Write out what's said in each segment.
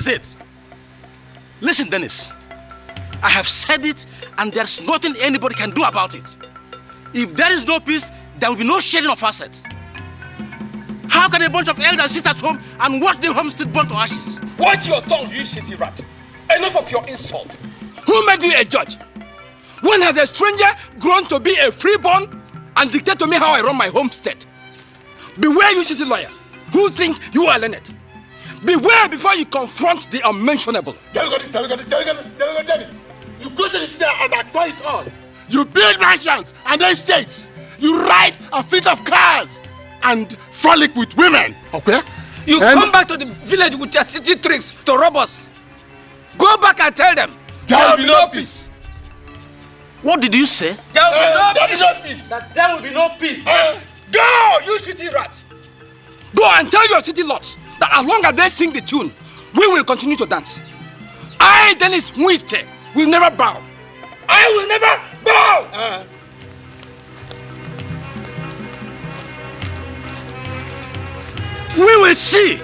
is it? Listen, Dennis. I have said it, and there's nothing anybody can do about it. If there is no peace, there will be no sharing of assets. How can a bunch of elders sit at home and watch the homestead burn to ashes? Watch your tongue, you shitty rat. Enough of your insult. Who made you a judge? When has a stranger grown to be a freeborn and dictate to me how I run my homestead? Beware, you shitty lawyer, who think you are Leonard? Beware before you confront the unmentionable. You go to the city and acquire it all. You build mansions and estates. You ride a fleet of cars and frolic with women, okay? You and come back to the village with your city tricks to rob us. Go back and tell them. There will be no peace. What did you say? There will uh, be, no, peace. That there will be no peace. Uh, go, you city rat. Go and tell your city lot that as long as they sing the tune, we will continue to dance. I, Dennis Muite, will never bow. I will never bow! Uh. We will see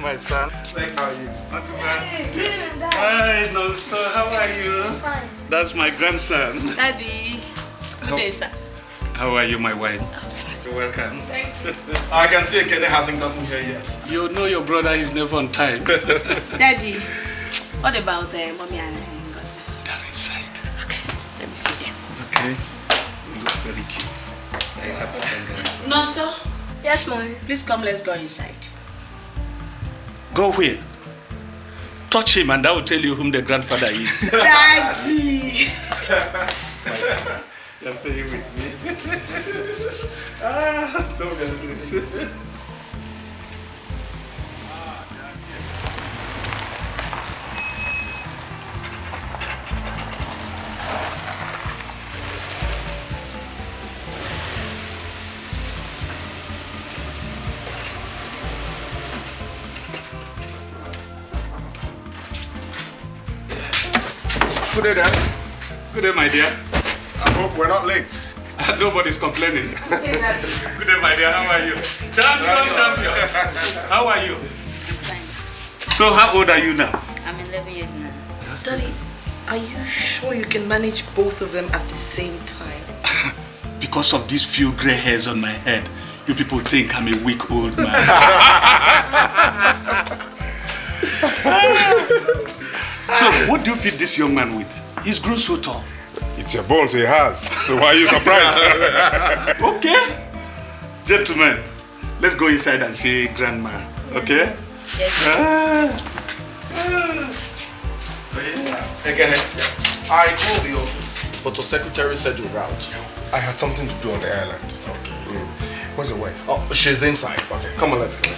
my son. how are you? Not too bad. Hey, good and dad. Hi, no, how are you? Fine. That's my grandson. Daddy. Good day, sir. How are you, my wife? You're welcome. Thank you. I can see Kenny hasn't gotten here yet. You know your brother is never on time. Daddy, what about uh, mommy and uh, Ngozi? They're inside. Okay, let me see them. Okay. You look very cute. I have to hang No, sir. Yes, mommy. Please come, let's go inside. Go where? Touch him and I will tell you whom the grandfather is. Daddy! You're staying with me. ah, don't get this. Good day, Dad. Good day, my dear. I hope we're not late. Nobody's complaining. Good day, my dear. How are you? Champion, champion. How are you? So, how old are you now? I'm 11 years now. Daddy, are you sure you can manage both of them at the same time? because of these few grey hairs on my head, you people think I'm a weak old man. So ah. what do you feed this young man with? He's grown so tall. It's your balls he has, so why are you surprised? okay. Gentlemen, let's go inside and see Grandma, okay? Yes. Ah. Again, I called the office, but the secretary said you're out. I had something to do on the island. Okay. Mm. Where's the wife? Oh, she's inside. Okay, come on, let's go.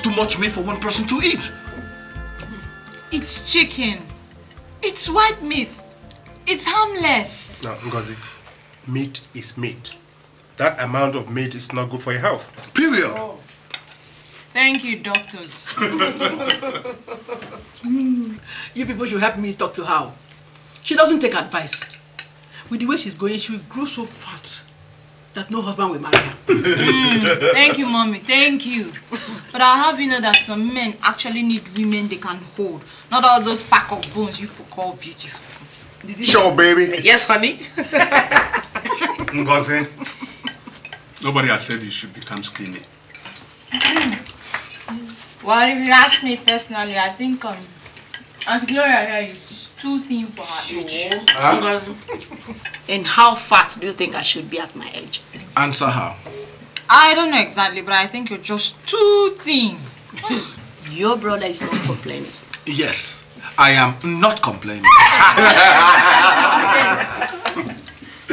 too much meat for one person to eat. It's chicken. It's white meat. It's harmless. Now, Ngozi, meat is meat. That amount of meat is not good for your health. Period. Oh. Thank you, doctors. Mm. You people should help me talk to her. She doesn't take advice. With the way she's going, she will grow so fat that no husband will marry her. mm, thank you, mommy. Thank you. But I have you know that some men actually need women they can hold. Not all those pack of bones you call beautiful. Sure, baby. Yes, honey. Ngozi, nobody has said you should become skinny. well, if you ask me personally, I think um, Aunt Gloria here is too thin for her age. Huh? and how fat do you think I should be at my age? Answer her. I don't know exactly, but I think you're just too thin. Your brother is not complaining. Yes, I am not complaining.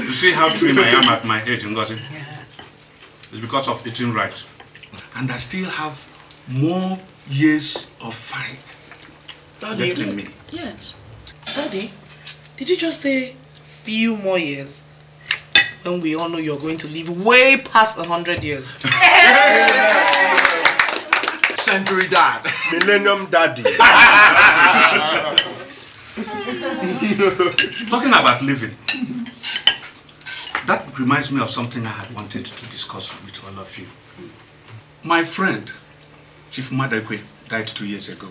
you see how trim I am at my age, Ngozi? Yeah. It's because of eating right. And I still have more years of fight left in me. Yes. Daddy, did you just say few more years? When we all know you're going to live way past 100 years. Century dad. Millennium daddy. Talking about living, that reminds me of something I had wanted to discuss with all of you. My friend, Chief Madakwe, died two years ago.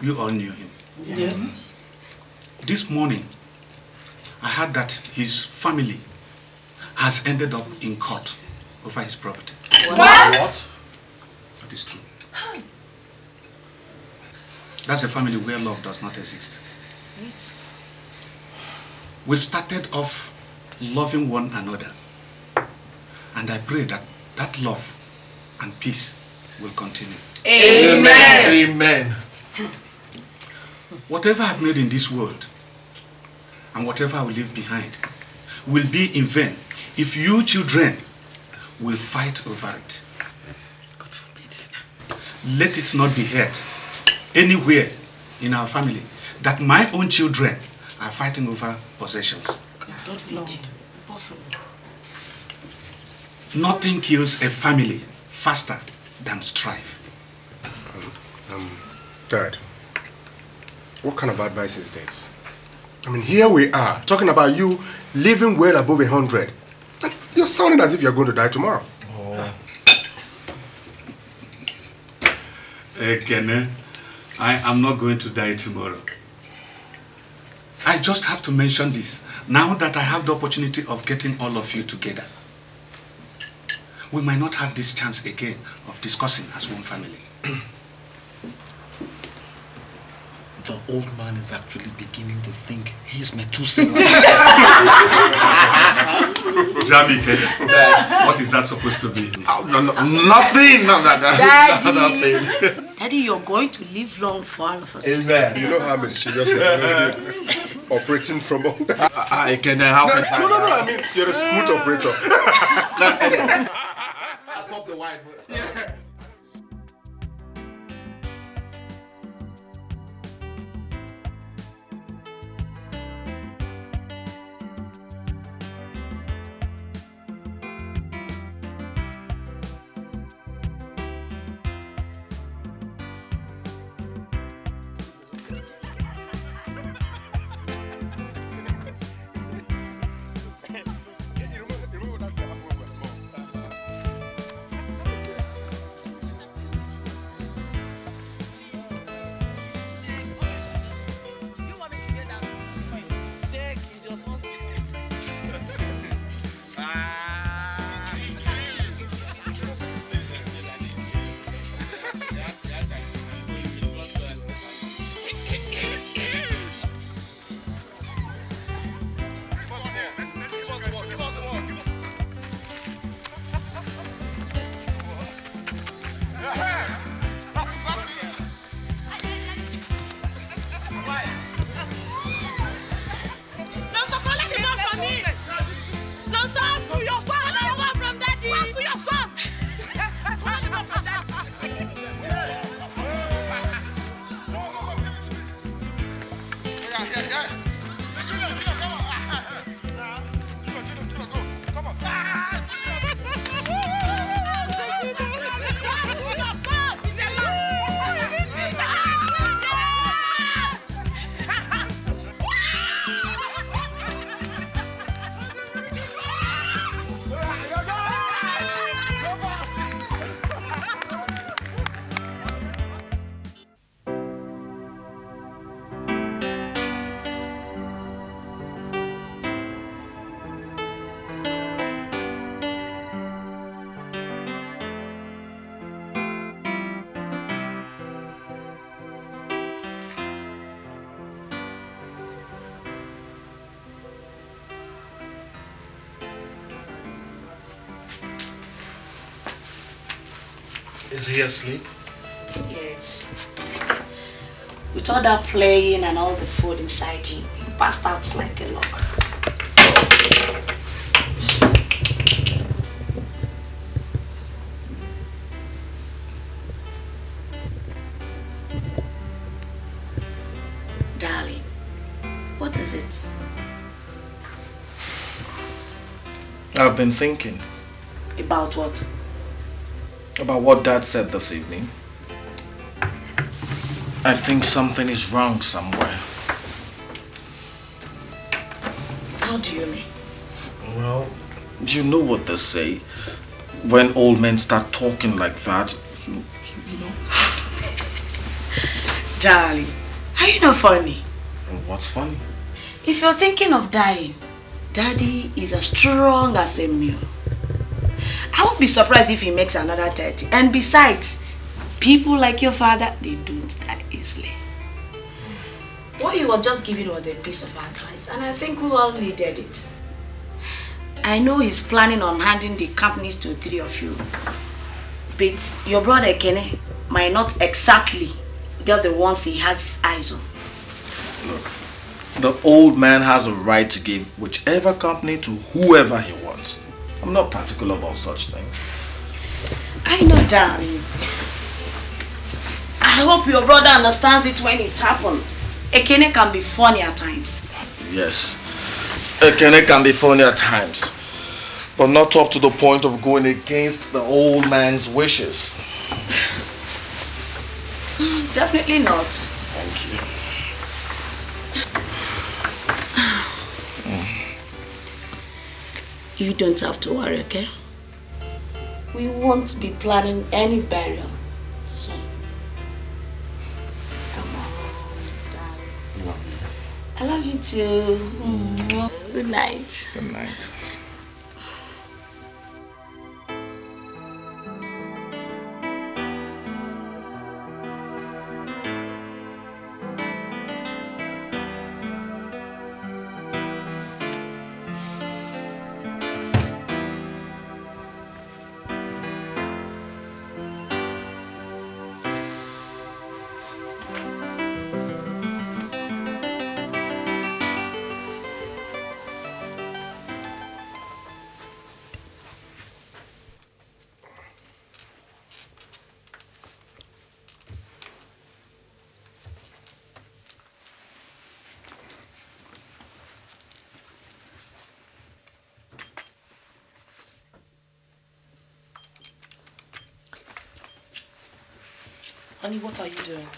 You all knew him. Yes. This morning, I heard that his family has ended up in court over his property. What? What? That is true. That's a family where love does not exist. We've started off loving one another. And I pray that that love and peace will continue. Amen. Amen. Whatever I've made in this world, and whatever I will leave behind will be in vain if you children will fight over it. God forbid. Let it not be heard anywhere in our family that my own children are fighting over possessions. God it. impossible. Nothing kills a family faster than strife. Um, um, Dad, what kind of advice is this? I mean, here we are talking about you living well above 100. you're sounding as if you're going to die tomorrow. Oh. Again, I am not going to die tomorrow. I just have to mention this now that I have the opportunity of getting all of you together. We might not have this chance again of discussing as one family. the old man is actually beginning to think he is Methuselah. Jamike, what is that supposed to be? Oh, no, no, nothing. Daddy. nothing. Daddy, you're going to live long for all of us. Amen. You know how mischievous operating from I, I can help. Uh, no, no, no, no, I mean, you're a smooth operator. Top the wife. Yeah. Seriously? Yes. With all that playing and all the food inside him, he passed out like a log. Darling, what is it? I've been thinking. About what? about what Dad said this evening. I think something is wrong somewhere. How do you mean? Well, you know what they say. When old men start talking like that, you, you know. Darling, are you not funny? What's funny? If you're thinking of dying, Daddy is as strong as a mule. I won't be surprised if he makes another 30. And besides, people like your father, they don't die easily. What he was just giving was a piece of advice, and I think we all needed it. I know he's planning on handing the companies to three of you, but your brother Kenny might not exactly get the ones he has his eyes on. Look, the old man has a right to give whichever company to whoever he wants. I'm not particular about such things. I know, darling. I hope your brother understands it when it happens. Ekene can be funny at times. Yes. Ekene can be funny at times. But not up to the point of going against the old man's wishes. Definitely not. You don't have to worry, okay? We won't be planning any burial soon. Come on, darling. I love you too. Mm. Good night. Good night. Honey, what are you doing?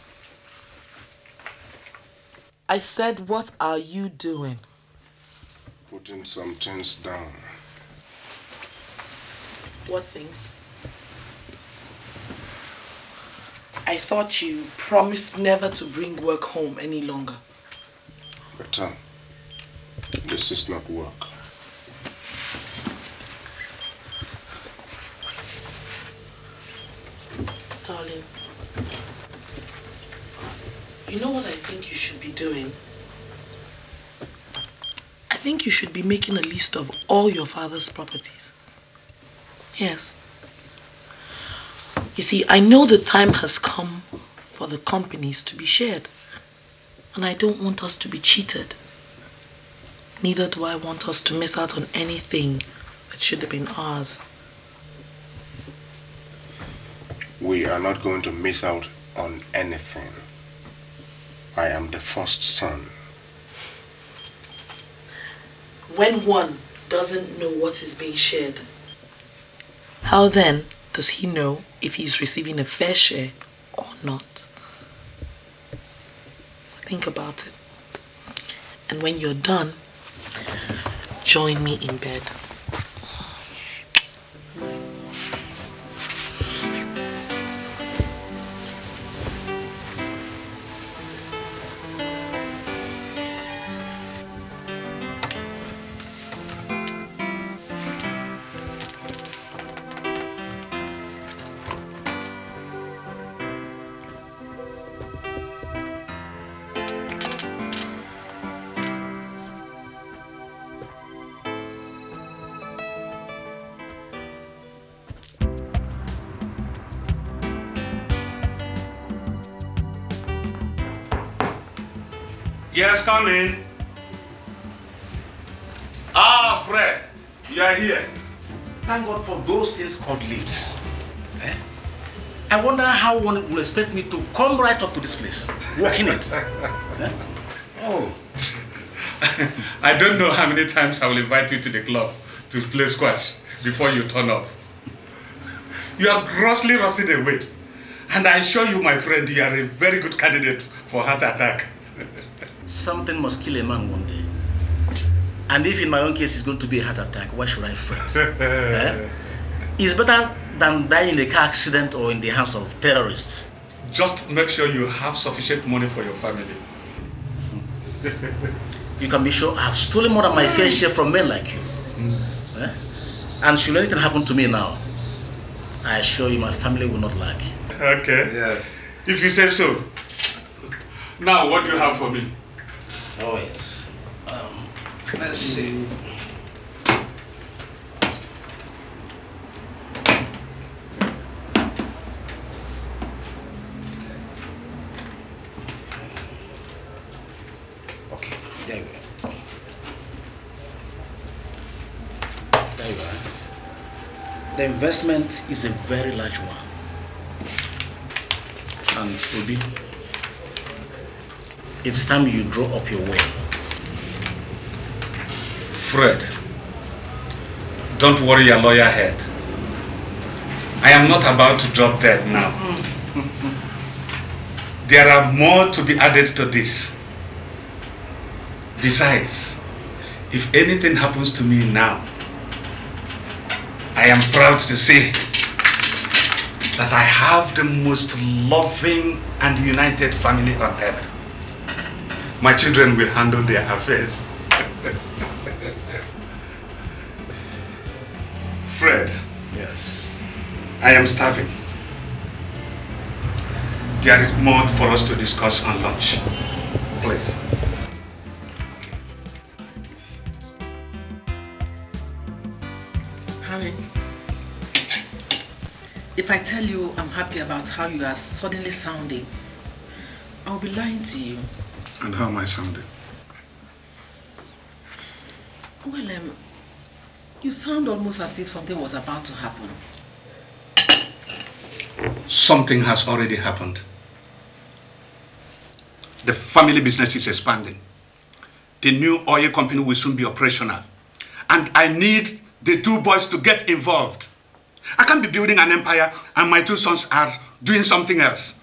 I said, what are you doing? Putting some things down. What things? I thought you promised never to bring work home any longer. Better. this is not work. Darling, you know what I think you should be doing? I think you should be making a list of all your father's properties. Yes. You see, I know the time has come for the companies to be shared. And I don't want us to be cheated. Neither do I want us to miss out on anything that should have been ours. We are not going to miss out on anything. I am the first son. When one doesn't know what is being shared, how then does he know if he is receiving a fair share or not? Think about it. And when you're done, join me in bed. come in. Ah, Fred, you are here. Thank God for those things called lips. Eh? I wonder how one will expect me to come right up to this place, walk in it. eh? Oh. I don't know how many times I will invite you to the club to play squash before you turn up. You are grossly rusted away. And I assure you, my friend, you are a very good candidate for heart attack. something must kill a man one day. And if in my own case it's going to be a heart attack, why should I fret? eh? It's better than dying in a car accident or in the hands of terrorists. Just make sure you have sufficient money for your family. you can be sure I've stolen more than my fair share from men like you. Mm. Eh? And should anything happen to me now, I assure you my family will not lack. Okay. Yes. If you say so. Now, what do you have for me? Oh, yes. Um, let's see. Okay, there you are. There you are. The investment is a very large one. And will be. It's time you draw up your will. Fred, don't worry your lawyer head. I am not about to drop dead now. there are more to be added to this. Besides, if anything happens to me now, I am proud to say that I have the most loving and united family on earth. My children will handle their affairs. Fred. Yes. I am starving. There is more for us to discuss on lunch. Please. if I tell you I'm happy about how you are suddenly sounding, I'll be lying to you. And how am I sounding? Well, um, you sound almost as if something was about to happen. Something has already happened. The family business is expanding. The new oil company will soon be operational. And I need the two boys to get involved. I can't be building an empire and my two sons are doing something else.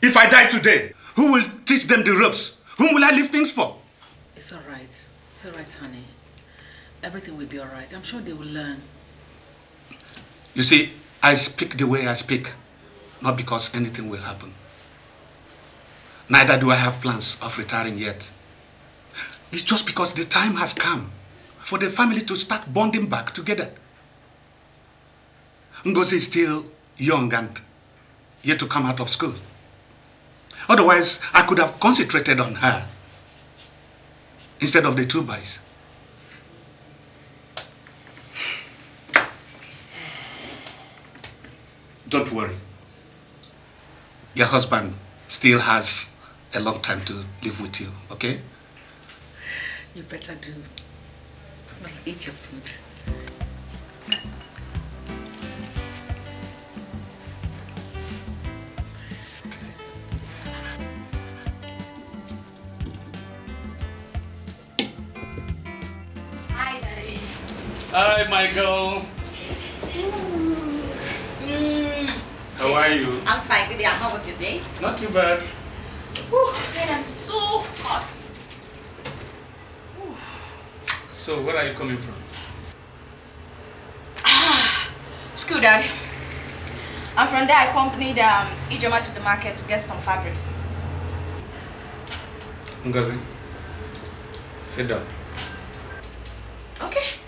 If I die today, who will teach them the ropes? Whom will I leave things for? It's all right. It's all right, honey. Everything will be all right. I'm sure they will learn. You see, I speak the way I speak, not because anything will happen. Neither do I have plans of retiring yet. It's just because the time has come for the family to start bonding back together. Ngozi is still young and yet to come out of school. Otherwise, I could have concentrated on her instead of the two boys. Don't worry. Your husband still has a long time to live with you, okay? You better do. Eat your food. Hi, Michael. Mm. How are you? I'm fine. Good How was your day? Not too bad. Oh, and I'm so hot. So, where are you coming from? Ah, school, Dad. And from there, I accompanied um, Ijoma to the market to get some fabrics. Ngazi, sit down. Okay.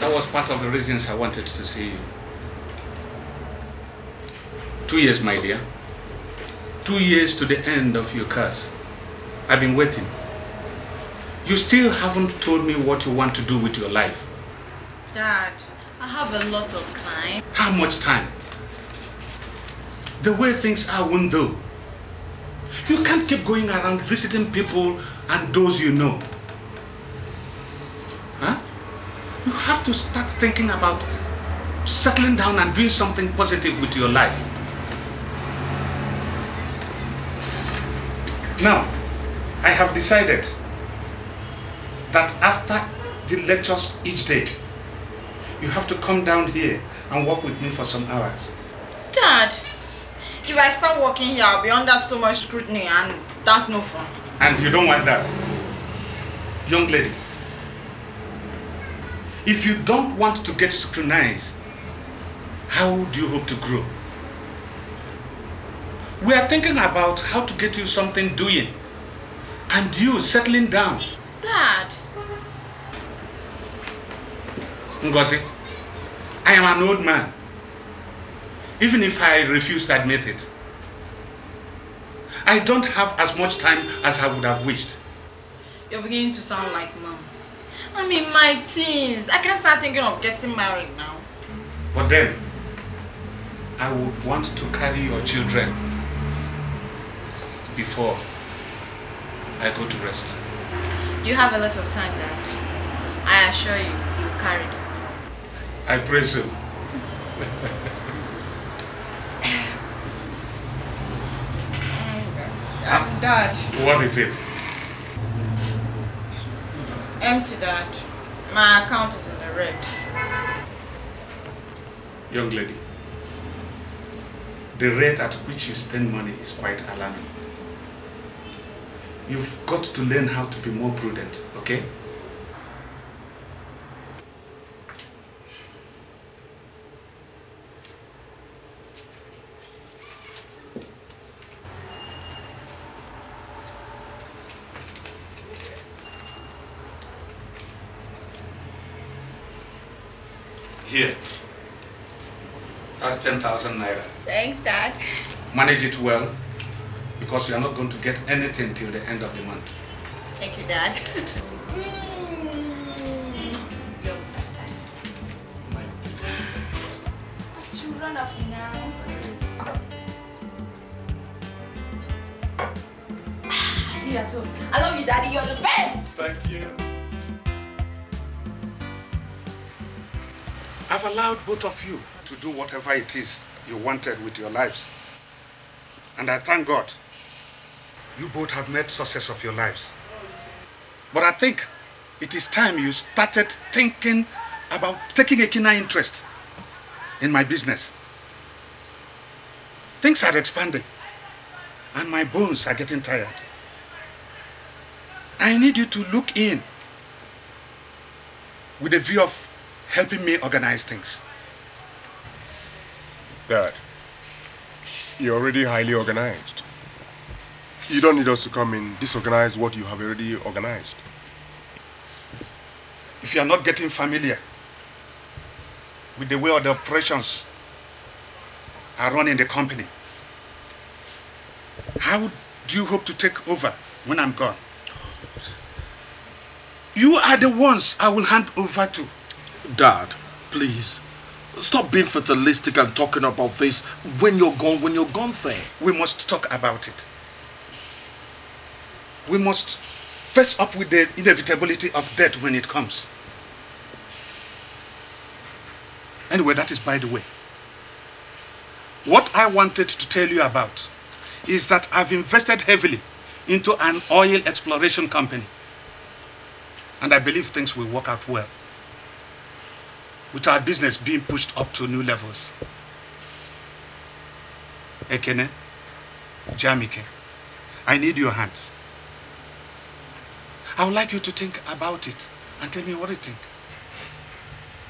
That was part of the reasons I wanted to see you. Two years, my dear. Two years to the end of your curse. I've been waiting. You still haven't told me what you want to do with your life. Dad, I have a lot of time. How much time? The way things are won't do. You can't keep going around visiting people and those you know. Huh? You have to start thinking about settling down and doing something positive with your life. Now, I have decided that after the lectures each day, you have to come down here and work with me for some hours. Dad, if I start working here, I'll be under so much scrutiny and that's no fun. And you don't want that? Young lady, if you don't want to get scrutinized, how do you hope to grow? We are thinking about how to get you something doing and you settling down. Dad. Ngozi, I am an old man even if I refuse to admit it. I don't have as much time as I would have wished. You're beginning to sound like mom. I'm in my teens. I can start thinking of getting married now. But then, I would want to carry your children before I go to rest. You have a lot of time, Dad. I assure you, you'll carry them. I pray so. Um, Dad. What is it? Empty, Dad. My account is in the red. Young lady, the rate at which you spend money is quite alarming. You've got to learn how to be more prudent, okay? Here. That's 10,000 naira. Thanks, Dad. Manage it well because you're not going to get anything till the end of the month. Thank you, Dad. You're My children now. I see you at home. I love you, Daddy. You're the best. Thank you. I've allowed both of you to do whatever it is you wanted with your lives. And I thank God you both have made success of your lives. But I think it is time you started thinking about taking a keener interest in my business. Things are expanding and my bones are getting tired. I need you to look in with a view of helping me organize things. Dad, you're already highly organized. You don't need us to come in disorganize what you have already organized. If you are not getting familiar with the way the operations are run in the company, how do you hope to take over when I'm gone? You are the ones I will hand over to. Dad, please, stop being fatalistic and talking about this when you're gone, when you're gone there. We must talk about it. We must face up with the inevitability of death when it comes. Anyway, that is by the way. What I wanted to tell you about is that I've invested heavily into an oil exploration company. And I believe things will work out well with our business being pushed up to new levels. Ekene, Jamike, I need your hands. I would like you to think about it and tell me what you think.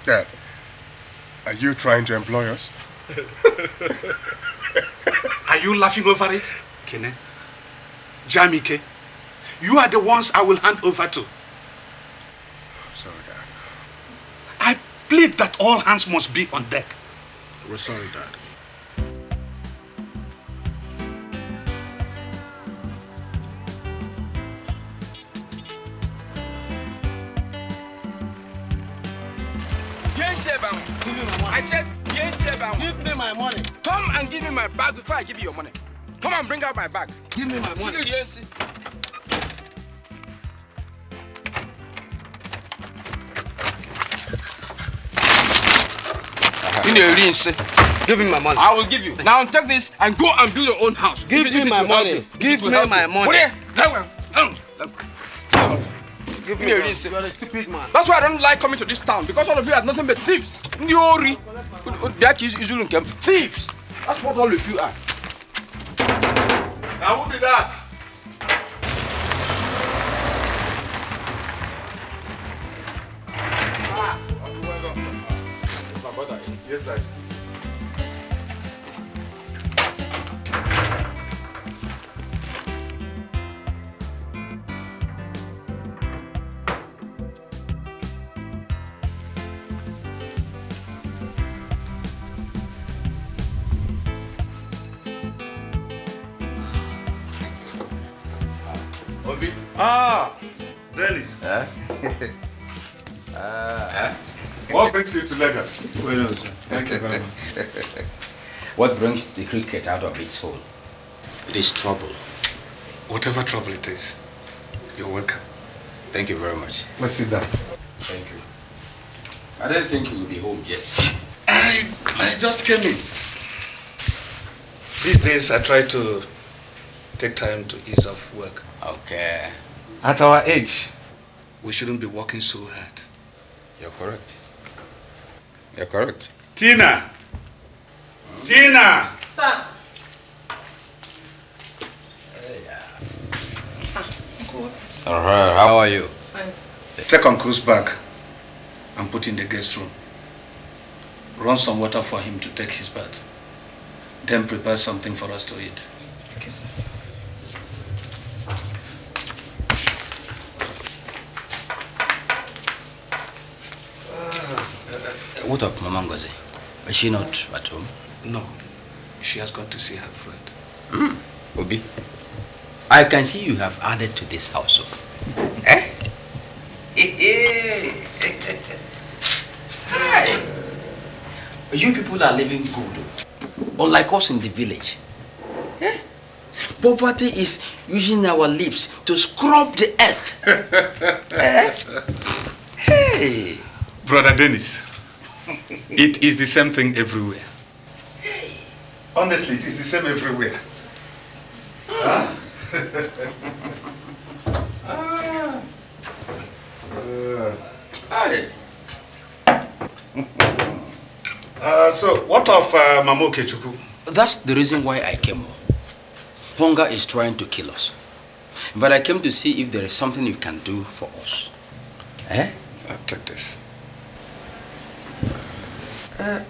Dad, are you trying to employ us? are you laughing over it? Kene, Jamike, you are the ones I will hand over to. I'm sorry. Plead that all hands must be on deck. We're sorry, Dad. I said, yes, sir, Give me my money. Come and give me my bag before I give you your money. Come and bring out my bag. Give me my money. Yes, dey rin say. Give me my money. I will give you. Now take this and go and build your own house. Give me my money. Give me my money. Where? Give me a ring. You are a stupid man. That's why I don't like coming to this town because all of you are nothing but thieves. Ndị ori. That is Izulu Nkem. Thieves. That's what all of you are. Now who did that? Exato. Ouvi? Ah! Deles! É? ah! É? What brings you to Lagos? Well, sir. Thank you very much. what brings the cricket out of its hole? It is trouble. Whatever trouble it is, you're welcome. Thank you very much. Let's sit down. Thank you. I don't think you will be home yet. I, I just came in. These days I try to take time to ease off work. Okay. At our age, we shouldn't be working so hard. You're correct. You're correct. Tina. Tina. Sir. All right, how are you? Thanks. Take Uncle's bag and put in the guest room. Run some water for him to take his bath. Then prepare something for us to eat. Okay, sir. what of Mama Ngozi? Is she not at home? No. She has gone to see her friend. Mm. Obi, I can see you have added to this household. Oh. eh? Hi. You people are living good, oh. unlike us in the village. Eh? Poverty is using our lips to scrub the earth. eh? Hey. Brother Dennis, it is the same thing everywhere. Honestly, it is the same everywhere. Huh? ah. uh, Uh, so, what of uh, Kechuku? That's the reason why I came home. Hunger is trying to kill us. But I came to see if there is something you can do for us. Eh? I'll take this. Uh,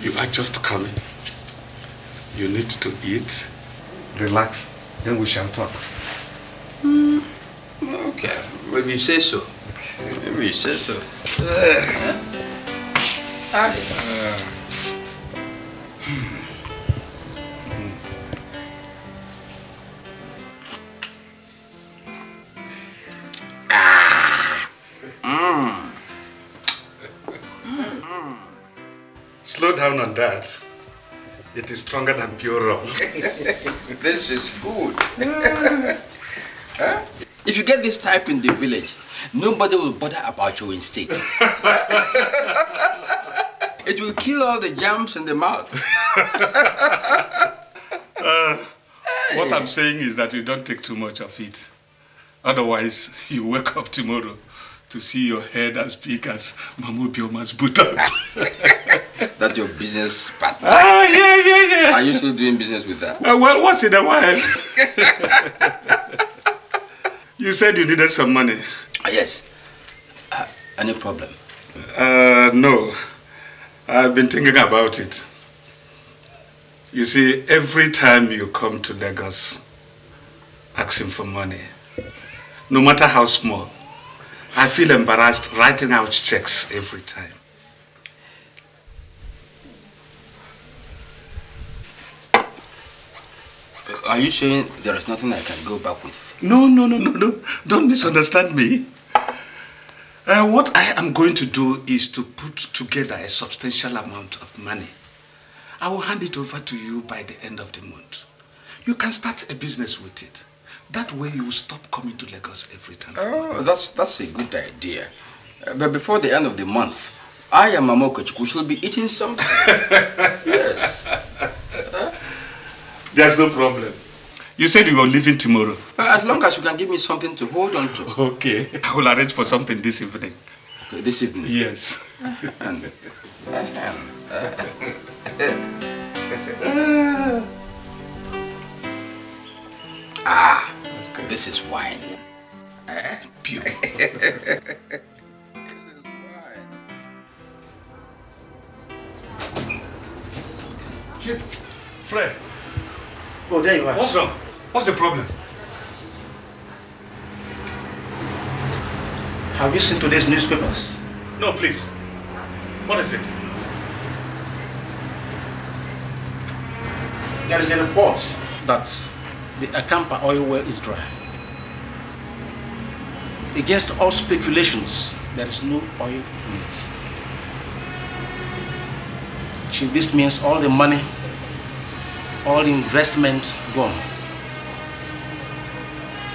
you are just coming. You need to eat. Relax, then we shall talk. Mm. Okay, maybe you say so. Okay. Maybe you say so. Uh, down on that, it is stronger than pure rum. this is good. huh? If you get this type in the village, nobody will bother about you in state. it will kill all the jams in the mouth. uh, what I'm saying is that you don't take too much of it. Otherwise, you wake up tomorrow to see your head as big as Mamu Bioma's buttock. That's your business partner. Ah, yeah, yeah, yeah. Are you still doing business with that? Uh, well, once in a while. you said you needed some money. Uh, yes. Uh, any problem? Uh, no. I've been thinking about it. You see, every time you come to Lagos asking for money, no matter how small, I feel embarrassed writing out checks every time. Are you saying there is nothing I can go back with? No, no, no, no, no. Don't misunderstand me. Uh, what I am going to do is to put together a substantial amount of money. I will hand it over to you by the end of the month. You can start a business with it. That way you will stop coming to Lagos every time. Oh, that's, that's a good idea. Uh, but before the end of the month, I and Mama We shall be eating something. yes. Huh? There's no problem. You said you were leaving tomorrow. Uh, as long as you can give me something to hold on to. Okay. I will arrange for something this evening. Okay, this evening? Yes. and, uh, ah. This is wine. Eh? Beautiful. Chief, Fred. Oh, there you are. What's wrong? What's the problem? Have you seen today's newspapers? No, please. What is it? There is a report That's the Akampa oil well is dry. Against all speculations, there is no oil in it. Chief, this means all the money, all the investment gone.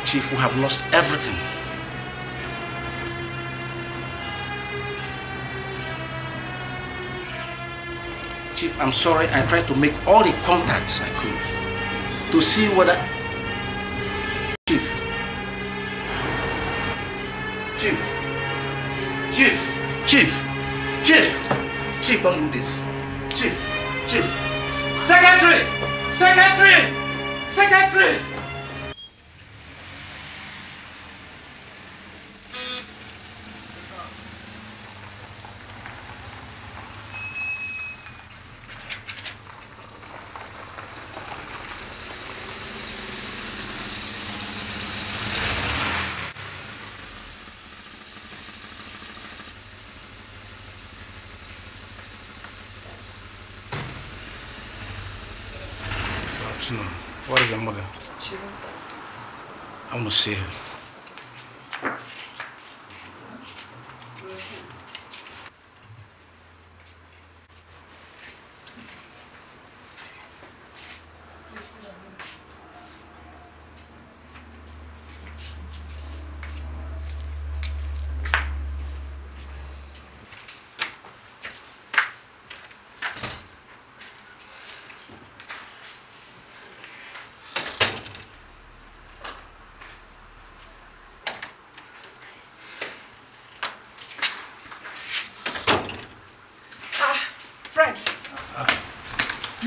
Chief, we have lost everything. Chief, I'm sorry, I tried to make all the contacts I could to see what I Chief. Chief. Chief. Chief. Chief. Chief, don't do this. Chief. Chief. Secretary! Secretary! Secretary! See.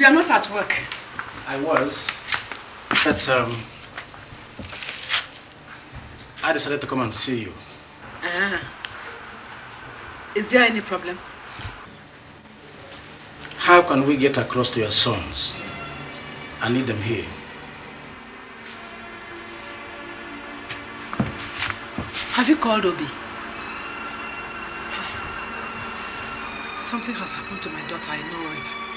i are not at work. I was, but um, I decided to come and see you. Ah. Is there any problem? How can we get across to your sons? I need them here. Have you called Obi? Something has happened to my daughter, I know it.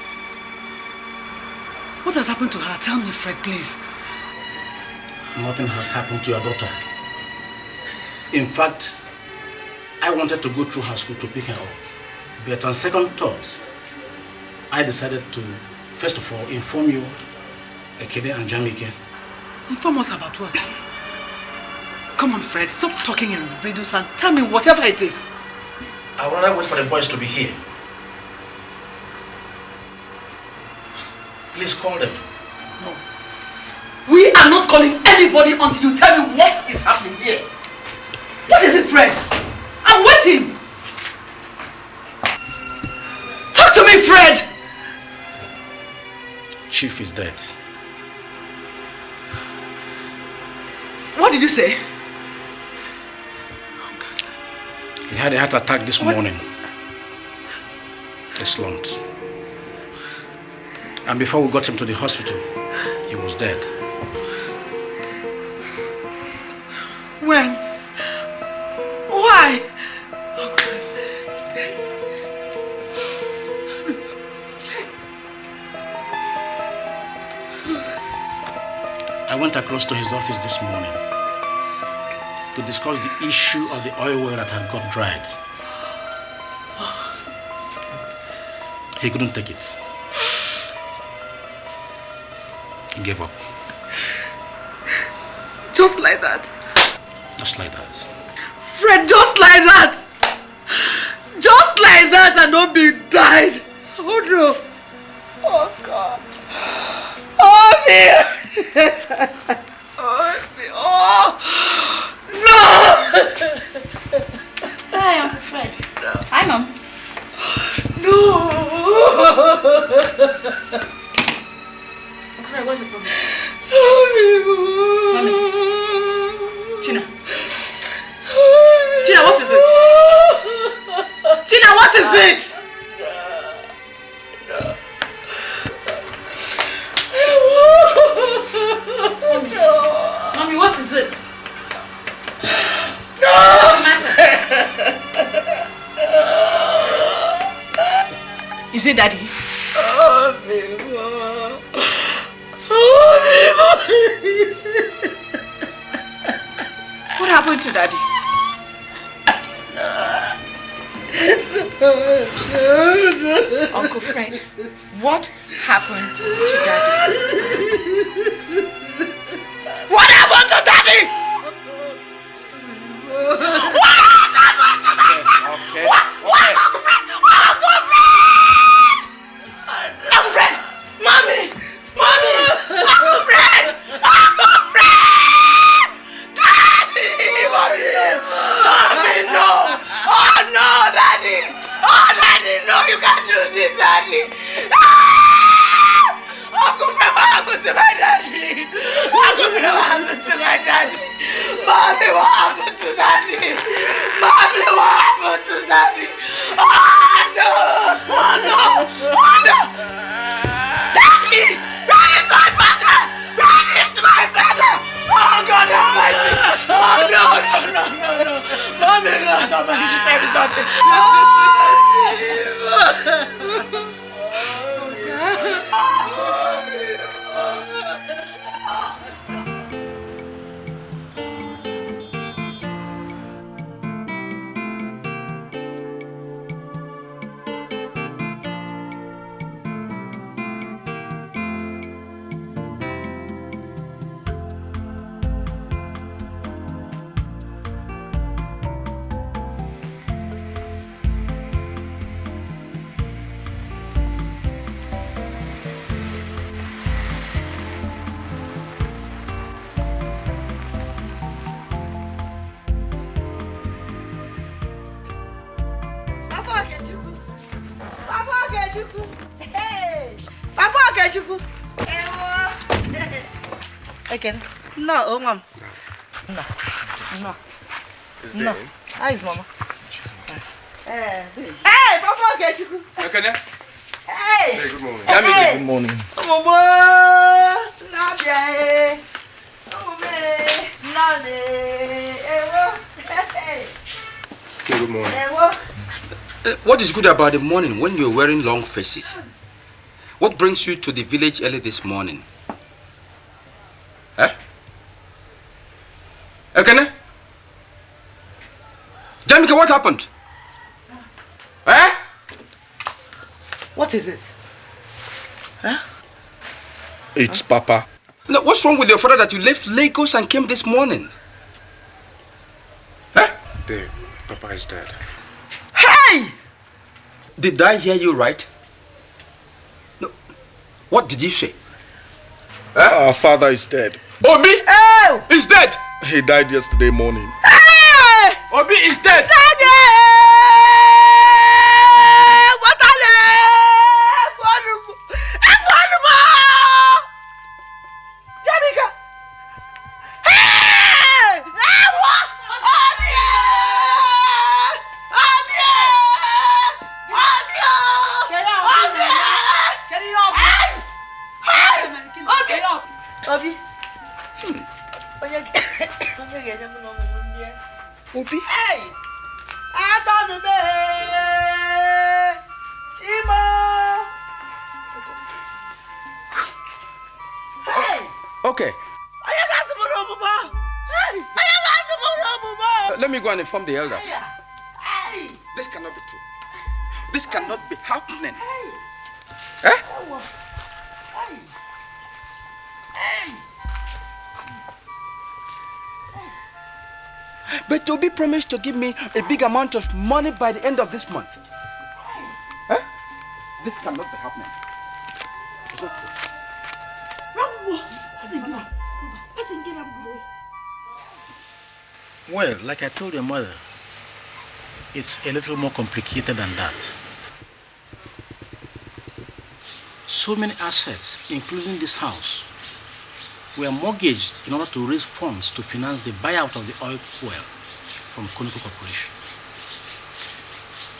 What has happened to her? Tell me, Fred, please. Nothing has happened to your daughter. In fact, I wanted to go through her school to pick her up. But on second thought, I decided to, first of all, inform you, Ekede and Jamike. Inform us about what? Come on, Fred, stop talking in riddles and tell me whatever it is. I would rather wait for the boys to be here. Please call them. No. We are not calling anybody until you tell me what is happening here. What is it, Fred? I'm waiting. Talk to me, Fred! Chief is dead. What did you say? Oh, he had a heart attack this what? morning. He slumped. And before we got him to the hospital, he was dead. When? Why? I went across to his office this morning to discuss the issue of the oil well that had got dried. He couldn't take it. She gave up. Just like that? Just like that. Fred, just like that! Just like that and not being died! Oh no! Oh God! Obi! Oh, good about the morning when you're wearing long faces? What brings you to the village early this morning? Eh? Okay? Eh, Jamika, what happened? Eh? What is it? Huh? Eh? It's huh? Papa. No, what's wrong with your father that you left Lagos and came this morning? Did I hear you right? No. What did you say? Huh? Our father is dead. Obi! Oh! He's dead! He died yesterday morning. Hey! Obi is dead! Dad! inform the elders. This cannot be true. This cannot be happening. Eh? But Toby promised to give me a big amount of money by the end of this month. Eh? This cannot be happening. Is that true? Well, like I told your mother, it's a little more complicated than that. So many assets, including this house, were mortgaged in order to raise funds to finance the buyout of the oil well from Conoco Corporation.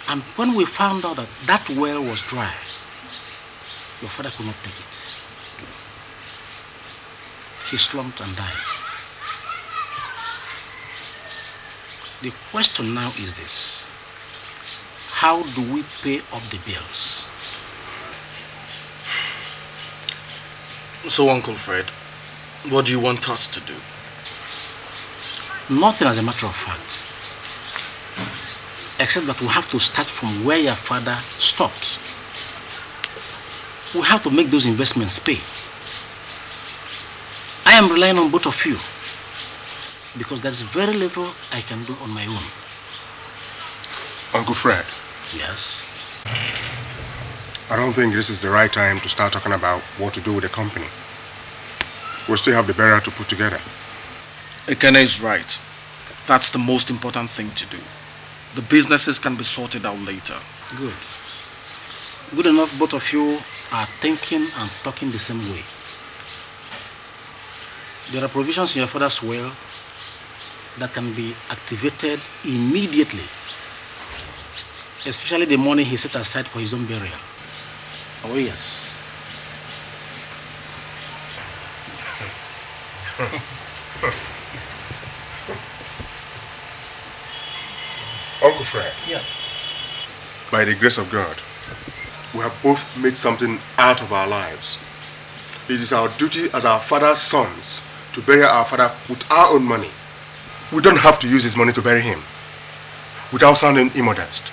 And when we found out that that well was dry, your father could not take it. He slumped and died. The question now is this How do we pay up the bills? So, Uncle Fred, what do you want us to do? Nothing as a matter of fact. Except that we have to start from where your father stopped. We have to make those investments pay. I am relying on both of you because there's very little I can do on my own. Uncle Fred. Yes? I don't think this is the right time to start talking about what to do with the company. We still have the barrier to put together. Ekene is right. That's the most important thing to do. The businesses can be sorted out later. Good. Good enough both of you are thinking and talking the same way. There are provisions in your father's will that can be activated immediately, especially the money he set aside for his own burial. Oh, yes. Uncle Fred. Yeah. By the grace of God, we have both made something out of our lives. It is our duty as our father's sons to bury our father with our own money. We don't have to use his money to bury him. Without sounding immodest,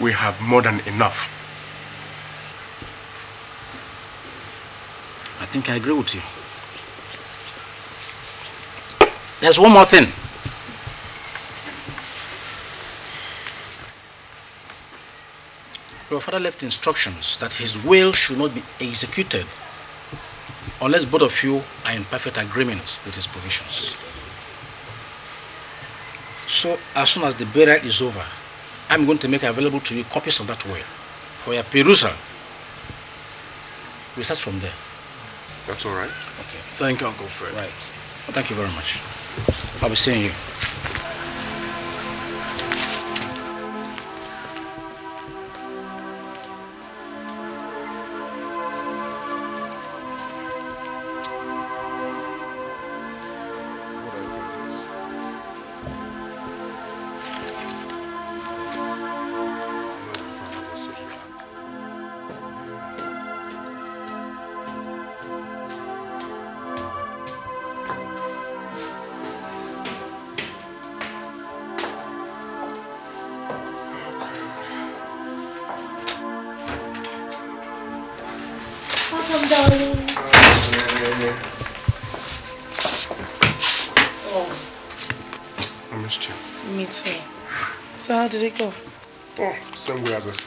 we have more than enough. I think I agree with you. There's one more thing. Your father left instructions that his will should not be executed unless both of you are in perfect agreement with his provisions. So as soon as the burial is over, I'm going to make available to you copies of that will for your perusal. We start from there. That's all right. Okay. Thank you, Uncle Fred. Right. Well, thank you very much. I'll be seeing you.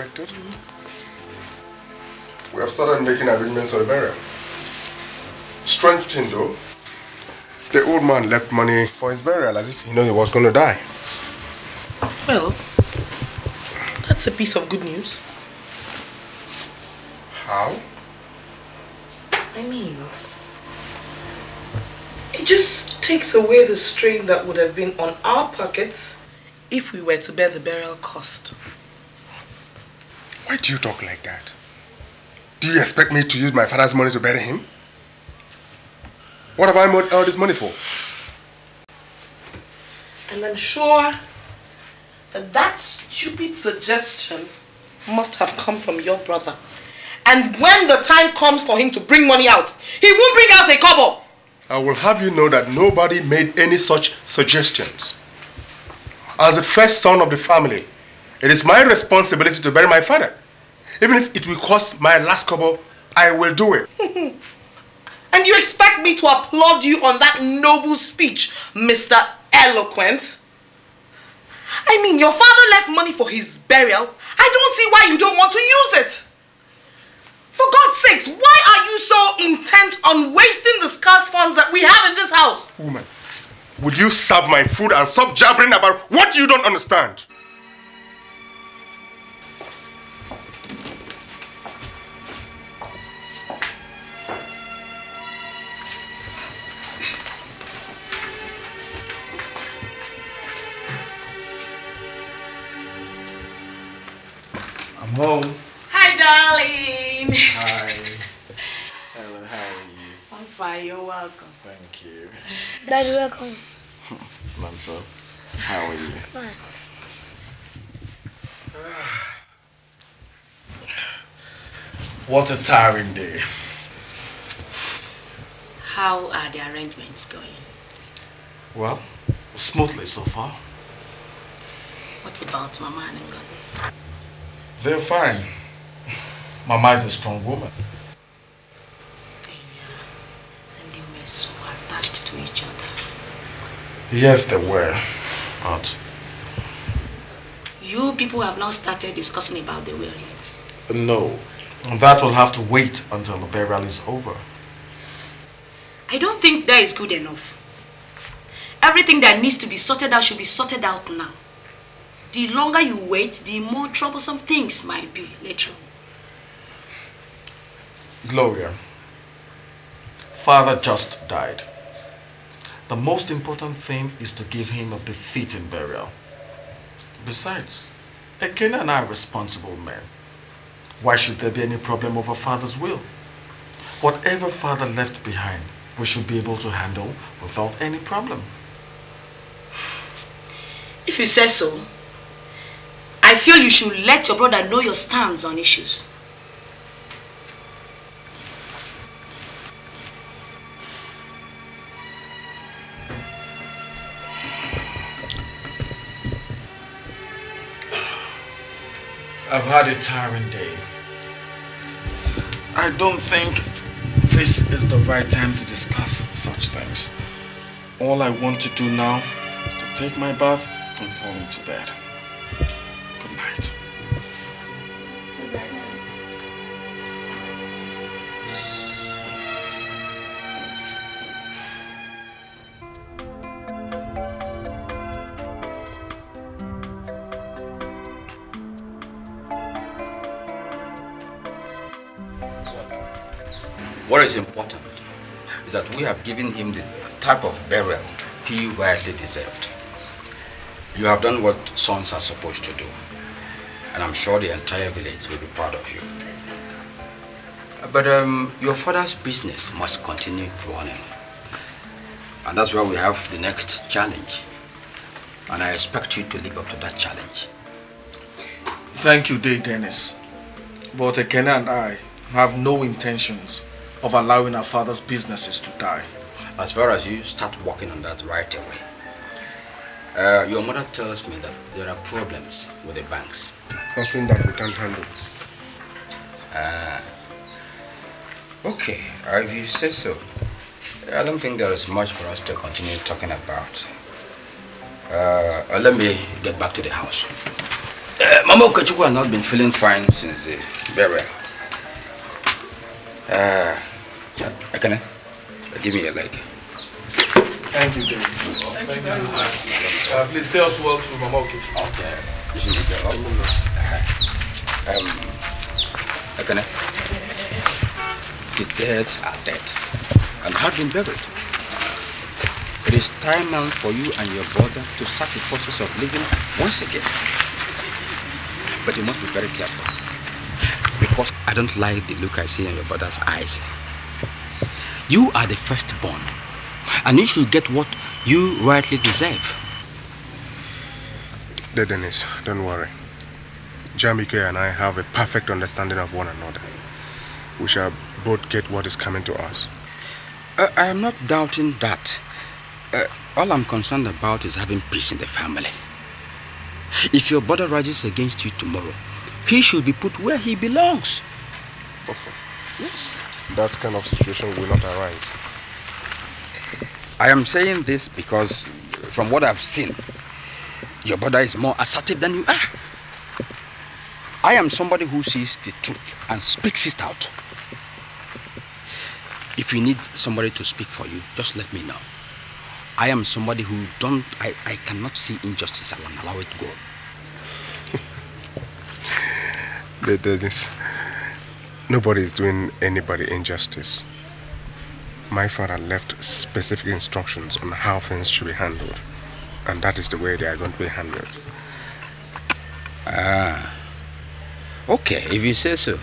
expected. Mm -hmm. We have started making arrangements for the burial. Strange thing though, the old man left money for his burial as if he knew he was going to die. Well, that's a piece of good news. How? I mean, it just takes away the strain that would have been on our pockets if we were to bear the burial cost. Why do you talk like that? Do you expect me to use my father's money to bury him? What have I made all this money for? And I'm sure that that stupid suggestion must have come from your brother. And when the time comes for him to bring money out, he won't bring out a cobble. I will have you know that nobody made any such suggestions. As the first son of the family, it is my responsibility to bury my father. Even if it will cost my last couple, I will do it. and you expect me to applaud you on that noble speech, Mr. Eloquent? I mean, your father left money for his burial. I don't see why you don't want to use it. For God's sakes, why are you so intent on wasting the scarce funds that we have in this house? Woman, will you serve my food and stop jabbering about what you don't understand? home. Hi, darling. Hi. Hello, how are you? I'm fine, you're welcome. Thank you. Dad, welcome. Manso, how are you? Fine. What a tiring day. How are the arrangements going? Well, smoothly so far. What about Mama and Ngozi? They're fine. Mama is a strong woman. Yeah. And they were so attached to each other. Yes, they were. But... You people have not started discussing about the will yet. No. That will have to wait until the burial is over. I don't think that is good enough. Everything that needs to be sorted out should be sorted out now the longer you wait, the more troublesome things might be later. Gloria, father just died. The most important thing is to give him a befitting burial. Besides, Ekene and I are responsible men. Why should there be any problem over father's will? Whatever father left behind, we should be able to handle without any problem. If you say so, I feel you should let your brother know your stance on issues. I've had a tiring day. I don't think this is the right time to discuss such things. All I want to do now is to take my bath and fall into bed. What is important is that we have given him the type of burial he rightly deserved. You have done what sons are supposed to do, and I'm sure the entire village will be proud of you. But um, your father's business must continue running. And that's where we have the next challenge. And I expect you to live up to that challenge. Thank you, Day Dennis. But Ekena and I have no intentions of allowing our father's businesses to die. As far as you start working on that right away, uh, your mother tells me that there are problems with the banks. Nothing that we can handle. Uh, okay, if you say so. I don't think there is much for us to continue talking about. Uh, let me get back to the house. Uh, Mama Okachukwu has not been feeling fine since the burial. Uh, Okay. give me a leg. Thank you, Dave. Thank, Thank you, Uh, please say us well to Mama Okay. okay. This is the job. Uh-huh. Um, Akane, uh, the dead are dead and have been buried. It is time now for you and your brother to start the process of living once again. But you must be very careful because I don't like the look I see in your brother's eyes you are the firstborn, and you should get what you rightly deserve. Dear Dennis, don't worry. Jamike and I have a perfect understanding of one another. We shall both get what is coming to us. Uh, I am not doubting that. Uh, all I'm concerned about is having peace in the family. If your brother rises against you tomorrow, he should be put where he belongs. yes that kind of situation will not arise. I am saying this because from what I've seen, your brother is more assertive than you are. I am somebody who sees the truth and speaks it out. If you need somebody to speak for you, just let me know. I am somebody who don't, I, I cannot see injustice and allow it go. Dennis, Nobody is doing anybody injustice. My father left specific instructions on how things should be handled, and that is the way they are going to be handled. Ah, okay, if you say so.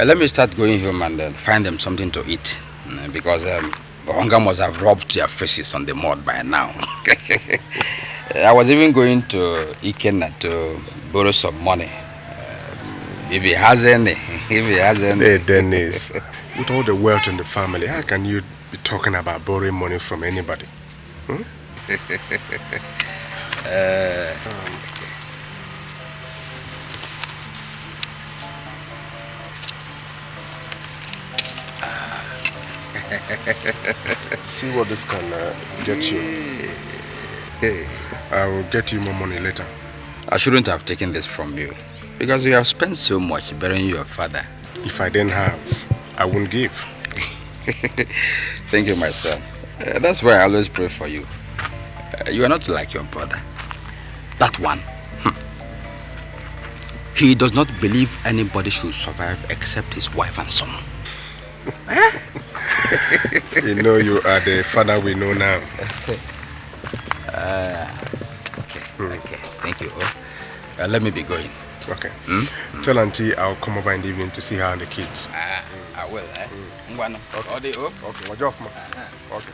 Uh, let me start going home and uh, find them something to eat, uh, because um, hunger must have rubbed their faces on the mud by now. I was even going to Ikena to borrow some money if he has any, if he has any. Hey, Dennis, with all the wealth in the family, how can you be talking about borrowing money from anybody? Hmm? uh, See what this can uh, get you. Hey, I will get you more money later. I shouldn't have taken this from you. Because you have spent so much burying your father. If I didn't have, I wouldn't give. Thank you, my son. Uh, that's why I always pray for you. Uh, you are not like your brother. That one. Hmm. He does not believe anybody should survive except his wife and son. Eh? you know you are the father we know now. Uh, okay, hmm. okay. Thank you. Oh, uh, let me be going. Okay. Mm? Tell Auntie I'll come over in the evening to see her and the kids. Ah, I will, eh? Mm. Okay. Okay, watch ah, ah. Okay.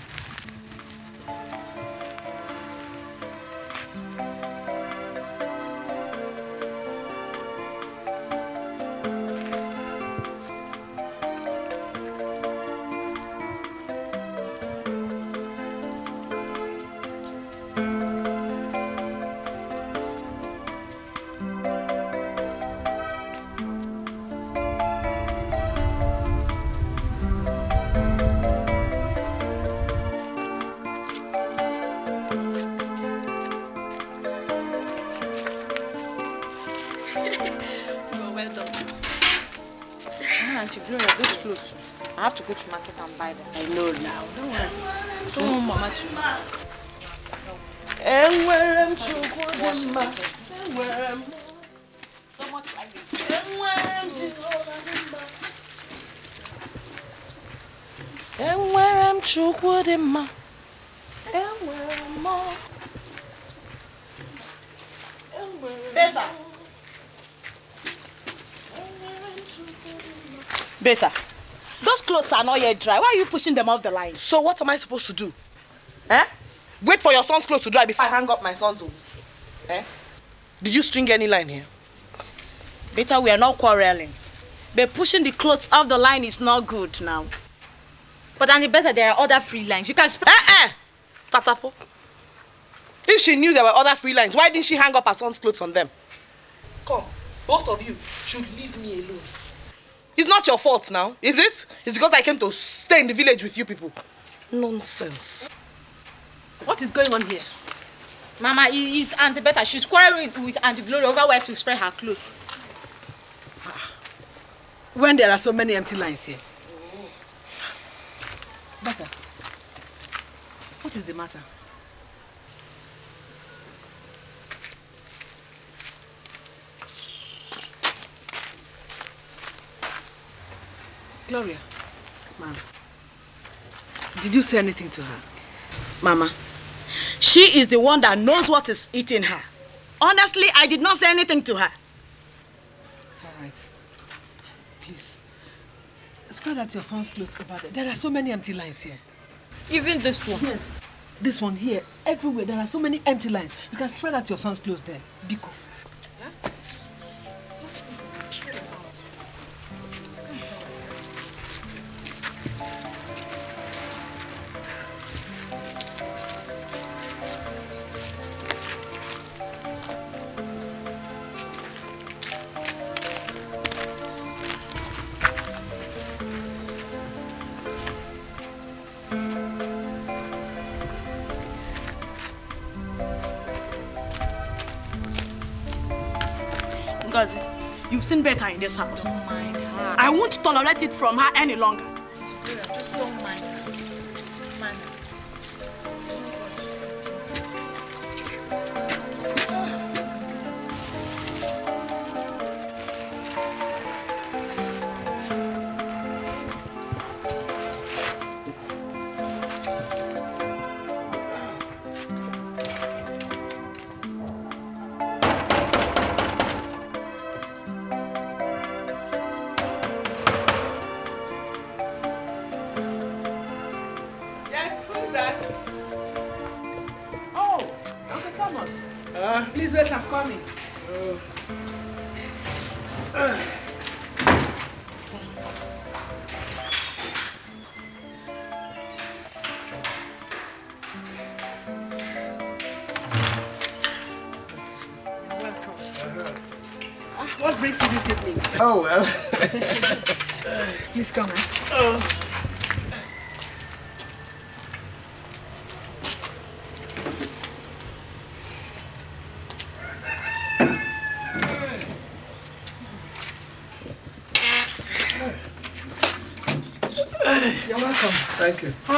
you're dry. Why are you pushing them off the line? So what am I supposed to do? Eh? Wait for your son's clothes to dry before I hang up my son's own. Eh? Did you string any line here? Better we are not quarreling. But pushing the clothes off the line is not good now. But any better there are other free lines. You can spread. Eh eh! Tatafo. If she knew there were other free lines, why didn't she hang up her son's clothes on them? Come, both of you should leave me alone. It's not your fault now, is it? It's because I came to stay in the village with you people. Nonsense. What is going on here? Mama, it's Auntie Beta. She's quarreling with Auntie Glory over where to spread her clothes. Ah. When there are so many empty lines here. Oh. Beta, what is the matter? Gloria. Ma'am. Did you say anything to her? Mama, she is the one that knows what is eating her. Honestly, I did not say anything to her. It's all right. Please, spread out your son's clothes over there. There are so many empty lines here. Even this one? Yes. This one here, everywhere, there are so many empty lines. You can spread out your son's clothes there. Biko. seen better in this house. Oh I won't tolerate it from her any longer.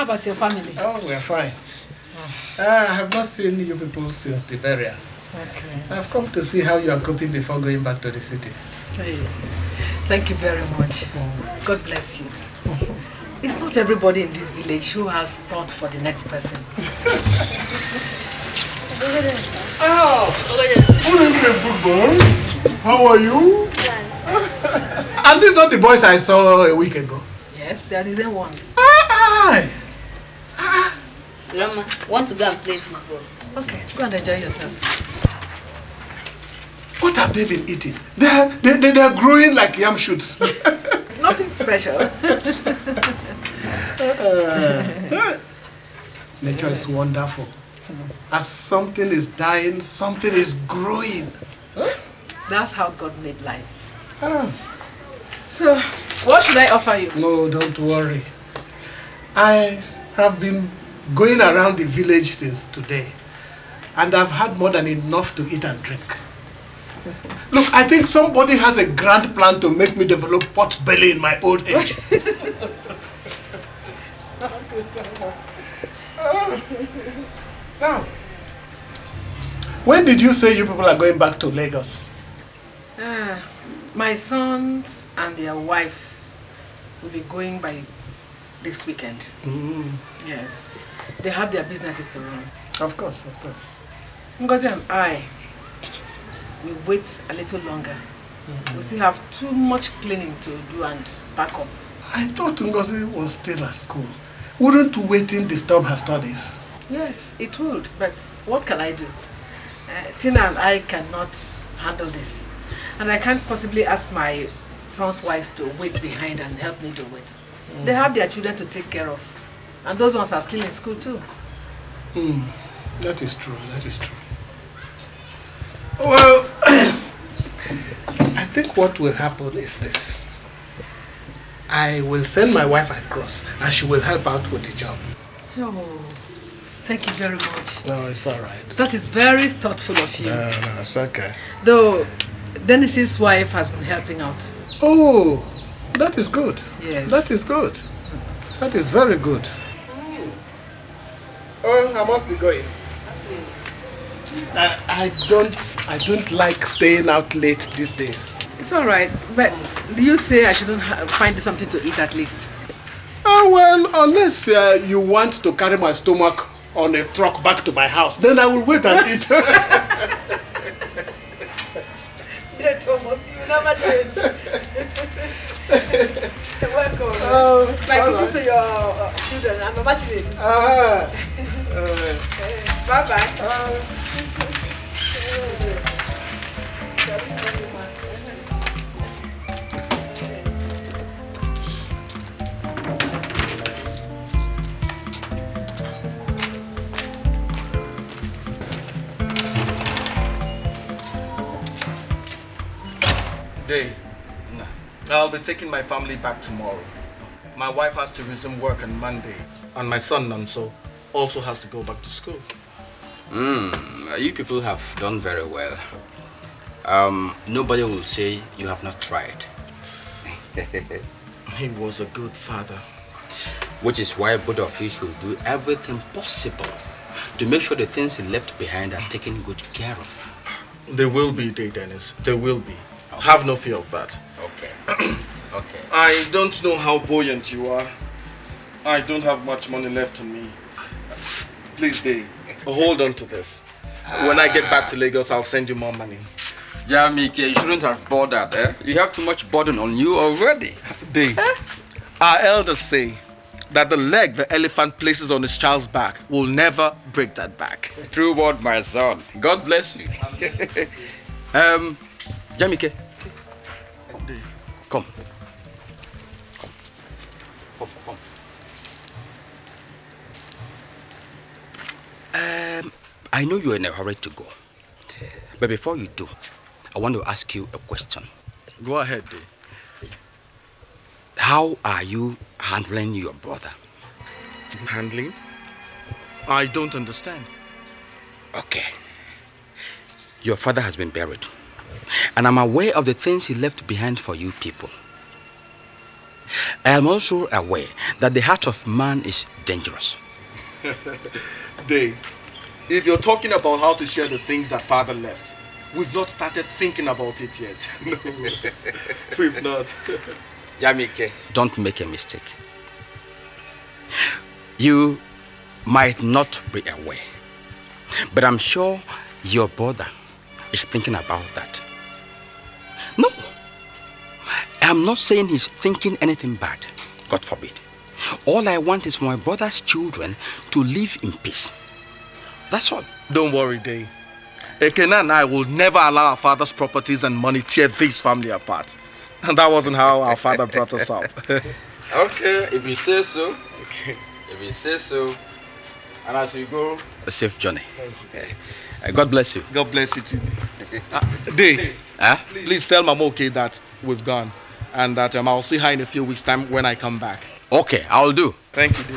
about your family? Oh, we are fine. Oh. Uh, I have not seen you people since the burial. Okay. I've come to see how you are coping before going back to the city. Hey. Thank you very much. God bless you. It's not everybody in this village who has thought for the next person. oh, good How are you? At least not the boys I saw a week ago. Yes, they are the same ones. Rama, want to go and play football. Okay, go and enjoy yourself. What have they been eating? They're, they, they, they're growing like yam shoots. Nothing special. Uh, nature is wonderful. As something is dying, something is growing. That's how God made life. Ah. So, what should I offer you? No, don't worry. I have been going around the village since today, and I've had more than enough to eat and drink. Look, I think somebody has a grand plan to make me develop pot belly in my old age. now, when did you say you people are going back to Lagos? Uh, my sons and their wives will be going by this weekend. Mm. Yes they have their businesses to run. Of course, of course. Ngozi and I, we wait a little longer. Mm -hmm. We still have too much cleaning to do and pack up. I thought Ngozi was still at school. Wouldn't waiting disturb her studies? Yes, it would, but what can I do? Uh, Tina and I cannot handle this. And I can't possibly ask my son's wives to wait behind and help me do it. Mm. They have their children to take care of. And those ones are still in school too. Hmm, that is true, that is true. Well, I think what will happen is this. I will send my wife across and she will help out with the job. Oh, thank you very much. No, it's all right. That is very thoughtful of you. No, no, it's okay. Though, Dennis's wife has been helping out. Oh, that is good. Yes. That is good. That is very good. Oh, I must be going. I, I don't I don't like staying out late these days. It's all right, but do you say I shouldn't find something to eat at least? Oh, well, unless uh, you want to carry my stomach on a truck back to my house, then I will wait and eat. yeah, Thomas, you never change. Welcome. Oh, My Oh, like your children, I'm a it. Uh, bye bye. Day. I'll be taking my family back tomorrow. My wife has to resume work on Monday, and my son Nanso also has to go back to school. Hmm, you people have done very well. Um, nobody will say you have not tried. he was a good father. Which is why both of you should do everything possible to make sure the things he left behind are taken good care of. They will be, Day Dennis. They will be. Okay. Have no fear of that. Okay. okay. I don't know how buoyant you are. I don't have much money left to me. Please, Dave, hold on to this. When I get back to Lagos, I'll send you more money. Jamike, you shouldn't have bought that, eh? You have too much burden on you already. Dave, our elders say that the leg the elephant places on his child's back will never break that back. True word, my son. God bless you. um, Jamike, Um, I know you're in a hurry to go. But before you do, I want to ask you a question. Go ahead, How are you handling your brother? Handling? I don't understand. Okay. Your father has been buried. And I'm aware of the things he left behind for you people. I am also aware that the heart of man is dangerous. day, if you're talking about how to share the things that Father left, we've not started thinking about it yet. no, we've not. Jamike, don't make a mistake. You might not be aware, but I'm sure your brother is thinking about that. No, I'm not saying he's thinking anything bad. God forbid. All I want is for my brother's children to live in peace. That's all. Don't worry, Day. Ekena and I will never allow our father's properties and money tear this family apart. And that wasn't how our father brought us up. okay, if you say so. Okay. If you say so. And as you go, a safe journey. Uh, God bless you. God bless you too. Uh, Day, please. please tell Mama okay that we've gone and that um, I'll see her in a few weeks' time when I come back. Okay, I'll do. Thank you, D.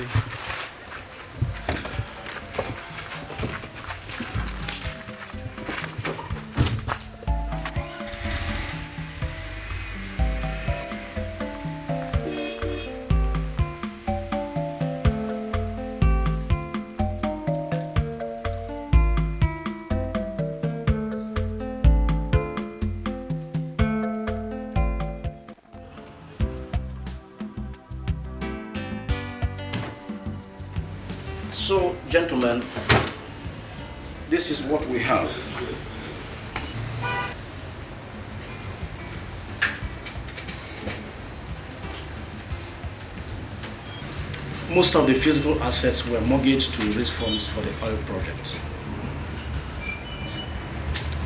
Physical assets were mortgaged to raise funds for the oil project.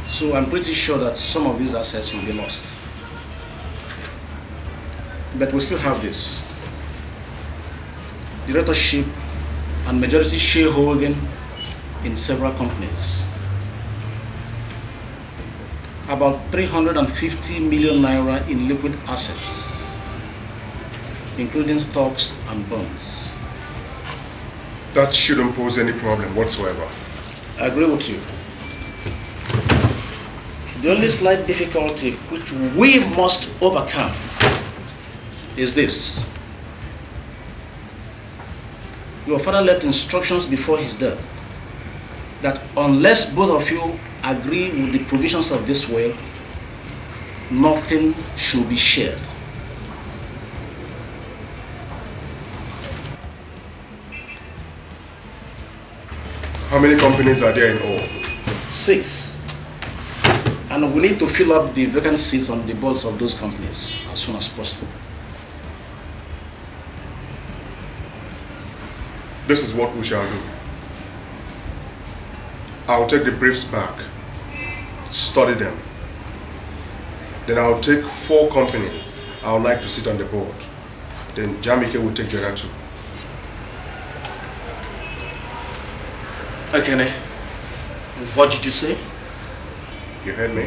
So I'm pretty sure that some of these assets will be lost. But we still have this. Directorship and majority shareholding in several companies. About 350 million naira in liquid assets, including stocks and bonds that shouldn't pose any problem whatsoever. I agree with you. The only slight difficulty which we must overcome is this. Your father left instructions before his death that unless both of you agree with the provisions of this will, nothing should be shared. How many companies are there in all? Six. And we need to fill up the vacancies on the boards of those companies as soon as possible. This is what we shall do. I'll take the briefs back, study them. Then I'll take four companies I would like to sit on the board. Then Jamike will take the other two. Ekene, what did you say? You heard me?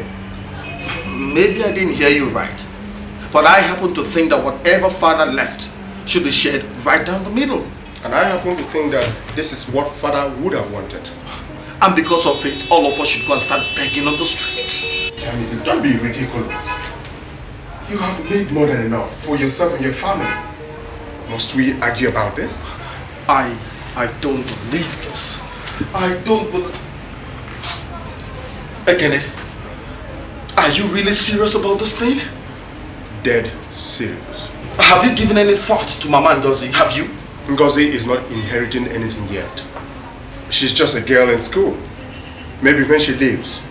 Maybe I didn't hear you right. But I happen to think that whatever father left should be shared right down the middle. And I happen to think that this is what father would have wanted. And because of it, all of us should go and start begging on the streets. Tell me, don't be ridiculous. You have made more than enough for yourself and your family. Must we argue about this? I... I don't believe this. I don't believe... Ekene, are you really serious about this thing? Dead serious. Have you given any thought to Mama Ngozi? Have you? Ngozi is not inheriting anything yet. She's just a girl in school. Maybe when she leaves,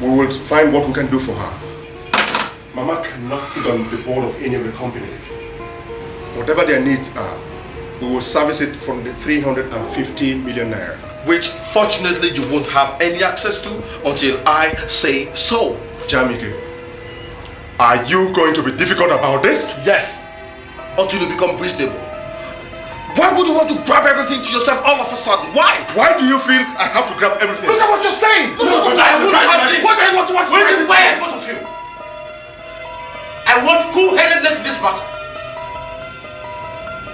we will find what we can do for her. Mama cannot sit on the board of any of the companies. Whatever their needs are, we will service it from the 350 million naira. Which fortunately you won't have any access to until I say so. Jamike, are you going to be difficult about this? Yes, until you become reasonable. Why would you want to grab everything to yourself all of a sudden? Why? Why do you feel I have to grab everything? Look at what you're saying! Look, no, look, look, I won't have this! What do you want to watch? Where, where, both of you? I want cool-headedness in this matter.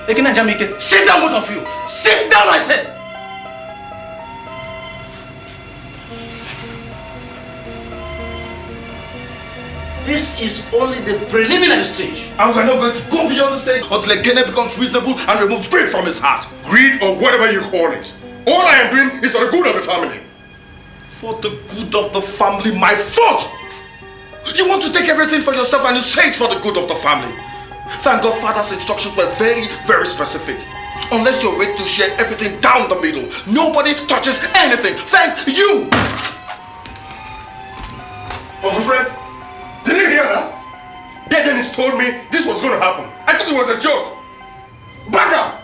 Ekene and sit down, both of you. Sit down, I said. This is only the preliminary stage. And we're not going to go beyond the stage until Ekene becomes reasonable and removes greed from his heart. Greed or whatever you call it. All I am doing is for the good of the family. For the good of the family, my fault! You want to take everything for yourself and you say it's for the good of the family. Thank God Father's instructions were very, very specific. Unless you're ready to share everything down the middle, nobody touches anything. Thank you! Uncle Fred, did you hear that? Yeah, Dennis told me this was gonna happen. I thought it was a joke. Back up!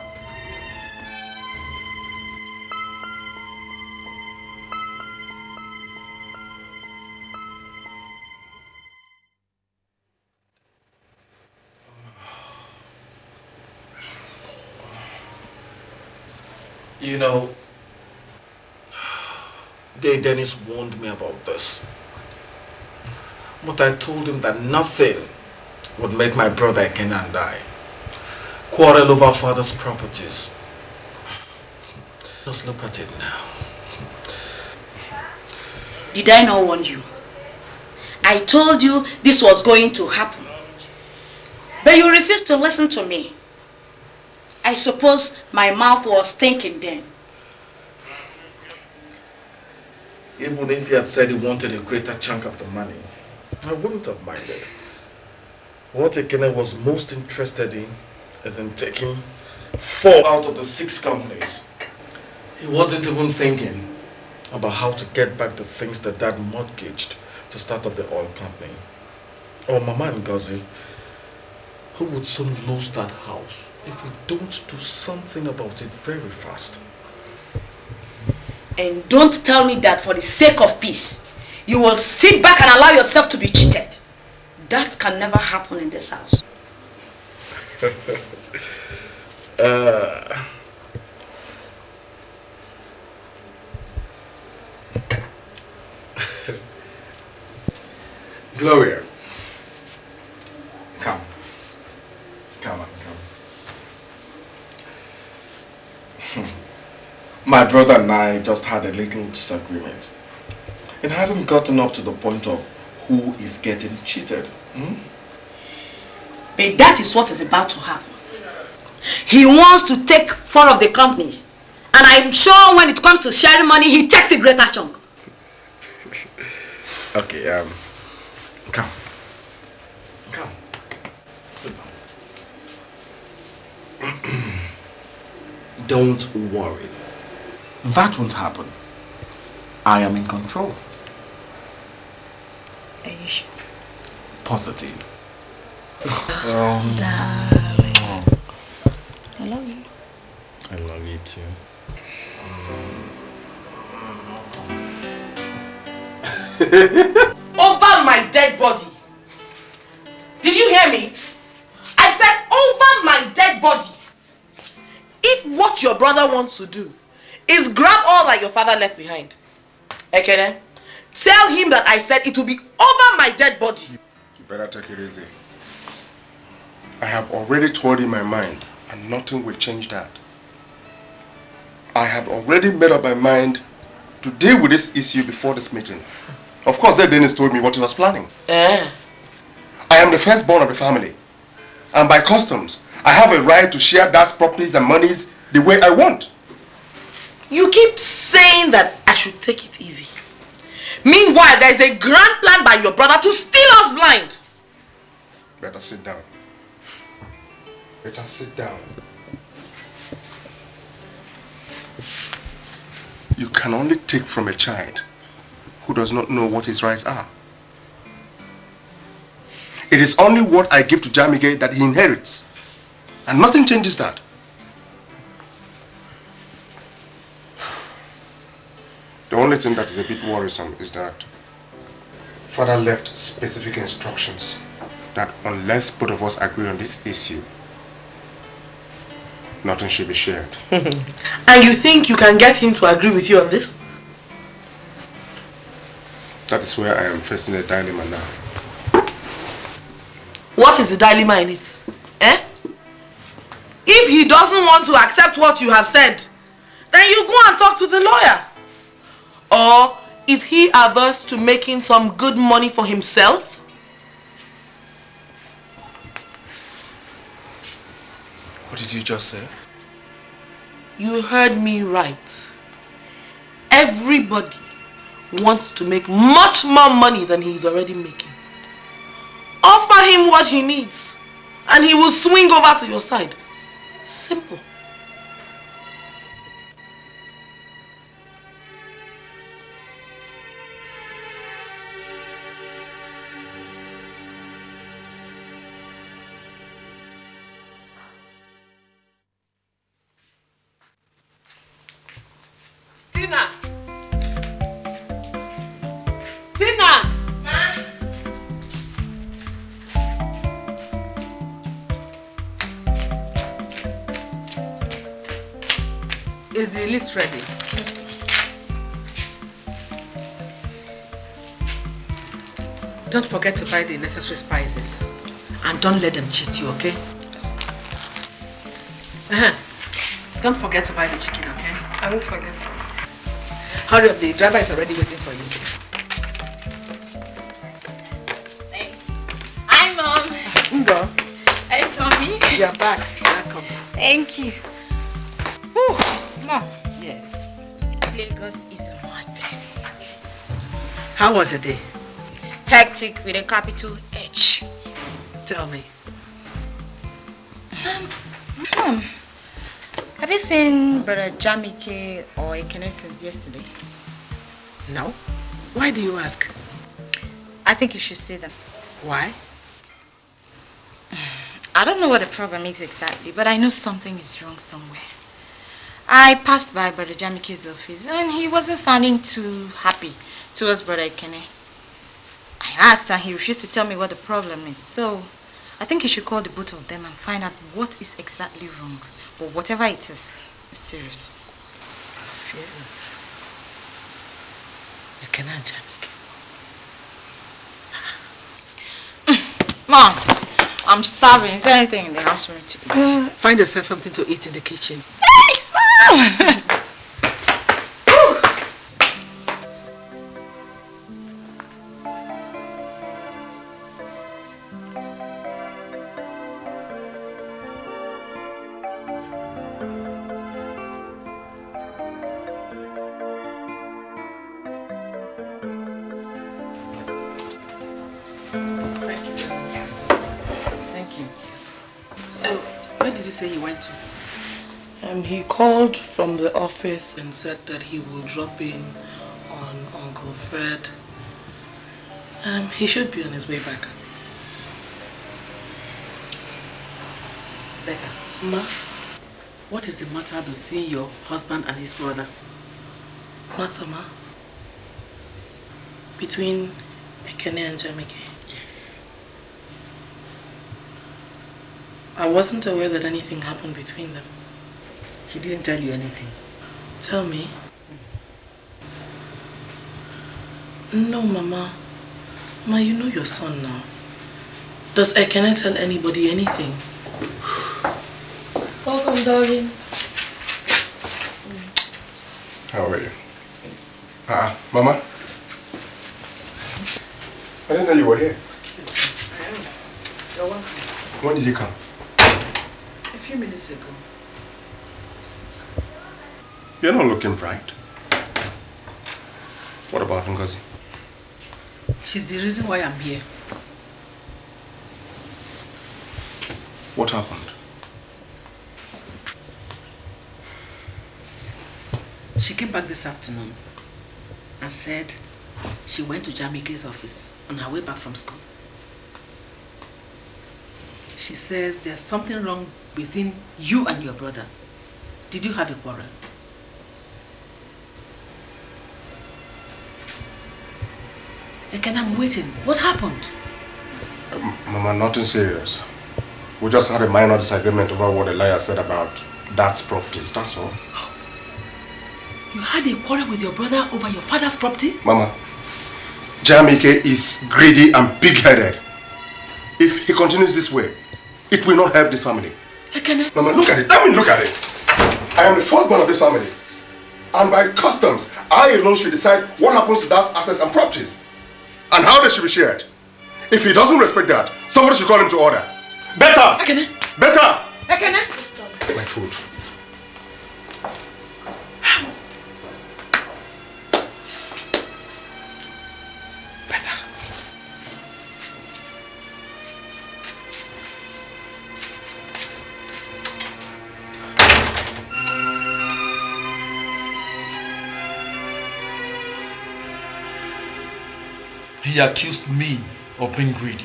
You know, Day Dennis warned me about this. But I told him that nothing would make my brother Ken and I quarrel over father's properties. Just look at it now. Did I not warn you? I told you this was going to happen. But you refused to listen to me. I suppose my mouth was thinking then. Even if he had said he wanted a greater chunk of the money, I wouldn't have minded. What Ekene was most interested in is in taking four out of the six companies. He wasn't even thinking about how to get back the things that dad mortgaged to start up the oil company. Or Mama and Gazi, who would soon lose that house if we don't do something about it very fast. And don't tell me that for the sake of peace, you will sit back and allow yourself to be cheated. That can never happen in this house. uh... Gloria, come, come on. My brother and I just had a little disagreement. It hasn't gotten up to the point of who is getting cheated. Hmm? But that is what is about to happen. He wants to take four of the companies. And I'm sure when it comes to sharing money, he takes the greater chunk. okay, um, come. Come. Sit down. Don't worry. That won't happen. I am in control. Are you sure? Positive. Oh, um, darling. I love you. I love you too. over my dead body. Did you hear me? I said over my dead body. If what your brother wants to do is grab all that your father left behind. Ekene, tell him that I said it will be over my dead body. You better take it easy. I have already told in my mind and nothing will change that. I have already made up my mind to deal with this issue before this meeting. Of course, that Dennis told me what he was planning. Yeah. I am the firstborn of the family. And by customs, I have a right to share dad's properties and monies the way I want. You keep saying that I should take it easy. Meanwhile, there is a grand plan by your brother to steal us blind. Better sit down. Better sit down. You can only take from a child who does not know what his rights are. It is only what I give to Jamige that he inherits. And nothing changes that. The only thing that is a bit worrisome is that father left specific instructions that unless both of us agree on this issue, nothing should be shared. and you think you can get him to agree with you on this? That is where I am facing a dilemma now. What is the dilemma in it? Eh? If he doesn't want to accept what you have said, then you go and talk to the lawyer. Or is he averse to making some good money for himself? What did you just say? You heard me right. Everybody wants to make much more money than he's already making. Offer him what he needs and he will swing over to your side. Simple. Tina! Tina! Ma? Is the list ready? Yes. Don't forget to buy the necessary spices. And don't let them cheat you, okay? Yes. Uh -huh. Don't forget to buy the chicken, okay? I won't forget. Hurry up, the driver is already waiting for you. Hi, Mom. Ngo. Hi, Tommy. You're back. Welcome. Thank you. Whew. Mom. Yes. Lagos is a mad place. How was your day? Hectic with a capital H. Tell me. Um, Mom. Have you seen Brother Jamike or Ekene since yesterday? No. Why do you ask? I think you should see them. Why? I don't know what the problem is exactly, but I know something is wrong somewhere. I passed by Brother Jamike's office and he wasn't sounding too happy towards Brother Ekene. I asked and he refused to tell me what the problem is, so I think you should call the both of them and find out what is exactly wrong. But whatever it is, it's serious. Serious? You cannot jam again. Mom, I'm starving. Is there anything in the house for me to eat? find yourself something to eat in the kitchen. Yes, Mom! called from the office and said that he will drop in on Uncle Fred. Um, he should be on his way back. Becca. Ma? What is the matter between your husband and his brother? Matter, ma? Between Ekene and Jamike? Yes. I wasn't aware that anything happened between them. He didn't tell you anything. Tell me. Hmm. No, Mama. Ma, you know your son now. Does I cannot tell anybody anything? Welcome, darling. How are you? Ah, -uh. Mama? I didn't know you were here. Excuse me. I am. You're welcome. When did you come? A few minutes ago. You're not looking bright. What about Ngozi? She's the reason why I'm here. What happened? She came back this afternoon and said she went to Jamike's office on her way back from school. She says there's something wrong between you and your brother. Did you have a quarrel? Again, I'm waiting. What happened? Um, Mama, nothing serious. We just had a minor disagreement over what the lawyer said about dad's properties, that's all. You had a quarrel with your brother over your father's property? Mama, Jamike is greedy and big headed If he continues this way, it will not help this family. Ekene. Eh? Mama, look at it. Let me look at it. I am the firstborn of this family. And by customs, I alone should decide what happens to dad's assets and properties. and how they should be shared. If he doesn't respect that, somebody should call him to order. Better! Ekene! Better! Ekene! My food. he accused me of being greedy.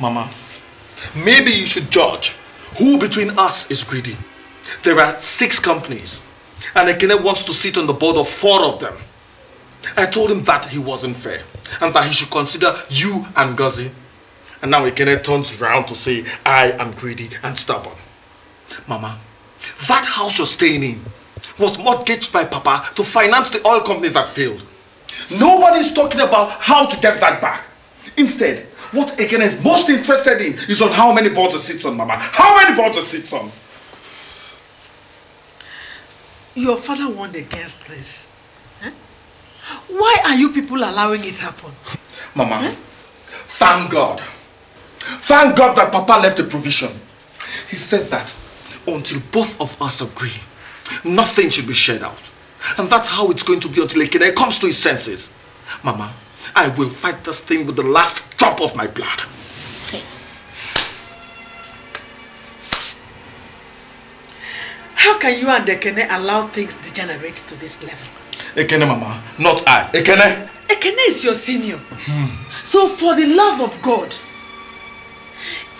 Mama, maybe you should judge who between us is greedy. There are six companies, and Ekene wants to sit on the board of four of them. I told him that he wasn't fair, and that he should consider you and Gazi. And now Ekene turns round to say, I am greedy and stubborn. Mama, that house you're staying in was mortgaged by Papa to finance the oil company that failed. Nobody's talking about how to get that back. Instead, what Ekene is most interested in is on how many balls it sits on, Mama. How many balls it sits on? Your father warned against this. Huh? Why are you people allowing it happen? Mama, huh? thank God. Thank God that Papa left a provision. He said that until both of us agree, nothing should be shared out. And that's how it's going to be until Ekene comes to his senses. Mama, I will fight this thing with the last drop of my blood. Okay. How can you and Ekene allow things degenerate to this level? Ekene, Mama, not I. Ekene? Ekene is your senior. So for the love of God,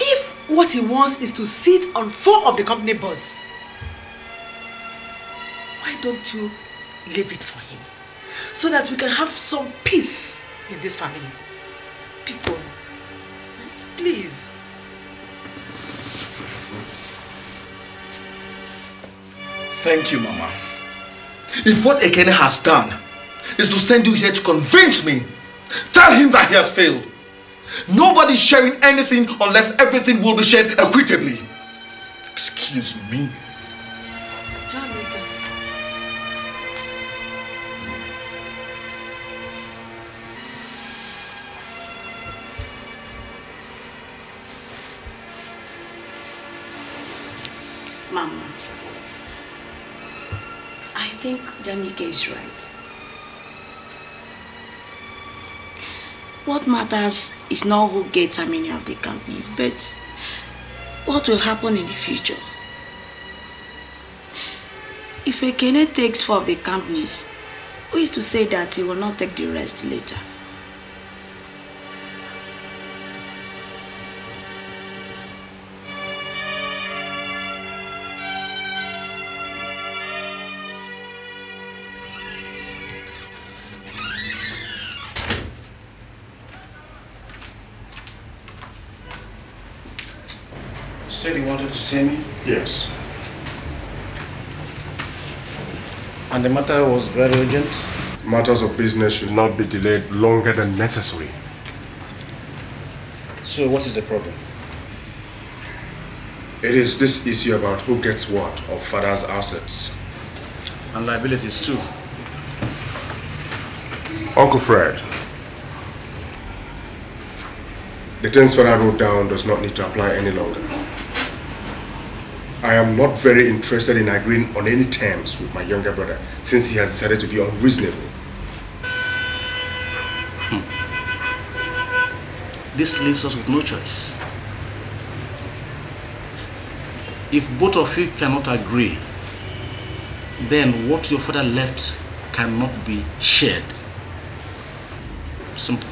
if what he wants is to sit on four of the company boards, why don't you leave it for him so that we can have some peace in this family. People, please. Thank you, Mama. If what Ekene has done is to send you here to convince me, tell him that he has failed. Nobody's sharing anything unless everything will be shared equitably. Excuse me. think Jamike is right. What matters is not who gets how many of the companies, but what will happen in the future. If a Ekene takes four of the companies, who is to say that he will not take the rest later? Mr. Timmy? Yes. And the matter was very urgent? Matters of business should not be delayed longer than necessary. So what is the problem? It is this issue about who gets what of father's assets. And liabilities too. Uncle Fred, the transfer father wrote down does not need to apply any longer. I am not very interested in agreeing on any terms with my younger brother since he has decided to be unreasonable. Hmm. This leaves us with no choice. If both of you cannot agree, then what your father left cannot be shared. Simple.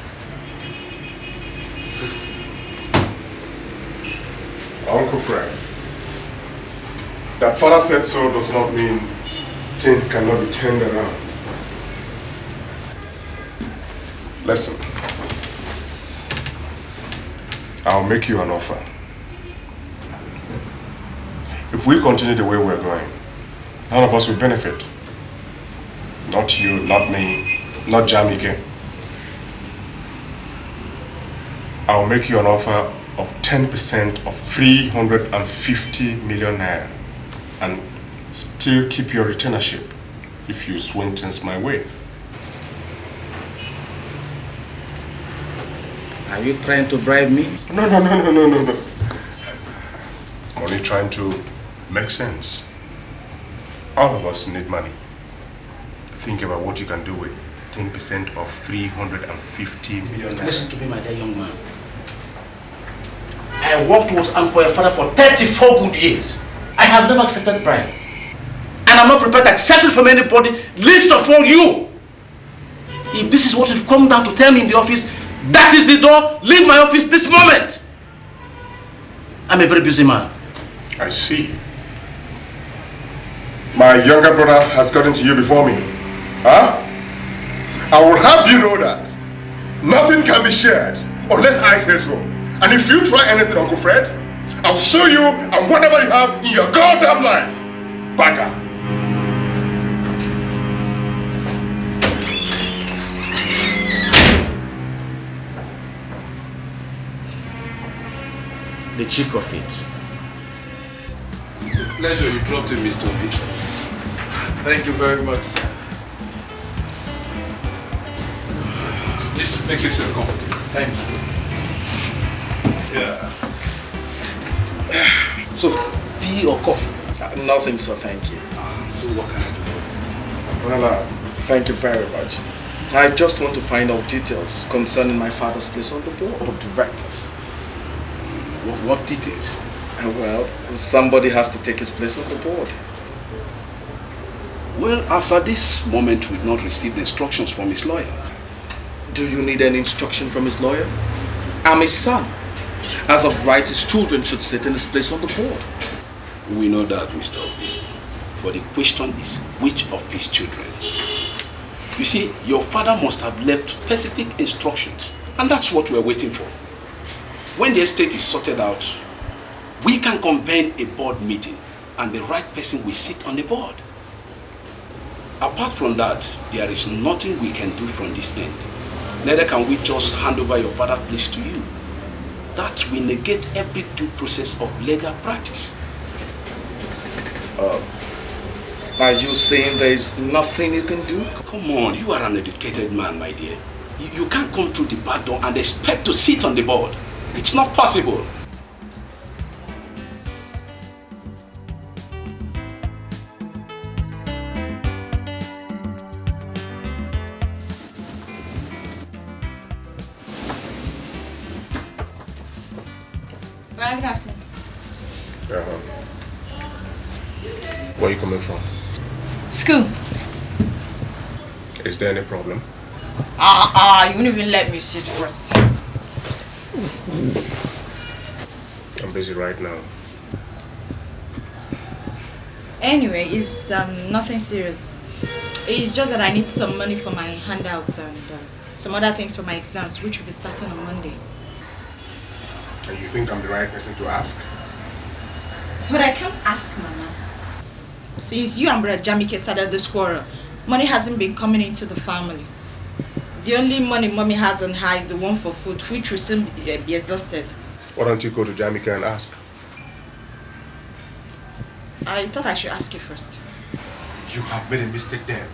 Uncle Frank. That father said so does not mean things cannot be turned around. Listen. I'll make you an offer. If we continue the way we're going, none of us will benefit. Not you, not me, not Jamike. I'll make you an offer of 10% of 350 million naira and still keep your retainership if you swing things my way. Are you trying to bribe me? No, no, no, no, no, no, no. I'm only trying to make sense. All of us need money. Think about what you can do with 10% of 350 million. Listen to me, my dear young man. I worked with and for your father for 34 good years. I have never accepted bribe. And I'm not prepared to accept it from anybody, least of all you. If this is what you've come down to tell me in the office, that is the door, leave my office this moment. I'm a very busy man. I see. My younger brother has gotten to you before me. Huh? I will have you know that nothing can be shared unless I say so. And if you try anything, Uncle Fred, I will sue you and whatever you have in your goddamn life. Bagger. The cheek of it. It's a pleasure you dropped in, Mr. Obi. Thank you very much, sir. Just make yourself comfortable. Thank you. Yeah. so, tea or coffee? Uh, nothing, sir, thank you. Uh, so what can I do for you? Uh, thank you very much. I just want to find out details concerning my father's place on the board of directors. What, what details? Uh, well, somebody has to take his place on the board. Well, as at this moment, we've not received instructions from his lawyer. Do you need any instruction from his lawyer? I'm his son. As of right, his children should sit in his place on the board. We know that, Mr. Obi. But the question is, which of his children? You see, your father must have left specific instructions. And that's what we're waiting for. When the estate is sorted out, we can convene a board meeting and the right person will sit on the board. Apart from that, there is nothing we can do from this end. Neither can we just hand over your father's place to you that we negate every due process of legal practice. Uh, are you saying there is nothing you can do? Come on, you are an educated man, my dear. You, you can't come through the back door and expect to sit on the board. It's not possible. School. Is there any problem? Ah, uh, ah, uh, you won't even let me sit first. I'm busy right now. Anyway, it's um, nothing serious. It's just that I need some money for my handouts and uh, some other things for my exams, which will be starting on Monday. And you think I'm the right person to ask? But I can't ask, Mama. Since you and Brother Jamike started this quarrel, money hasn't been coming into the family. The only money mommy has on her is the one for food, which will soon be, uh, be exhausted. Why don't you go to Jamika and ask? I thought I should ask you first. You have made a mistake there.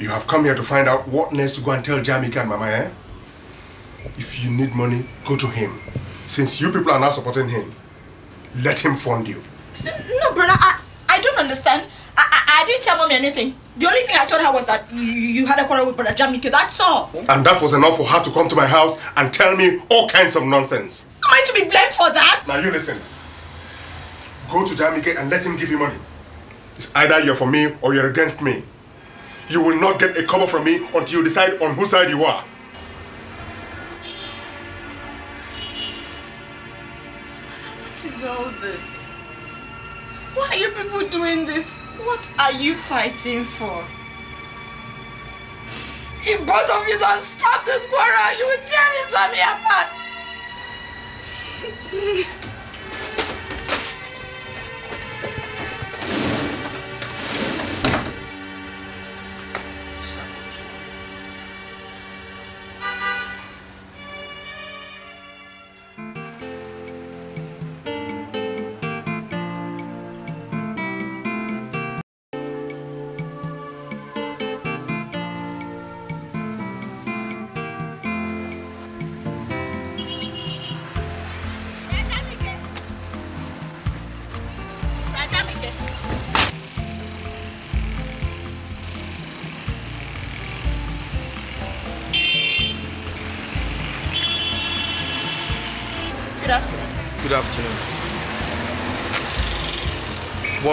You have come here to find out what next to go and tell Jamika and Mama, eh? If you need money, go to him. Since you people are not supporting him, let him fund you. No, brother, I, I don't understand. I, I, I didn't tell mommy anything. The only thing I told her was that you, you had a quarrel with brother Jamike, that's all. And that was enough for her to come to my house and tell me all kinds of nonsense. Am I to be blamed for that? Now you listen. Go to Jamike and let him give you money. It's either you're for me or you're against me. You will not get a cover from me until you decide on whose side you are. all this? Why are you people doing this? What are you fighting for? If both of you don't stop this quarrel, you will tear this family apart!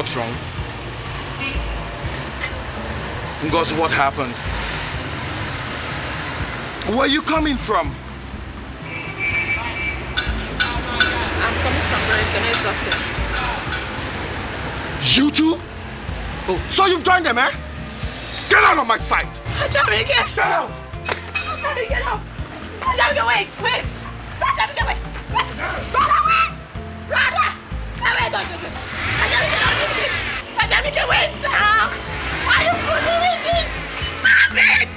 what's wrong? Because what happened? Where are you coming from? I'm coming from office. You too? Oh, so you've joined them, eh? Get out of my sight! Ajamike! Get out! Ajamike, get out! Ajamike, wait, wait! Ajamike, wait! Wait! Brother, wait! Brother, wait, don't do this! Let away now! Why are you doing this? Stop it!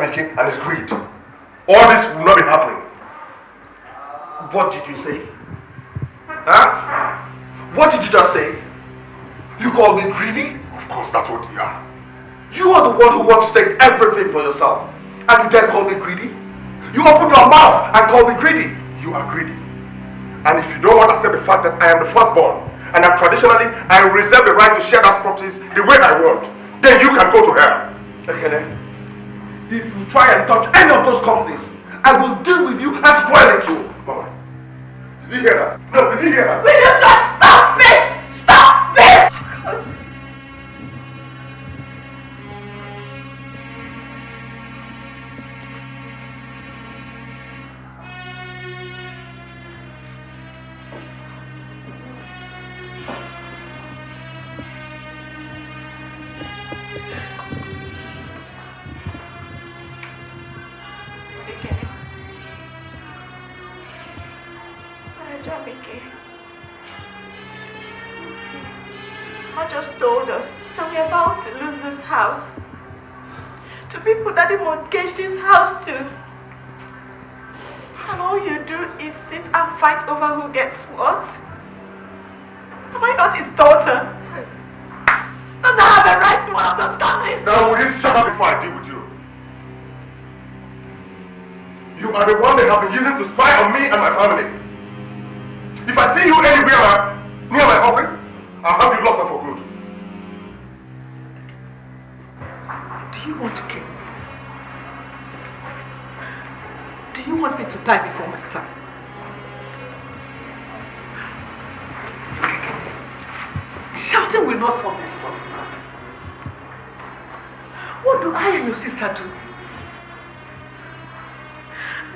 and his greed. All this will not be happening. What did you say? Huh? What did you just say? You call me greedy? Of course, that's what you are. You are the one who wants to take everything for yourself. And you then call me greedy? You open your mouth and call me greedy. You are greedy. And if you don't want to accept the fact that I am the firstborn, and that traditionally I reserve the right to share those properties the way I want, then you can go to hell. Okay, then. if you try and touch any of those companies, I will deal with you and spoil it too. Mama, did you hear that? No, did you hear that? Will you just stop? house. To people that he mortgaged this house to. And all you do is sit and fight over who gets what? Am I not his daughter? Don't I have a right to one of those companies? Now will you shut up before I deal with you? You are the one they have been using to spy on me and my family. If I see you anywhere uh, near my office, I'll have you locked up. Do you want to kill me? Do you want me to die before my time? Shouting will not solve this problem. What do I and your sister do?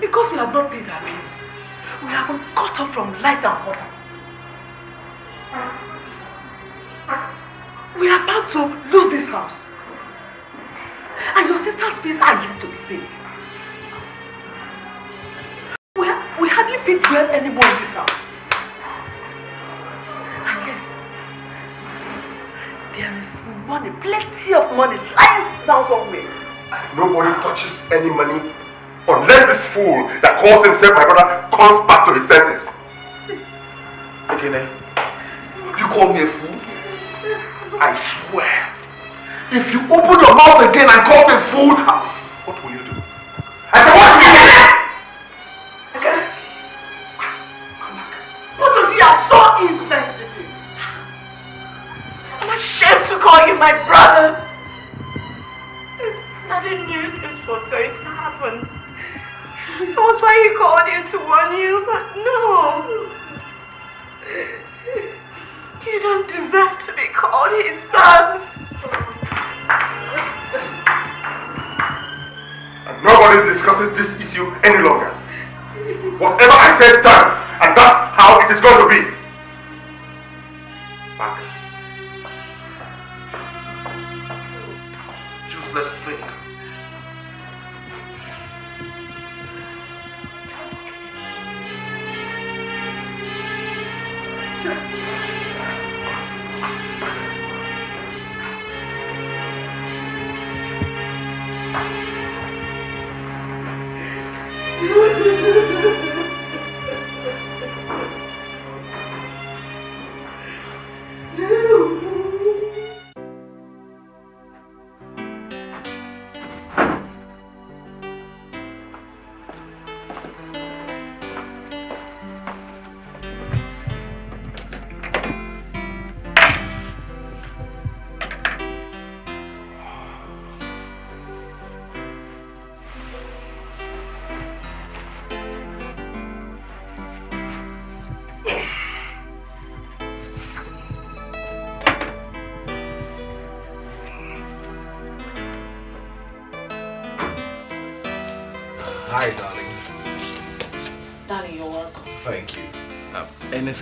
Because we have not paid our bills, we have been cut off from light and water. We are about to lose this house please are you to be paid? We, we hardly fit well anymore in this house. And yet, there is money, plenty of money lying down somewhere. nobody touches any money unless this fool that calls himself my brother comes back to his senses. Again, eh? You call me a fool? I swear. If you open your mouth again and call me fool,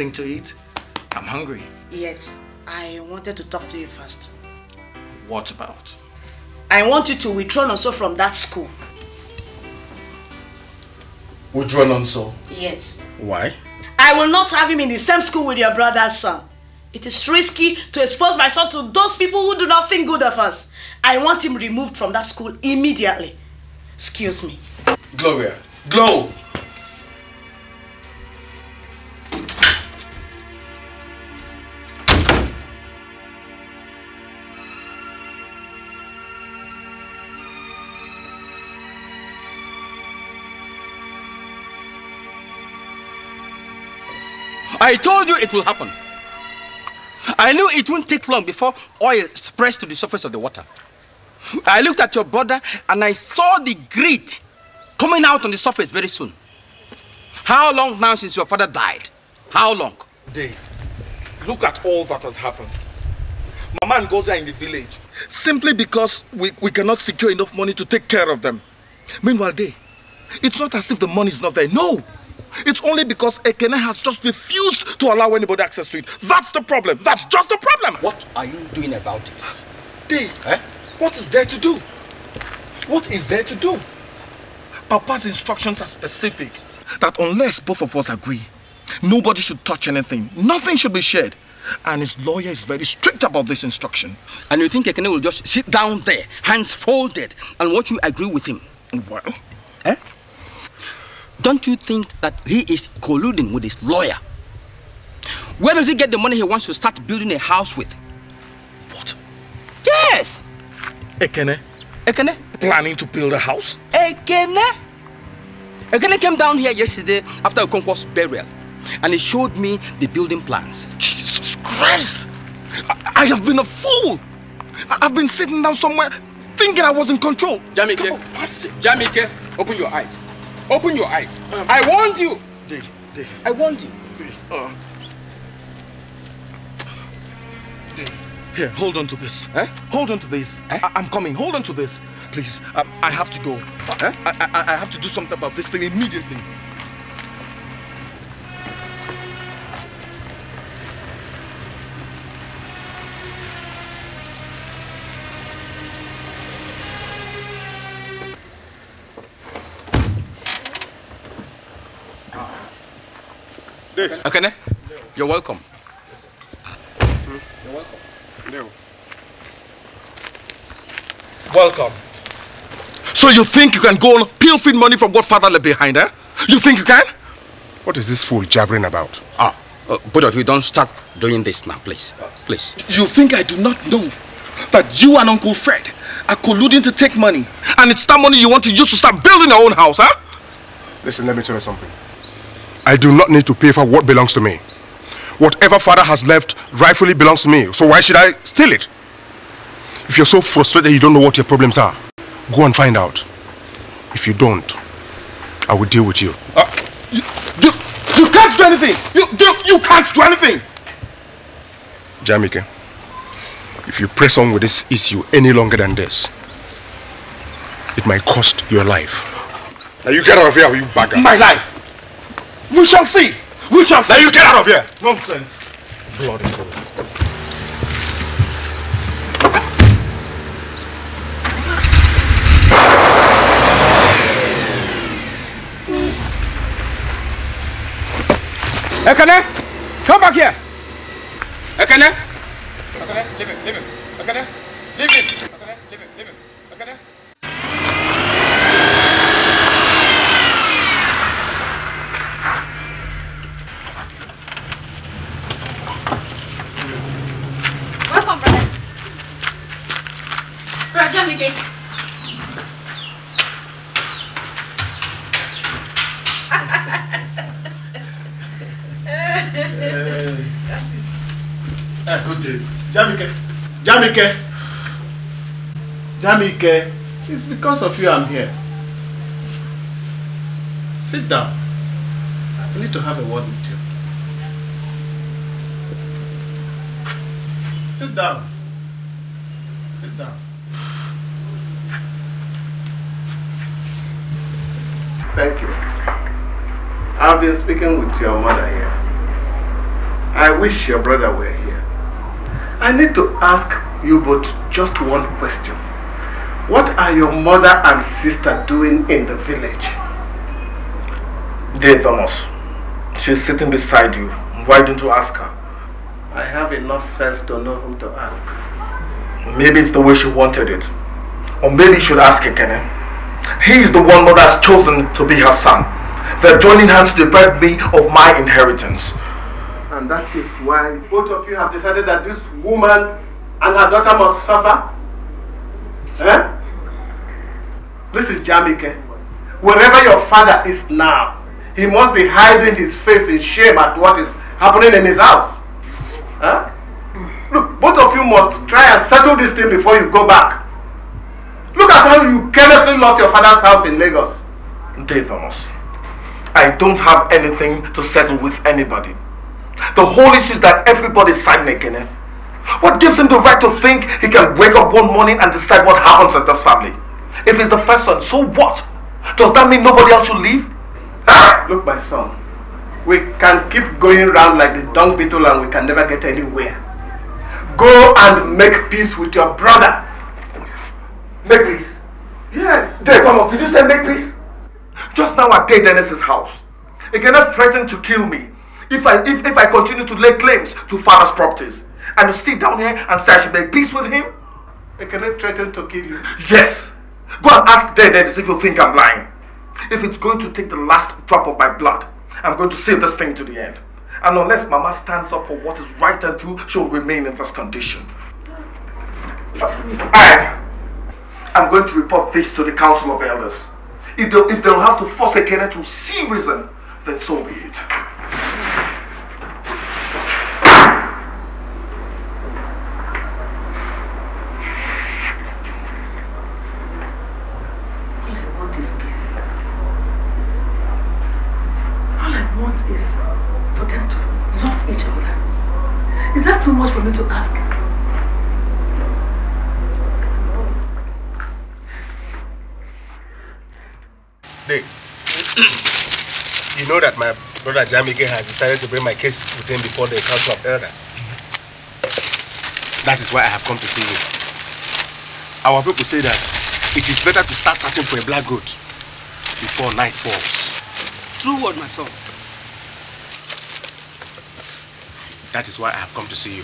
anything to eat? I'm hungry. Yet, I wanted to talk to you first. What about? I want you to withdraw Nonso from that school. Withdraw Nonso? Yes. Why? I will not have him in the same school with your brother's son. It is risky to expose my son to those people who do not think good of us. I want him removed from that school immediately. Excuse me. Gloria. Glow! I told you it will happen. I knew it wouldn't take long before oil spreads to the surface of the water. I looked at your brother and I saw the grit coming out on the surface very soon. How long now since your father died? How long? Dave, look at all that has happened. My man goes there in the village simply because we, we cannot secure enough money to take care of them. Meanwhile, Dave, it's not as if the money is not there. No! It's only because Ekene has just refused to allow anybody access to it. That's the problem. That's just the problem. What are you doing about it? Dave, eh? what is there to do? What is there to do? Papa's instructions are specific. That unless both of us agree, nobody should touch anything. Nothing should be shared. And his lawyer is very strict about this instruction. And you think Ekene will just sit down there, hands folded, and watch you agree with him? Well, eh? Don't you think that he is colluding with his lawyer? Where does he get the money he wants to start building a house with? What? Yes! Ekene. Ekene? Planning to build a house? Ekene? Ekene came down here yesterday after Okonkwo's burial and he showed me the building plans. Jesus Christ! I, I have been a fool! I, have been sitting down somewhere thinking I was in control. Jamike, Jamike, open your eyes. Open your eyes. Um, I warned you. They, they, I warned you. They, uh, um. they. Here, hold on to this. Eh? Hold on to this. Eh? I am coming. Hold on to this. Please, um, I have to go. Eh? I, I, I have to do something about this thing immediately. You're welcome. Yes, hmm? You're welcome. Welcome. So you think you can go on pilfering money from what father left behind, eh? You think you can? What is this fool jabbering about? Ah, uh, both of you don't start doing this now, please. Please. You think I do not know that you and Uncle Fred are colluding to take money, and it's that money you want to use to start building your own house, huh? Listen, let me tell you something. I do not need to pay for what belongs to me whatever father has left rightfully belongs to me. So why should I steal it? If you're so frustrated you don't know what your problems are, go and find out. If you don't, I will deal with you. Uh, you, you, you, can't do anything! You, you, you can't do anything! Jamike, if you press on with this issue any longer than this, it might cost your life. Now you get out of here, you bugger. My life! We shall see! Which of Now you get out of here! Nonsense! Bloody fool. Ekene! Come back here! Ekene! Ekene, leave it, leave it. Ekene, leave it! mi le. Eh, Jamike, Jamike, Jamike, it's because of you I'm here. Sit down. I need to have a word with you. Sit down. Thank you. I've been speaking with your mother here. I wish your brother were here. I need to ask you both just one question. What are your mother and sister doing in the village? Dear Thomas, she's sitting beside you. Why don't you ask her? I have enough sense to know whom to ask. Maybe it's the way she wanted it. Or maybe you should ask Ekene. He is the one God has chosen to be her son. They're joining hands to deprive me of my inheritance. And that is why both of you have decided that this woman and her daughter must suffer? Eh? Listen, Jamike. Wherever your father is now, he must be hiding his face in shame at what is happening in his house. Eh? Look, both of you must try and settle this thing before you go back. Look at how you carelessly lost your father's house in Lagos. Davos, I don't have anything to settle with anybody. The whole issue is that everybody's side making it. Eh? What gives him the right to think he can wake up one morning and decide what happens at this family? If he's the first son, so what? Does that mean nobody else should leave? Ah! Look, my son, we can keep going round like the dung beetle and we can never get anywhere. Go and make peace with your brother. Make peace? Yes. Dave Thomas, did you say make peace? Just now at Dave Dennis's house. He cannot threaten to kill me if I if, if I continue to lay claims to father's properties. And to sit down here and say I should make peace with him. He cannot threaten to kill you. Yes. Go and ask Dave Dennis if you think I'm lying. If it's going to take the last drop of my blood, I'm going to see this thing to the end. And unless Mama stands up for what is right and true, she'll remain in this condition. Uh, Alright. I'm going to report this to the Council of Elders. If, they, if they'll have to force a Kenyan to see reason, then so be it. know that my brother Jamike has decided to bring my case with him before the Council of Elders. That is why I have come to see you. Our people say that it is better to start searching for a black goat before night falls. True word, my son. That is why I have come to see you,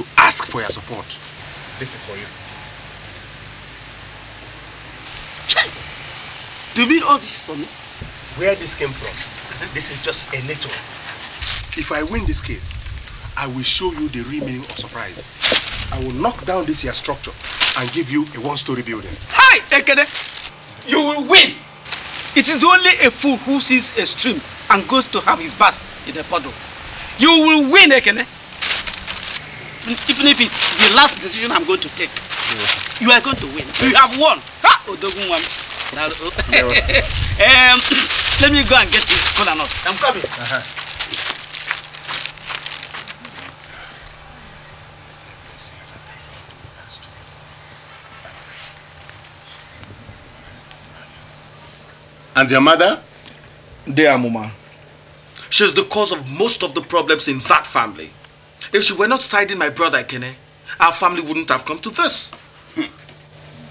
to ask for your support. This is for you. Do you mean all this is for me? Where this came from? This is just a little. If I win this case, I will show you the real meaning of surprise. I will knock down this here structure and give you a one-story building. Hi, Ekene! You will win! It is only a fool who sees a stream and goes to have his bath in a puddle. You will win, Ekene! Even if it's the last decision I'm going to take, yeah. you are going to win. You have won! Ha! Odogunwam. um, Let me go and get this cola nut. I'm coming. Uh -huh. And your mother? Dear Mama. She's the cause of most of the problems in that family. If she were not siding my brother Kene, our family wouldn't have come to this.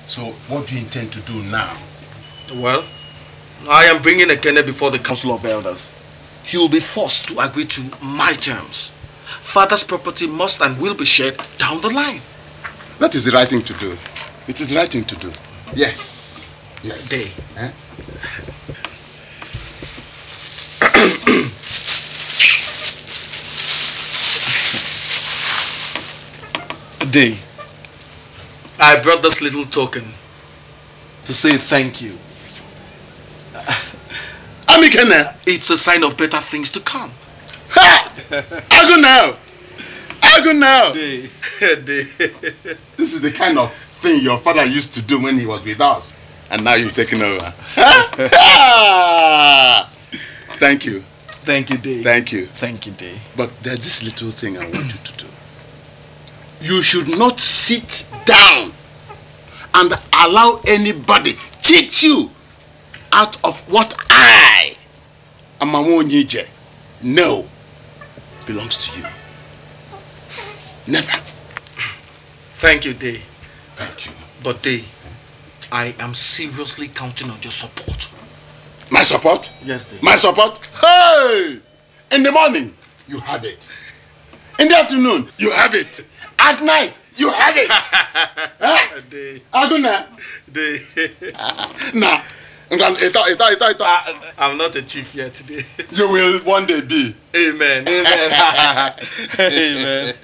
So what do you intend to do now? Well, I am bringing a Kenneth before the Council of Elders. He will be forced to agree to my terms. Father's property must and will be shared down the line. That is the right thing to do. It is the right thing to do. Yes. Yes. Day. Eh? Day. I brought this little token to say thank you. Amikene. It's a sign of better things to come. Ha! I go now. I go now. Day. Day. this is the kind of thing your father used to do when he was with us. And now you've taken over. Thank you. Thank you, Day. Thank you. Thank you, Day. But there's this little thing I want you to do. You should not sit down and allow anybody cheat you out of what I, am Amawonyije, no, belongs to you. Never. Thank you, Day. Thank you. But Day, I am seriously counting on your support. My support? Yes, Day. My support? Hey! In the morning, you have it. In the afternoon, you have it. At night, you have it. huh? Day. Aguna. Day. Nah. I, eh, eh, eh, am ah, not a chief yet today. You will one day be. Amen. Amen. Amen.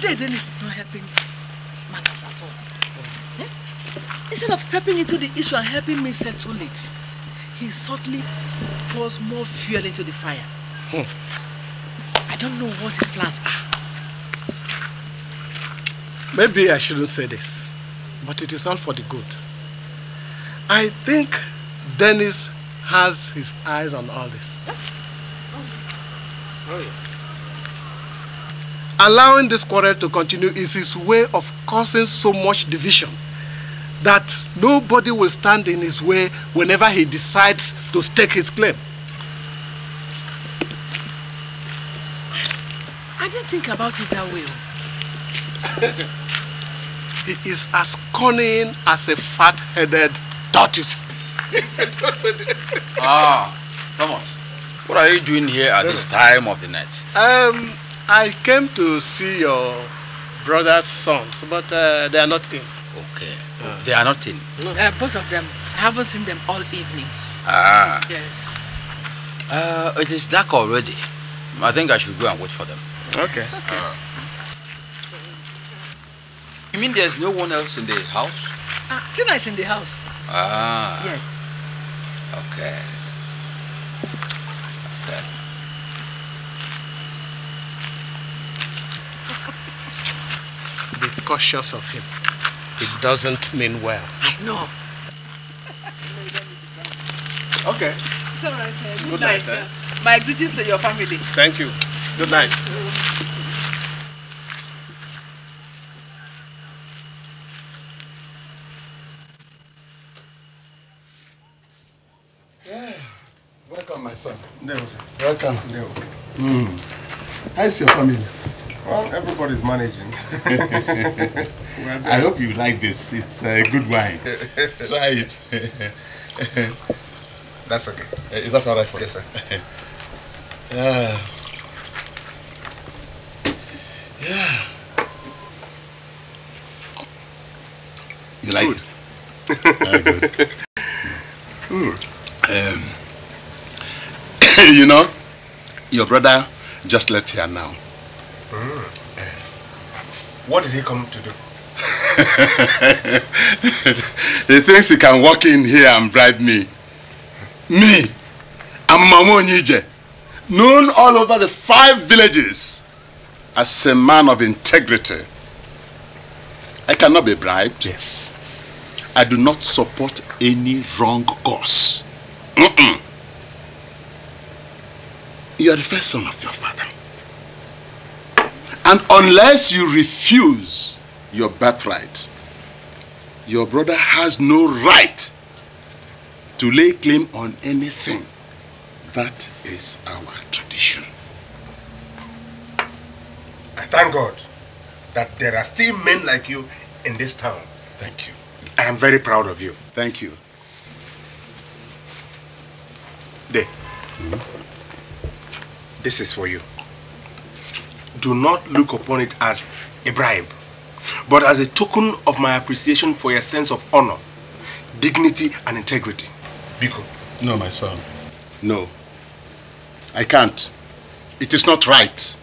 Jay Dennis is not helping matters at all. Instead of stepping into the issue and helping me settle it, he suddenly pours more fuel into the fire. Hmm. I don't know what his plans are. Maybe I shouldn't say this but it is all for the good. I think Dennis has his eyes on all this. Oh, yes. Allowing this quarrel to continue is his way of causing so much division that nobody will stand in his way whenever he decides to stake his claim. I didn't think about it that way. He is as cunning as a fat-headed tortoise. ah, Thomas, what are you doing here at this time of the night? Um, I came to see your brother's sons, but uh, they are not in. Okay, uh, they are not in. Uh, both of them. I haven't seen them all evening. Ah. Yes. Uh, it is dark already. I think I should go and wait for them. Okay. okay. Ah. You mean there's no one else in the house? Ah, Tina is in the house. Ah. Yes. Okay. Okay. Be cautious of him. It doesn't mean well. I know. okay. It's all right. Eh? Good, Good night. night eh? eh? My greetings to your family. Thank you. Good night. Welcome, my son. Deo, sir. Welcome. Mm. How's your family? Well, everybody's managing. I hope you like this. It's a good wine. Try it. That's okay. Eh, is that all right for you? Yes, sir. yeah. Yeah. You like good. it? Very good. Mm. Um, you know, your brother just left here now. Mm. What did he come to do? he thinks he can walk in here and bribe me. Me, I'm Mamu Nije, known all over the five villages as a man of integrity. I cannot be bribed. Yes. I do not support any wrong cause. Mm -mm. You are the first son of your father. And unless you refuse your birthright, your brother has no right to lay claim on anything. That is our tradition. I thank God that there are still men like you in this town. Thank you. I am very proud of you. Thank you. There. Mm -hmm. This is for you. Do not look upon it as a bribe, but as a token of my appreciation for your sense of honor, dignity, and integrity. Biko. No, my son. No. I can't. It is not right.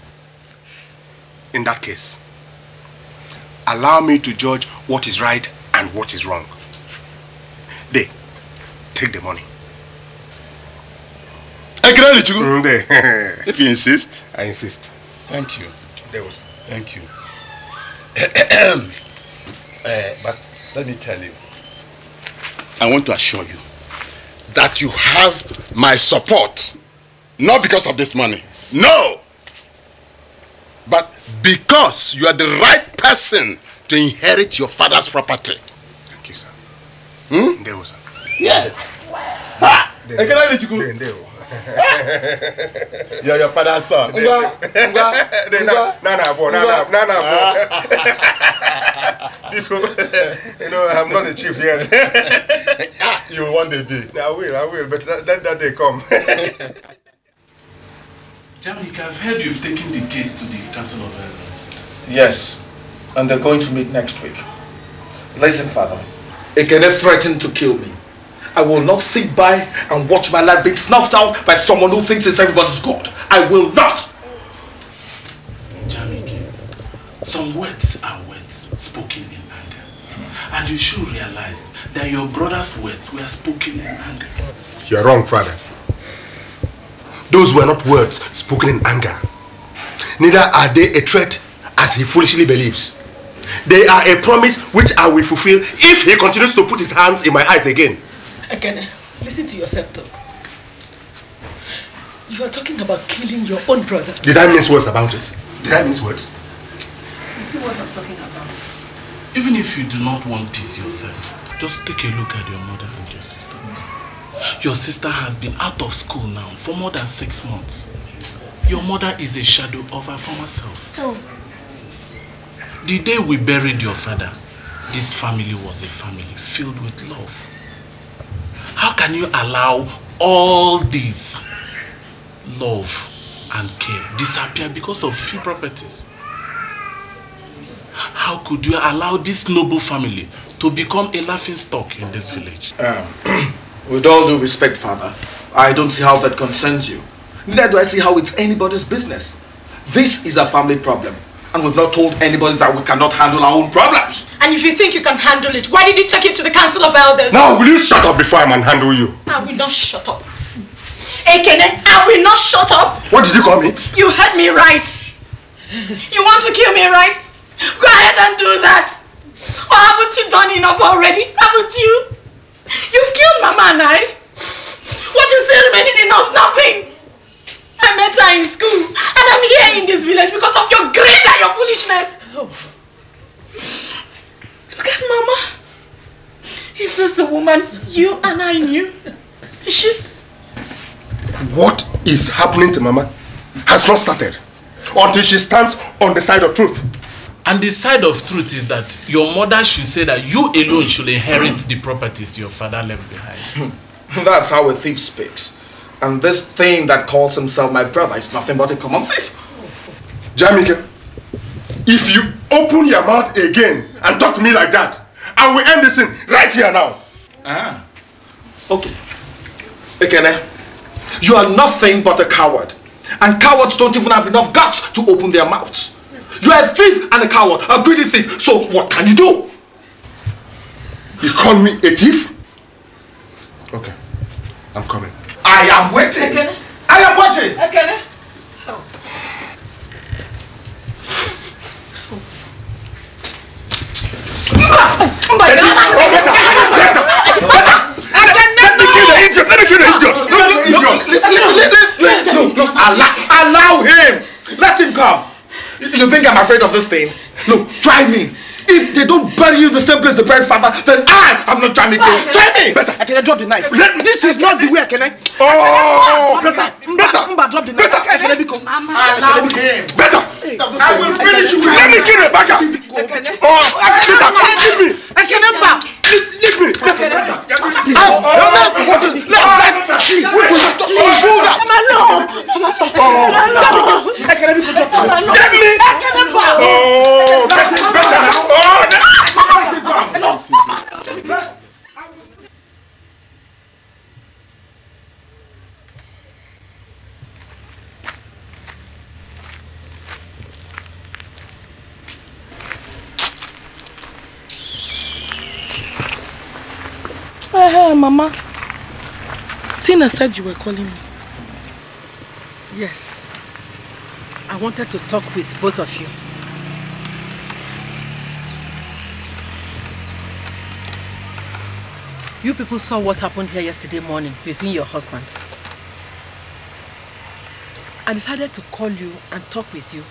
In that case, allow me to judge what is right and what is wrong. They, take the money. Mm, if you insist. I insist. Thank you. There was. Thank you. uh, but let me tell you. I want to assure you that you have my support. Not because of this money. No! But because you are the right person to inherit your father's property. Thank you, sir. Hmm? Ndewo, sir. Yes. Ha! Ah! Ndewo. Yo, your father's son. Uga, uga, uga. Na na boy, na na, na na boy. you know, I'm not the chief yet. you will one day be. I will, I will, but let that, that day come. Jamik, I've heard you've taken the case to the Council of Elders. Yes, and they're going to meet next week. Listen, Father. Ekene threatened to kill me. I will not sit by and watch my life being snuffed out by someone who thinks it's everybody's God. I will not. Jamiki, some words are words spoken in anger. And you should realize that your brother's words were spoken in anger. You're wrong, father. Those were not words spoken in anger. Neither are they a threat as he foolishly believes. They are a promise which I will fulfill if he continues to put his hands in my eyes again. Again, listen to yourself talk. You are talking about killing your own brother. Did I miss words about it? Did I miss words? You see what I'm talking about? Even if you do not want this yourself, just take a look at your mother and your sister. Your sister has been out of school now for more than six months. Your mother is a shadow of her former self. Oh. The day we buried your father, this family was a family filled with love. How can you allow all this love and care disappear because of few properties? How could you allow this noble family to become a laughing stock in this village? Um, with all due respect, father, I don't see how that concerns you. Neither do I see how it's anybody's business. This is a family problem. And we've not told anybody that we cannot handle our own problems. And if you think you can handle it, why did you take it to the Council of Elders? Now, will you shut up before I handle you? I will not shut up. Ekene, I will not shut up. What did you call me? You heard me right. You want to kill me, right? Go ahead and do that. Or haven't you done enough already? Haven't you? You've killed Mama and I. What is still remaining in us? Nothing. I met her in school. And I'm here in this village because of your greed and your foolishness. Oh. Look at Mama. Is this the woman you and I knew? Is she? What is happening to Mama has not started until she stands on the side of truth. And the side of truth is that your mother should say that you alone should inherit the properties your father left behind. Hmm. That's how a thief speaks. And this thing that calls himself my brother is nothing but a common thief. Jamika, if you open your mouth again and talk to me like that, I will end this thing right here now. Ah, okay. Ekene, you are nothing but a coward. And cowards don't even have enough guts to open their mouths. You are a thief and a coward, a greedy thief. So what can you do? You call me a thief? Okay, I'm coming. I am waiting. Ekene. I am waiting. Ekene. Oh. Oh my God. Let me kill the idiot. No, Listen, listen, listen. No, no. Allow, allow him. Let him come. You think I'm afraid of this thing? Look, try me. If they don't bury you the same place they buried father, then I am not trying to kill. Try me. Better. I can drop the knife. Let me, this is not the way I can eh? oh, I. Oh! Better. Better. Mba, drop the knife. Better. let me go. Better. Better. I will finish you. Let me kill Rebecca. Oh! I Better. Give me. I can never leave me. Oh, better, better now. Oh, no. Hey, Mama. Tina said you were calling me. Yes. I wanted to talk with both of you. You people saw what happened here yesterday morning between your husbands. I decided to call you and talk with you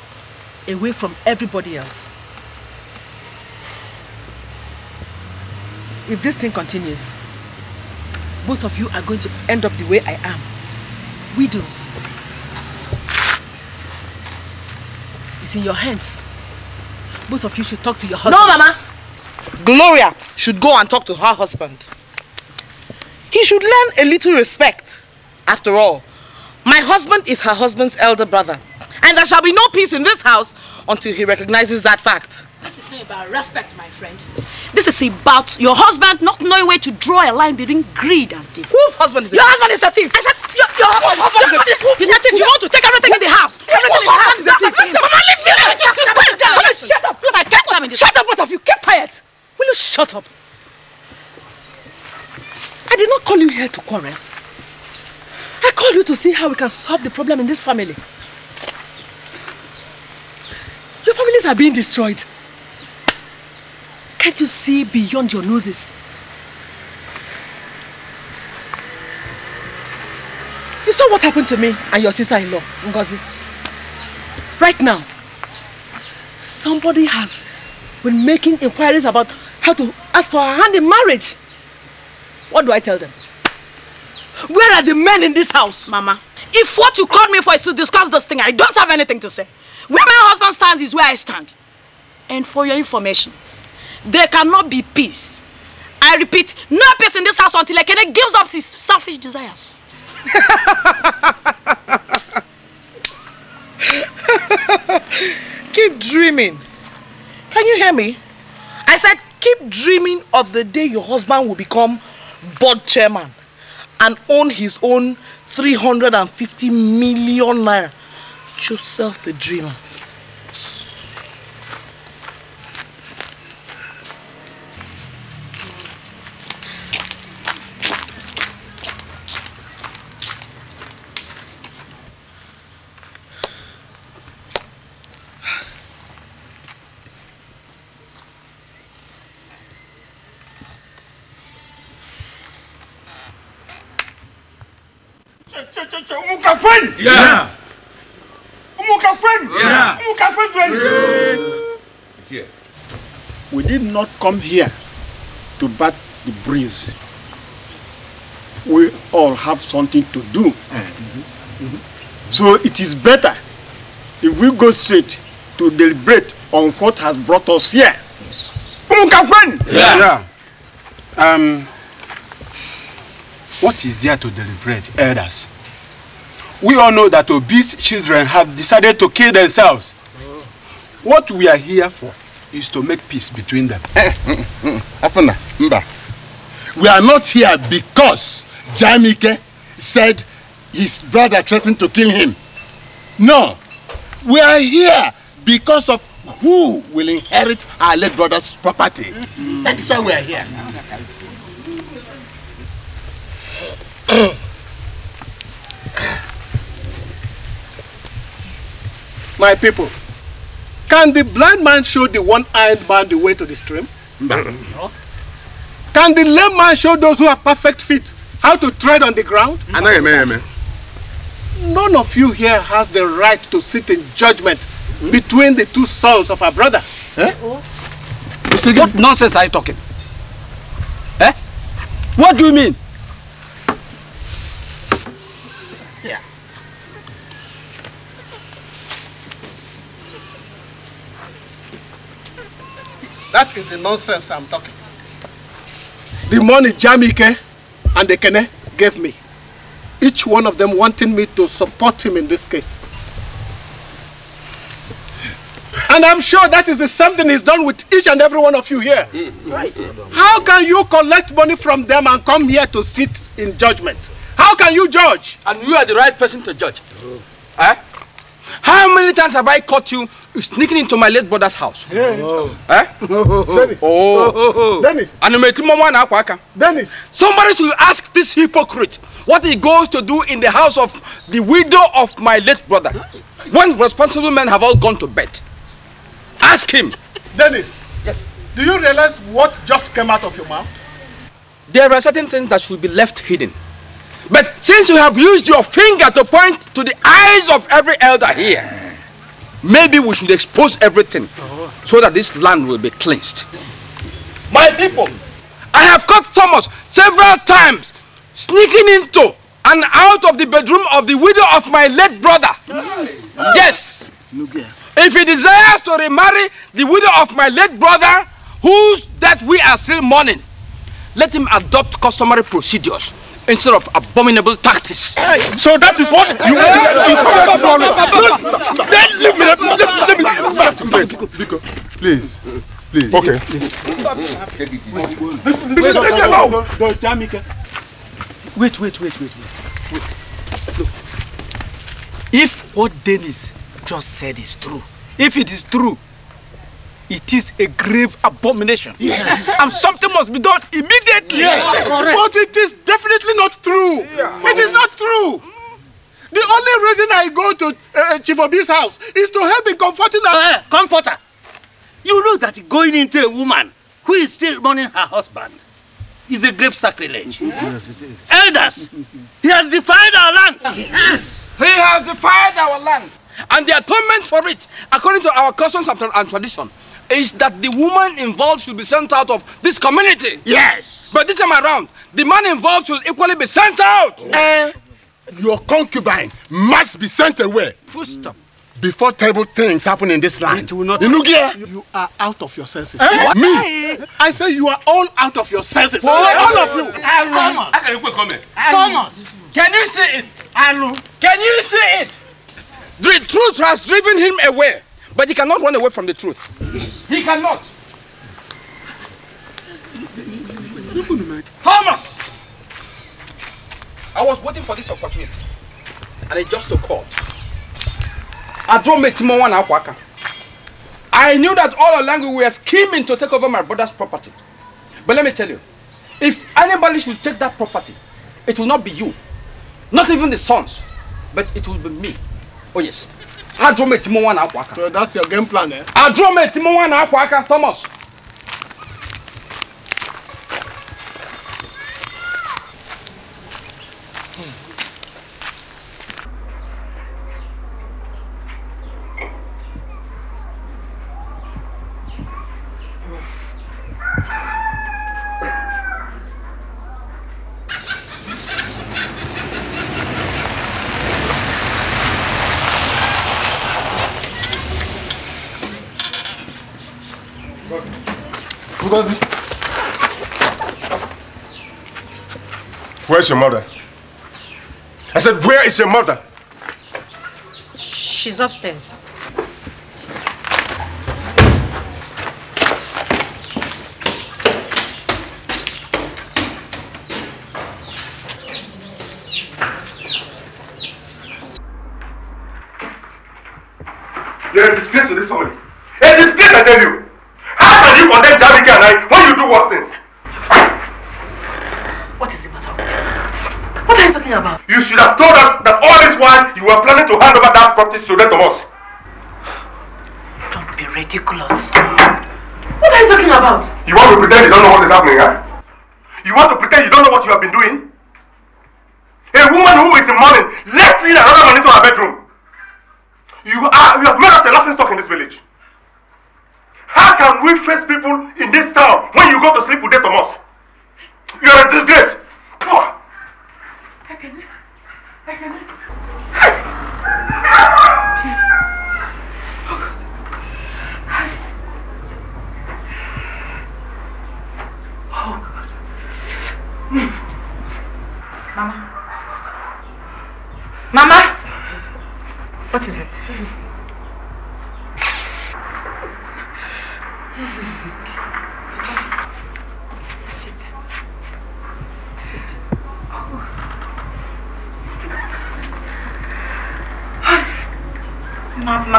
away from everybody else. If this thing continues, both of you are going to end up the way I am. Widows. It's in your hands. Both of you should talk to your husband. No, Mama! Gloria should go and talk to her husband. He should learn a little respect. After all, my husband is her husband's elder brother. And there shall be no peace in this house until he recognizes that fact. This is not about respect, my friend. This is about your husband not knowing where to draw a line between greed and thief. Whose husband is it? Your husband is a thief. I said, your, your husband, husband, your husband is, who, is a thief. Who, you want to take everything who, in the house. Everything in the house. Is a thief. Listen, Mama, leave me. Quiet down. Shut up. Look, I get them in this Shut up, both of you. Keep quiet. Will you shut up? I did not call you here to quarrel. I called you to see how we can solve the problem in this family. Your families are being destroyed. Can't you see beyond your noses? You saw what happened to me and your sister-in-law, Ngozi. Right now, somebody has been making inquiries about how to ask for her hand in marriage. What do I tell them? Where are the men in this house? Mama, if what you called me for is to discuss this thing, I don't have anything to say. Where my husband stands is where I stand. And for your information, there cannot be peace. I repeat, no peace in this house until Ekene gives up his selfish desires. keep dreaming. Can you hear me? I said, keep dreaming of the day your husband will become board chairman and own his own 350 million naira. Joseph the dreamer. Umuka kwenu? Yeah. Umuka kwenu? Yeah. Umuka kwenu? Yeah. We did not come here to bat the breeze. We all have something to do. Mm -hmm. Mm -hmm. So it is better if we go straight to deliberate on what has brought us here. Yes. Umuka kwenu? Yeah. yeah. Um, What is there to deliberate, elders? We all know that obese children have decided to kill themselves. What we are here for is to make peace between them. Eh, hmm, hmm, hmm. Afuna, Mba, we are not here because Jamike said his brother threatened to kill him. No, we are here because of who will inherit our late brother's property. That's why we are here. My people, can the blind man show the one-eyed man the way to the stream? No. Can the lame man show those who have perfect feet how to tread on the ground? No. None of you here has the right to sit in judgment hmm? between the two souls of our brother. Eh? What nonsense are you talking? Eh? What do you mean? That is the nonsense I'm talking. The money Jamike and the Kene gave me, each one of them wanting me to support him in this case. And I'm sure that is the same thing he's done with each and every one of you here. Right. How can you collect money from them and come here to sit in judgment? How can you judge? And you are the right person to judge. Oh. Eh? How many times have I caught you you sneaking into my late brother's house? Yeah. Oh. Eh? Dennis. Oh. Dennis. Animate mama na Dennis. Somebody should ask this hypocrite what he goes to do in the house of the widow of my late brother. When responsible men have all gone to bed. Ask him. Dennis. Yes. Do you realize what just came out of your mouth? There are certain things that should be left hidden. But since you have used your finger to point to the eyes of every elder here, Maybe we should expose everything so that this land will be cleansed. My people, I have caught Thomas several times sneaking into and out of the bedroom of the widow of my late brother. Yes. If he desires to remarry the widow of my late brother, whose that we are still mourning, let him adopt customary procedures. instead of abominable tactics. Hey. So that is what you want to do. Then leave me. Let, me Please, please. Please. Okay. Wait, wait, wait, wait, wait. wait. Look. If what Dennis just said is true, if it is true, it is a grave abomination. Yes. and something must be done immediately. Yes. yes. But it is definitely not true. Yeah. It is not true. The only reason I go to uh, uh Chief Obi's house is to help in comforting her. Uh, eh, eh, comforter. You know that going into a woman who is still mourning her husband is a grave sacrilege. Yes, it is. Elders, he has defiled our land. Yes. He has defiled our land. And the atonement for it, according to our customs and tradition, is that the woman involved should be sent out of this community. Yes. But this time around, the man involved should equally be sent out. Uh, your concubine must be sent away. Full stop. Before terrible things happen in this land. It will not. Inugia. You, you are out of your senses. Eh? What? Me? I say you are all out of your senses. What? All of you. Thomas. Thomas. Can you see it? Can you see it? The truth has driven him away. But he cannot run away from the truth. Yes. He cannot. Thomas! I was waiting for this opportunity. And it just so called. I drove me Timo one Aquaka. I knew that all along we were scheming to take over my brother's property. But let me tell you, if anybody should take that property, it will not be you. Not even the sons. But it will be me. Oh yes adrometimu nwa na akwa aka. so that's your game plan eh. adrometimu nwa na akwa aka thomas. Where's your mother? I said, where is your mother? She's upstairs.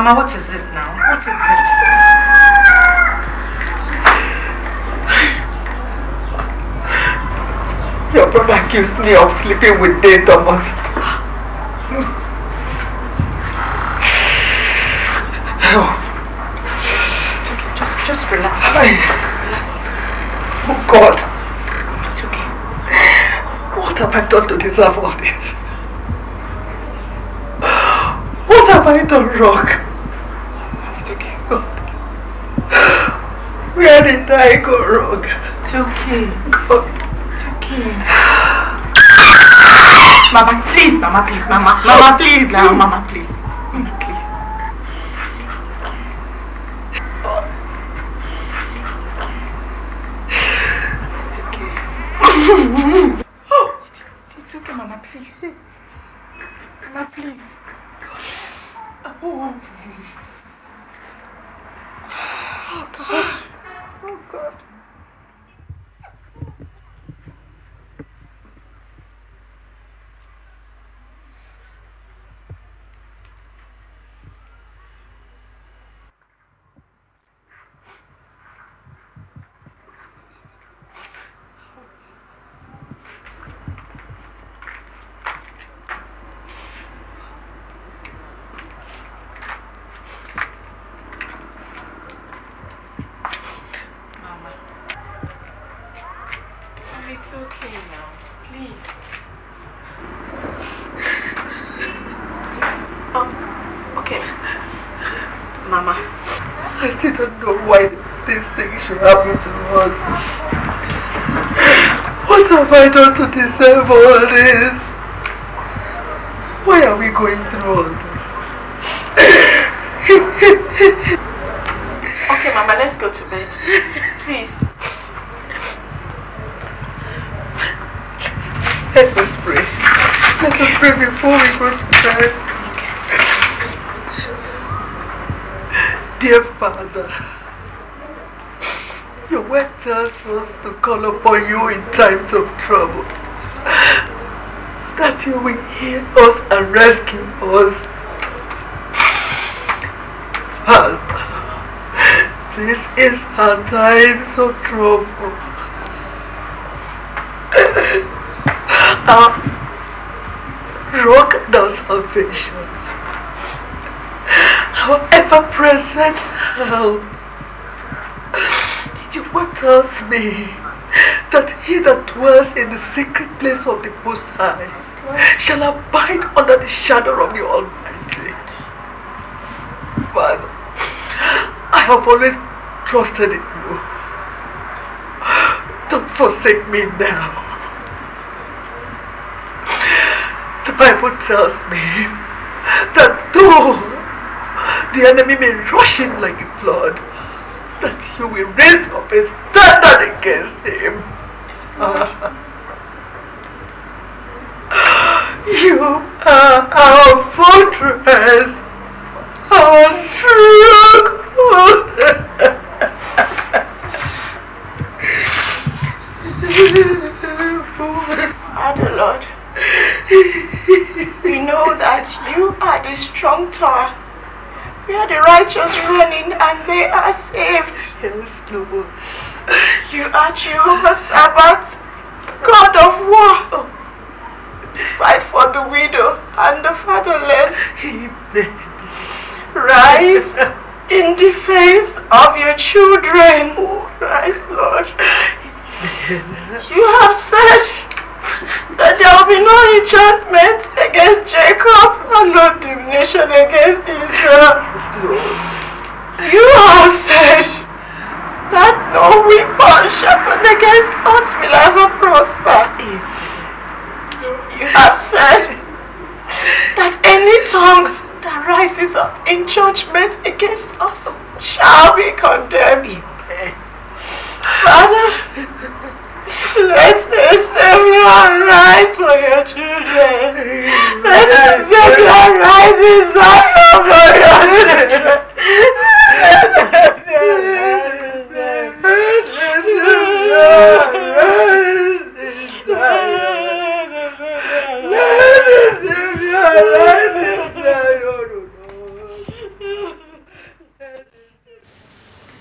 Mama, what is it now? What is it? Your brother accused me of sleeping with Day Thomas. oh. It's okay, just, just relax. I... Relax. Oh God. It's okay. What have I done to deserve all this? I go wrong. It's okay. God. It's okay. Mama, please, Mama, please, Mama. Mama, please, now, Mama, of all this? Why are we going through all this? okay, Mama, let's go to bed. Please. Let us pray. Let us pray before we go to bed. Dear Father, your word tells us to call upon you in times of trouble that you will hear us and rescue us. this is our times of trouble. Our rock of salvation. Our ever-present help. You will tell me that he that dwells in the secret place of the Most High shall abide under the shadow of the Almighty. Father, I have always trusted in you. Don't forsake me now. The Bible tells me that though the enemy may rush in like a flood, that you will raise up a standard against him. You are our fortress, our stronghold. Father we know that you are the strong tower We are the righteous running, and they are saved. Yes, Lord. You are Jehovah's Sabbath, God of war. Fight for the widow and the fatherless. Rise in defense of your children. Oh, rise, Lord. You have said that there will be no enchantment against Jacob and no damnation against Israel. You have said that no weapon sharpened against us will ever prosper. You have said that any tongue that rises up in judgment against us shall be condemned. Father, let the Savior arise for your children. Let the Savior arise in for your children.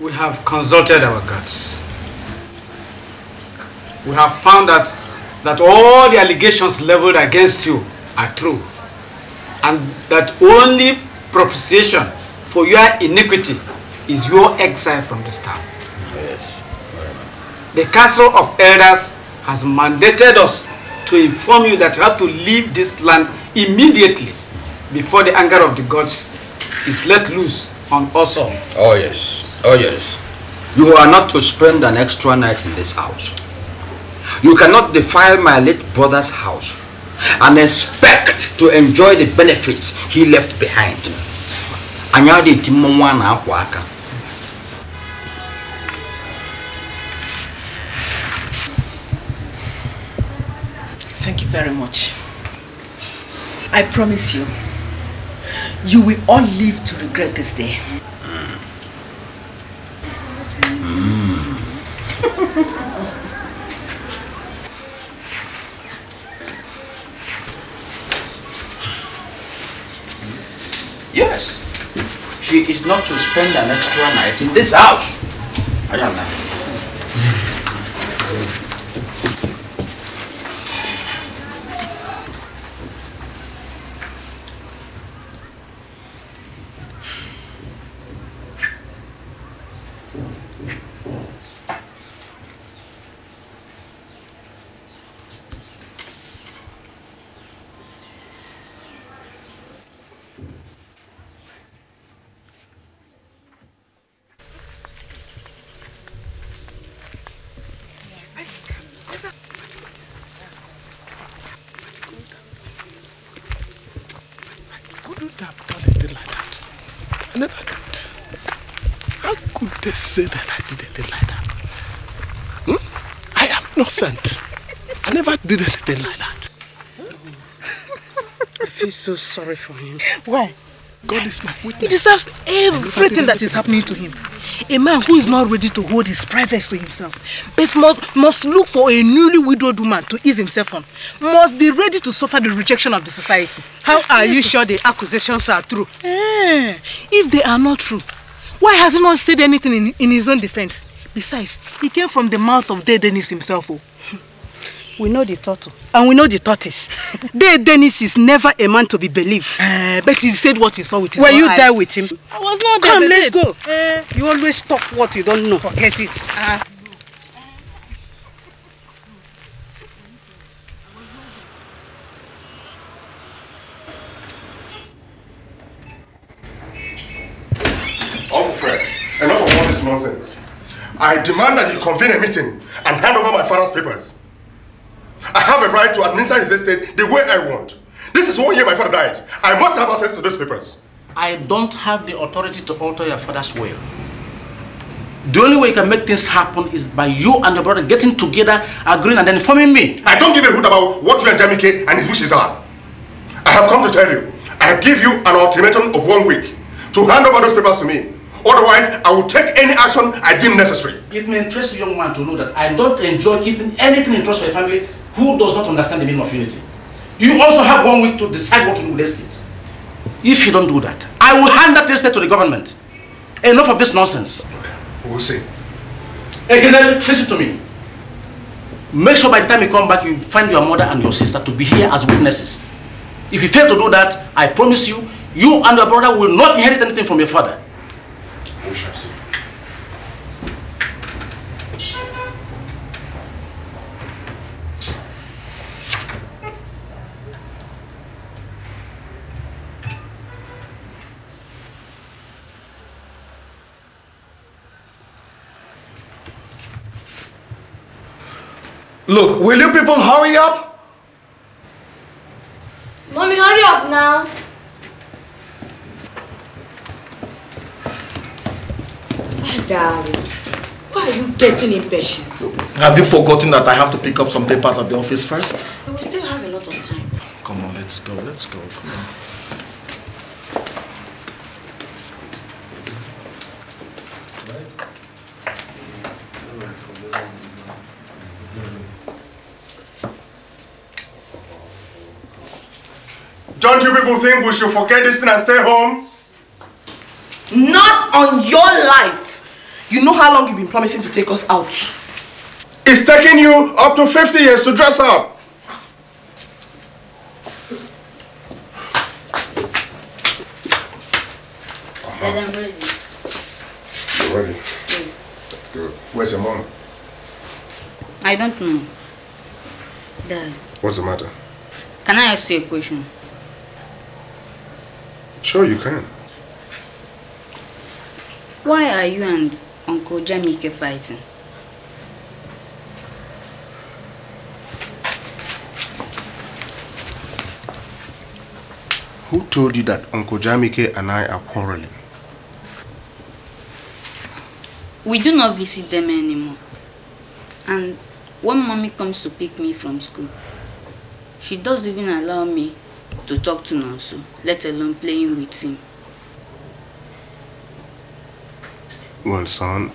We have consulted our gods. We have found that, that all the allegations leveled against you are true and that only propitiation for your iniquity is your exile from this town. The Council of Elders has mandated us to inform you that you have to leave this land immediately before the anger of the gods is let loose on us all. Oh yes, oh yes. You are not to spend an extra night in this house. You cannot defile my late brother's house and expect to enjoy the benefits he left behind. Anyadi timonwa na akwa aka. Thank you very much. I promise you, you will all live to regret this day. yes, she is not to spend an extra night in this house. I not. so sorry for him. Why? God is my witness. He deserves everything that is happening to him. A man who is not ready to hold his privacy to himself must, must look for a newly widowed woman to ease himself on, must be ready to suffer the rejection of the society. How are you sure the accusations are true? Eh, if they are not true, why has he not said anything in, in his own defense? Besides, he came from the mouth of dead Dennis himself. Oh. We know the turtle. And we know the tortoise. Dave Dennis is never a man to be believed. Uh, but he said what he saw with his Were you eyes. there with him? I was not there. Come, let's go. Uh, you always talk what you don't know. Forget it. Uh, ah. Fred, enough of all this nonsense. I demand that you convene a meeting and hand over my father's papers. I have a right to administer his estate the way I want. This is one year my father died. I must have access to those papers. I don't have the authority to alter your father's will. The only way you can make things happen is by you and your brother getting together, agreeing, and then informing me. I don't give a hoot about what you and Jamike and his wishes are. I have come to tell you, I have give you an ultimatum of one week to hand over those papers to me. Otherwise, I will take any action I deem necessary. It may interest you, young man, to know that I don't enjoy keeping anything in trust for my family who does not understand the meaning of unity. You also have one week to decide what to do with the state. If you don't do that, I will hand that estate to the government. Enough of this nonsense. Okay, we'll see. Again, listen to me. Make sure by the time you come back, you find your mother and your sister to be here as witnesses. If you fail to do that, I promise you, you and your brother will not inherit anything from your father. We shall see. Look, will you people hurry up? Mommy, hurry up now. My darling, why are you getting impatient? Have you forgotten that I have to pick up some papers at the office first? We still have a lot of time. Come on, let's go, let's go, come on. Don't you people think we should forget this thing and stay home? Not on your life. You know how long you've been promising to take us out. It's taking you up to 50 years to dress up. Uh -huh. I'm ready. You're ready? Yes. good. Where's your mom? I don't know. Dad. What's the matter? Can I ask you a question? Sure, you can. Why are you and Uncle Jamike fighting? Who told you that Uncle Jamike and I are quarreling? We do not visit them anymore. And when mommy comes to pick me from school, she doesn't even allow me to talk to Nansu, let alone playing with him. Well, son,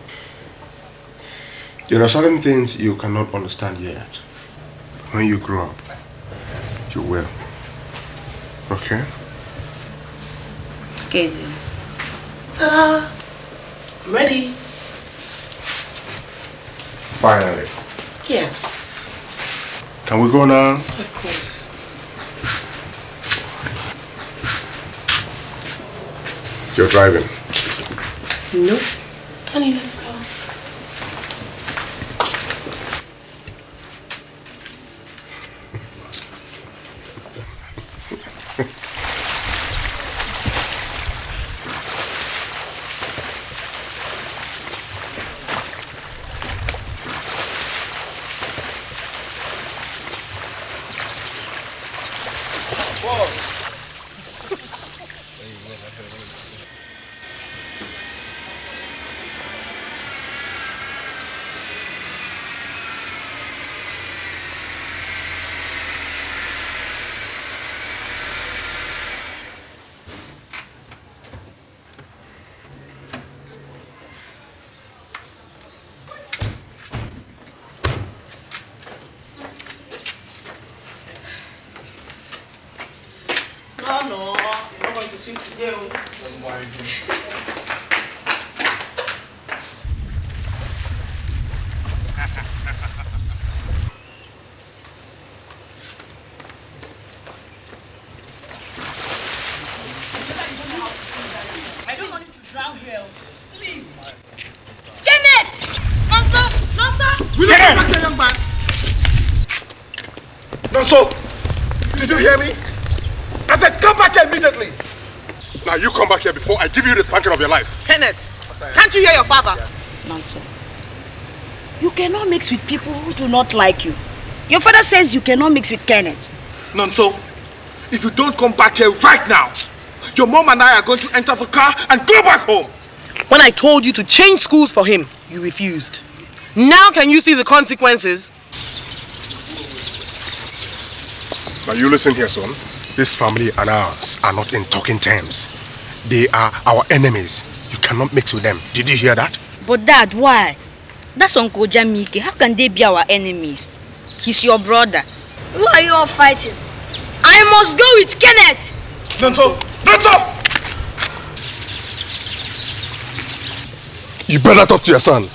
there are certain things you cannot understand yet. When you grow up, you will. Okay? Okay, then. Ta-da! ready. Finally. Yes. Can we go now? Of course. You're driving. Nope. Honey, let's go. mix with people who do not like you. Your father says you cannot mix with Kenneth. Nonso, if you don't come back here right now, your mom and I are going to enter the car and go back home. When I told you to change schools for him, you refused. Now can you see the consequences? Now you listen here, son. This family and ours are not in talking terms. They are our enemies. You cannot mix with them. Did you hear that? But dad, why? That's Uncle Jamike. How can they be our enemies? He's your brother. Who are you all fighting? I must go with Kenneth. Don't stop! Don't stop! You better talk to your son.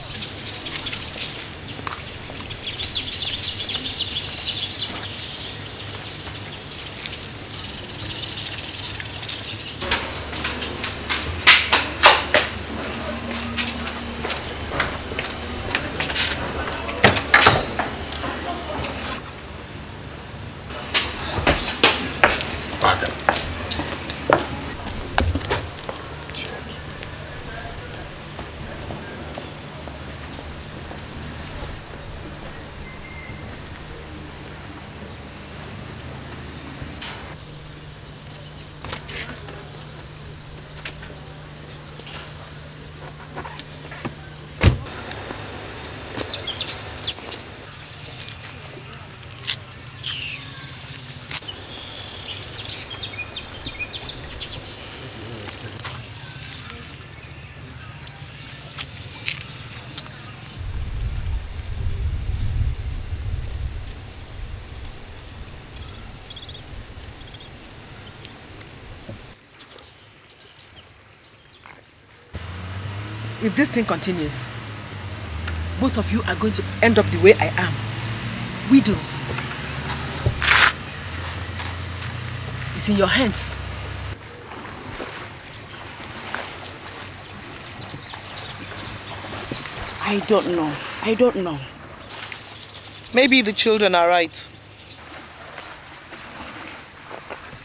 if this thing continues, both of you are going to end up the way I am. Widows. It's in your hands. I don't know. I don't know. Maybe the children are right.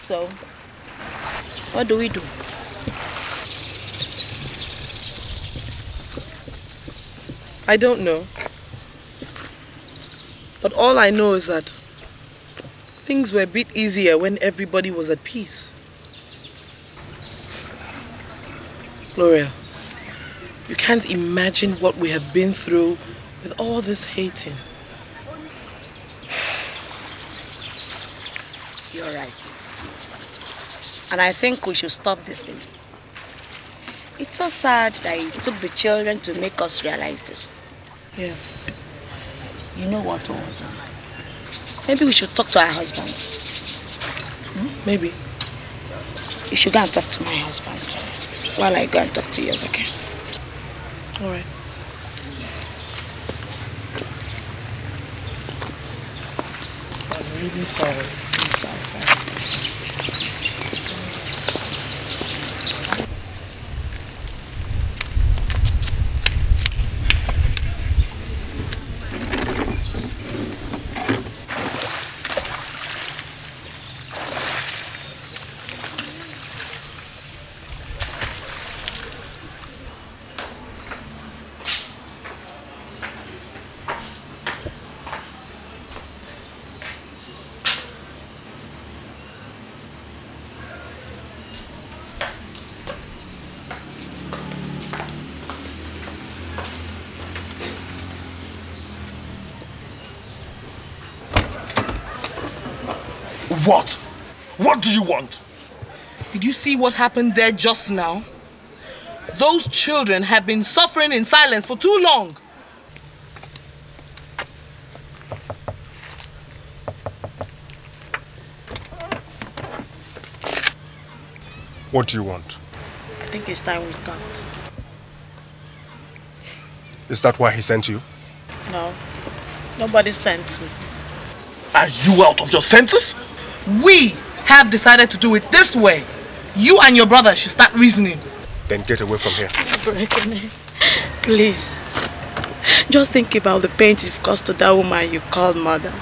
So, what do we do? I don't know. But all I know is that things were a bit easier when everybody was at peace. Gloria, you can't imagine what we have been through with all this hating. You're right. And I think we should stop this thing. So sad that it took the children to make us realize this. Yes. You know what, to oh, Maybe we should talk to our husbands. Hmm? Maybe. You should go and talk to my husband while I go and talk to yours, okay? Alright. I'm really sorry. What? What do you want? Did you see what happened there just now? Those children have been suffering in silence for too long. What do you want? I think it's time we talked. Is that why he sent you? No. Nobody sent me. Are you out of your senses? We have decided to do it this way. You and your brother should start reasoning. Then get away from here. Please. Just think about the pain you've caused to that woman you call mother.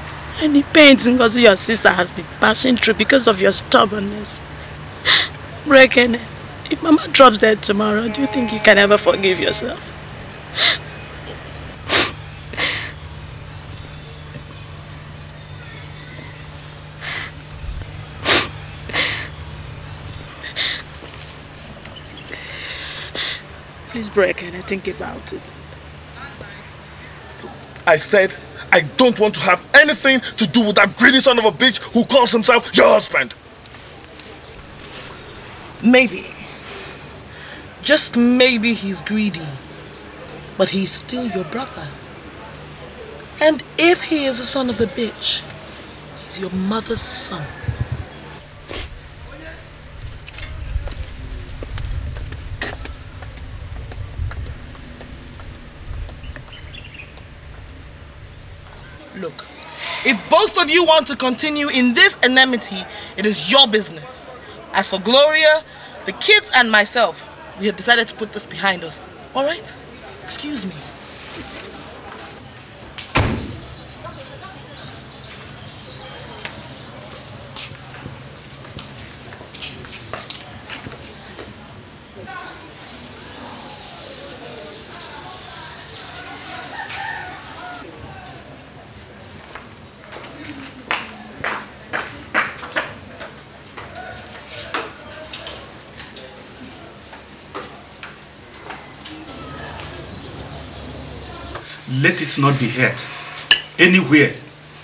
And the pain Ngozi your sister has been passing through because of your stubbornness. Brekene, if mama drops dead tomorrow, do you think you can ever forgive yourself? break and I think about it. I said, I don't want to have anything to do with that greedy son of a bitch who calls himself your husband. Maybe. Just maybe he's greedy. But he's still your brother. And if he is a son of a bitch, he's your mother's son. look. If both of you want to continue in this enmity, it is your business. As for Gloria, the kids and myself, we have decided to put this behind us. All right? Excuse me. it not be heard anywhere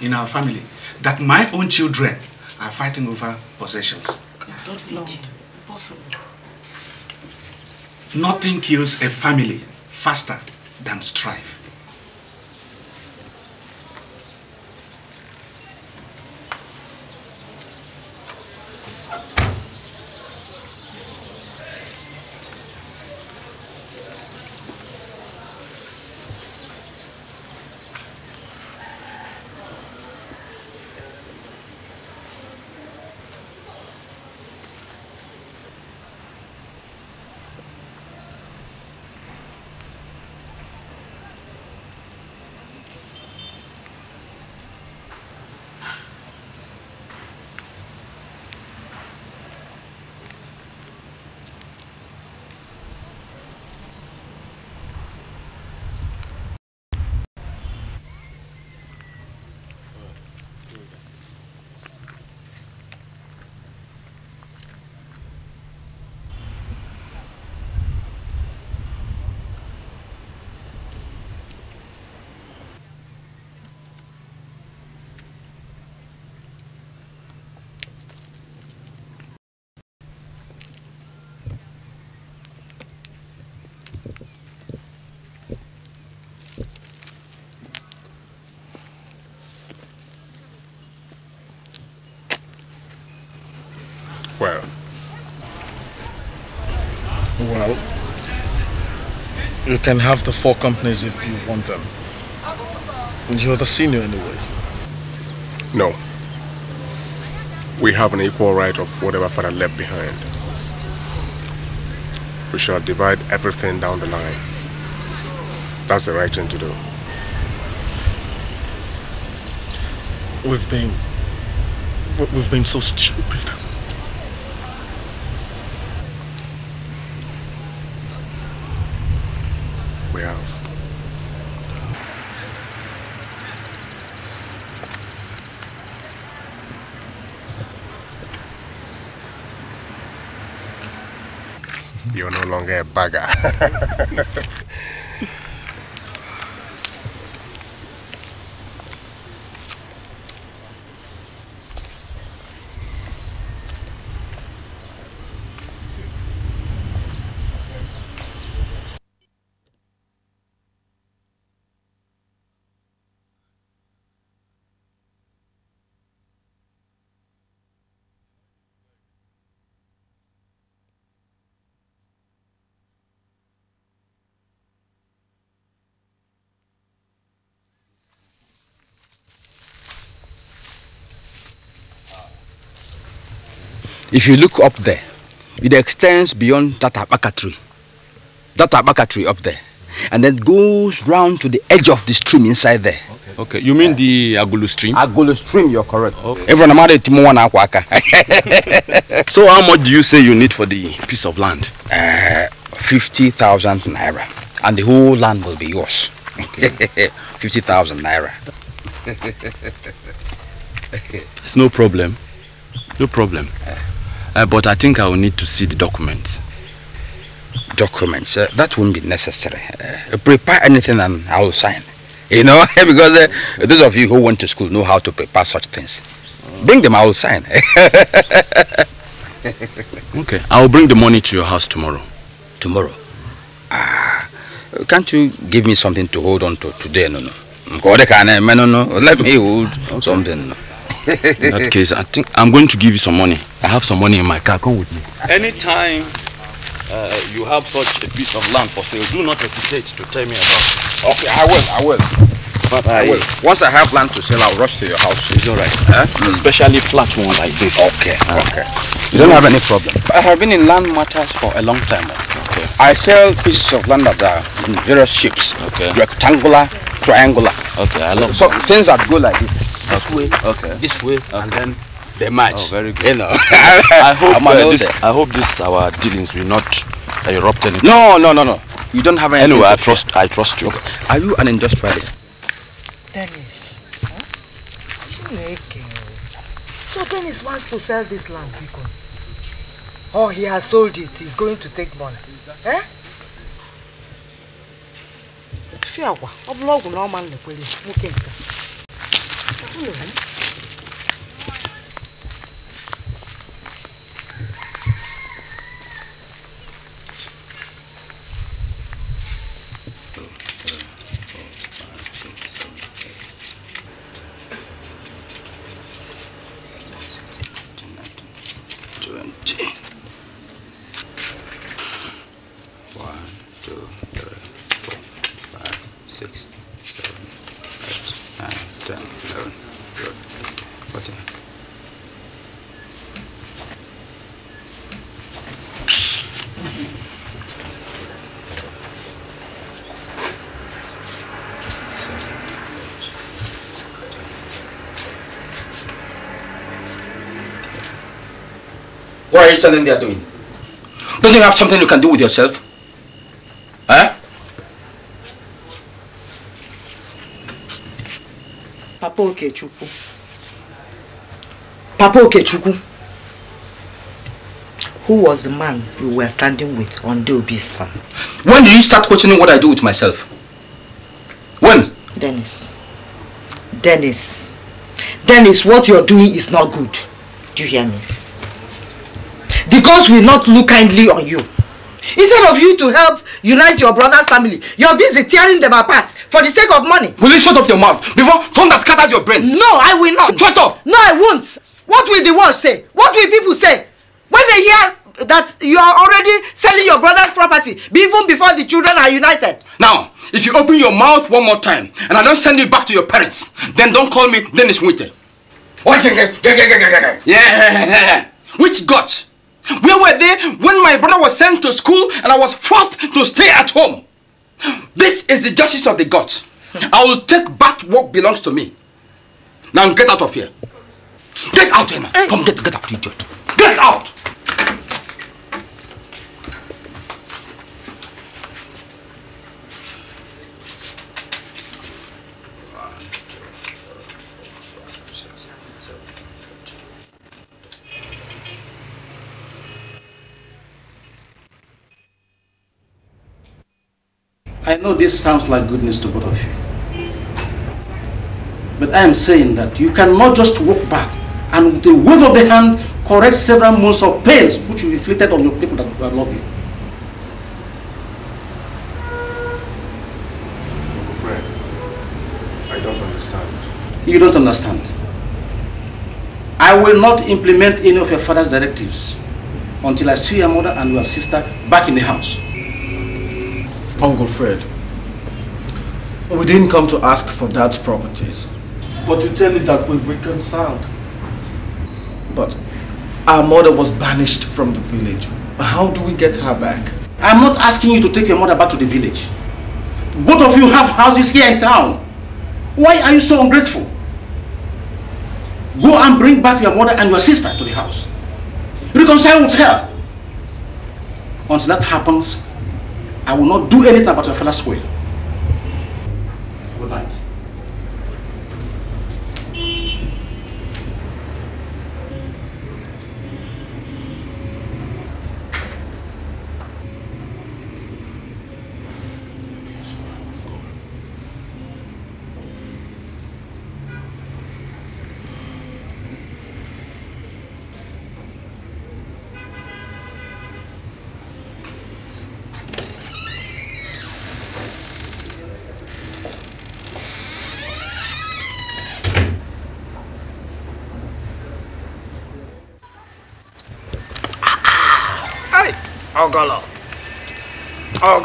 in our family that my own children are fighting over possessions. Not Nothing kills a family faster than strife. You can have the four companies if you want them. You're the senior anyway. No. We have an equal right of whatever father left behind. We shall divide everything down the line. That's the right thing to do. We've been... We've been so stupid. get bugger. If you look up there, it extends beyond that abaca tree. That abaca tree up there. And then goes round to the edge of the stream inside there. Okay. okay. You mean the Agulu stream? Agulu stream, you're correct. Everyone amara kwaka. So how much do you say you need for the piece of land? Uh, 50,000 naira. And the whole land will be yours. Okay. 50,000 naira. it's no problem. No problem. Uh. Uh, but I think I will need to see the documents. Documents? Uh, that won't be necessary. Uh, prepare anything and I will sign. You know, because uh, those of you who went to school know how to prepare such things. Bring them, I will sign. okay, I will bring the money to your house tomorrow. Tomorrow? Ah, can't you give me something to hold on to today? No, no. Let me hold okay. something in that case, I think I'm going to give you some money. I have some money in my car. Come with me. Anytime uh, you have such a piece of land for sale, do not hesitate to tell me about it. Okay, I will. I will. But I, I will. Once I have land to sell, I'll rush to your house. It's all right. Huh? Mm. Especially flat one like this. Okay. Uh, okay. You don't have any problem. I have been in land matters for a long time. Okay. I sell pieces of land that are in various shapes. Okay. Rectangular, triangular. Okay, I love. So that. things that go like this this way, okay. this way, okay. and then they match. Oh, very good. You know. I hope uh, uh this, I hope this our dealings will not erupt anything. No, no, no, no. You don't have any. Anyway, I trust. I trust you. Okay. Are you an industrialist? Dennis. Huh? So Dennis wants to sell this land, Bikon. Oh, he has sold it. He's going to take money. Eh? Fiawa, oblog no man the police. 这后有人 encourage something they are doing. Don't you have something you can do with yourself? Huh? Eh? Papa Okechukwu. Papa Okechukwu. Who was the man you were standing with on Deobi's farm? When did you start questioning what I do with myself? When? Dennis. Dennis. Dennis, what you're doing is not good. Do you hear me? The gods will not look kindly on you. Instead of you to help unite your brother's family, you are busy tearing them apart for the sake of money. Will you shut up your mouth before thunder scatters your brain? No, I will not. Shut up! No, I won't. What will the world say? What will people say? When they hear that you are already selling your brother's property, even before the children are united. Now, if you open your mouth one more time and I don't send you back to your parents, then don't call me Dennis Winter. What? Yeah. Which gods Where were they when my brother was sent to school and I was forced to stay at home? This is the justice of the gods. I will take back what belongs to me. Now get out of here. Get out, Emma. Come, get, get out, idiot. Get out! I know this sounds like goodness to both of you. But I am saying that you cannot just walk back and with a wave of the hand correct several months of pains which you inflicted on your people that love you. Friend, I don't understand. You don't understand. I will not implement any of your father's directives until I see your mother and your sister back in the house. Uncle Fred. We didn't come to ask for dad's properties. But you tell me that we've reconciled. But our mother was banished from the village. How do we get her back? I'm not asking you to take your mother back to the village. Both of you have houses here in town. Why are you so ungrateful? Go and bring back your mother and your sister to the house. Reconcile with her. Once that happens, I will not do anything about your fellow's will. Good night.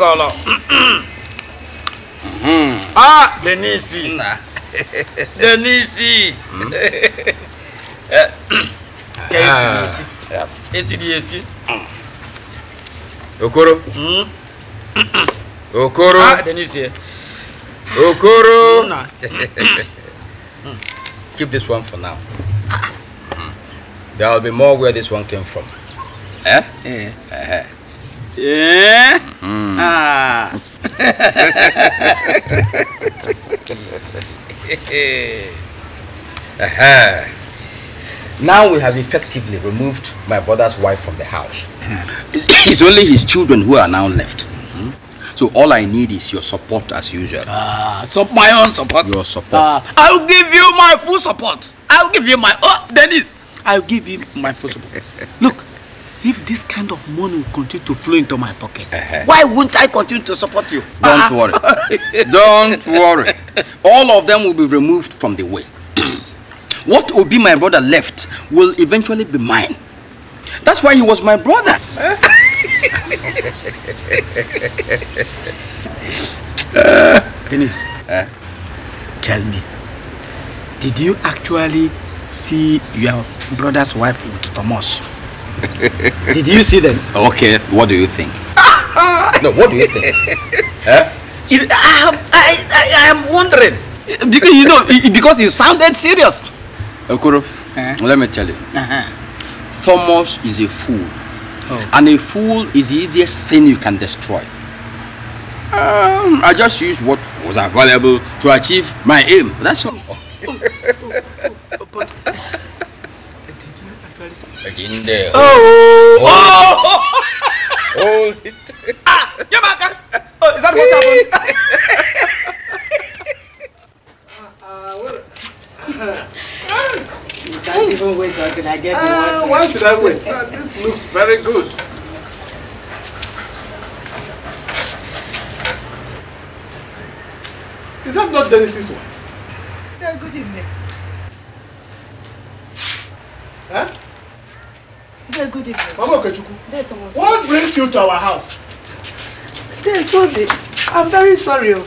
golo hmm. ah denisi denisi hmm? eh, ah. esi di esi hmm. okoro okoro ah, denisi okoro keep this one for now there will be more where this one came from eh? Yeah. Uh eh, -huh. Eh. Yeah? Mm. Ah. uh Now we have effectively removed my brother's wife from the house. Hmm. it's, only his children who are now left. Hmm? So all I need is your support as usual. Ah, so my own support? Your support. Ah, I'll give you my full support. I'll give you my... Oh, Dennis! I'll give you my full support. Look, if this kind of money will continue to flow into my pocket, uh -huh. why won't I continue to support you? Don't ah. worry. Don't worry. All of them will be removed from the way. what will be my brother left will eventually be mine. That's why he was my brother. uh, Dennis, uh, tell me, did you actually see your brother's wife with Thomas? Did you see them? Okay, what do you think? no, what do you think? huh? It, I, I, I, I am wondering. Because you know, because you sounded serious. Okuro, uh -huh. let me tell you. Uh -huh. Thomas is a fool. Oh. And a fool is the easiest thing you can destroy. Um, I just used what was available to achieve my aim. That's all. Again there. Oh! Oh! Hold oh. oh. oh. it. Ah! Yamaka! Oh, is that what happened? you can't even wait until I get uh, ah, Why should I wait? uh, this looks very good. Is that not Dennis's wife? Uh, good evening. Huh? There, good evening. Mama Okechukwu. There, Thomas. What brings you to our house? There, Sunday. I'm very sorry. Oh.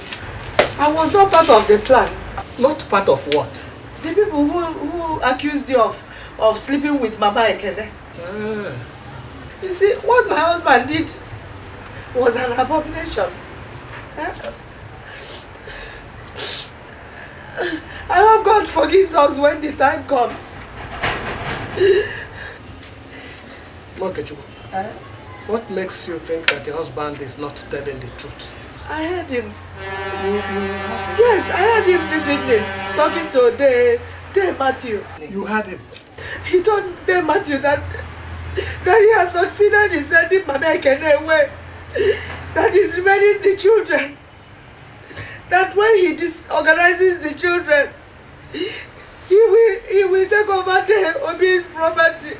I was not part of the plan. Not part of what? The people who, who accused you of, of sleeping with Mama Ekene. Ah. You see, what my husband did was an abomination. Eh? I hope God forgives us when the time comes. Nkechubu, uh, eh? what makes you think that your husband is not telling the truth? I heard him. Yes, I heard him this evening talking to De, De Matthew. You heard him? He told De Matthew that, that he has succeeded in sending Mama Ekene away. That he's remaining the children. That when he disorganizes the children, he will, he will take over De Obi's property.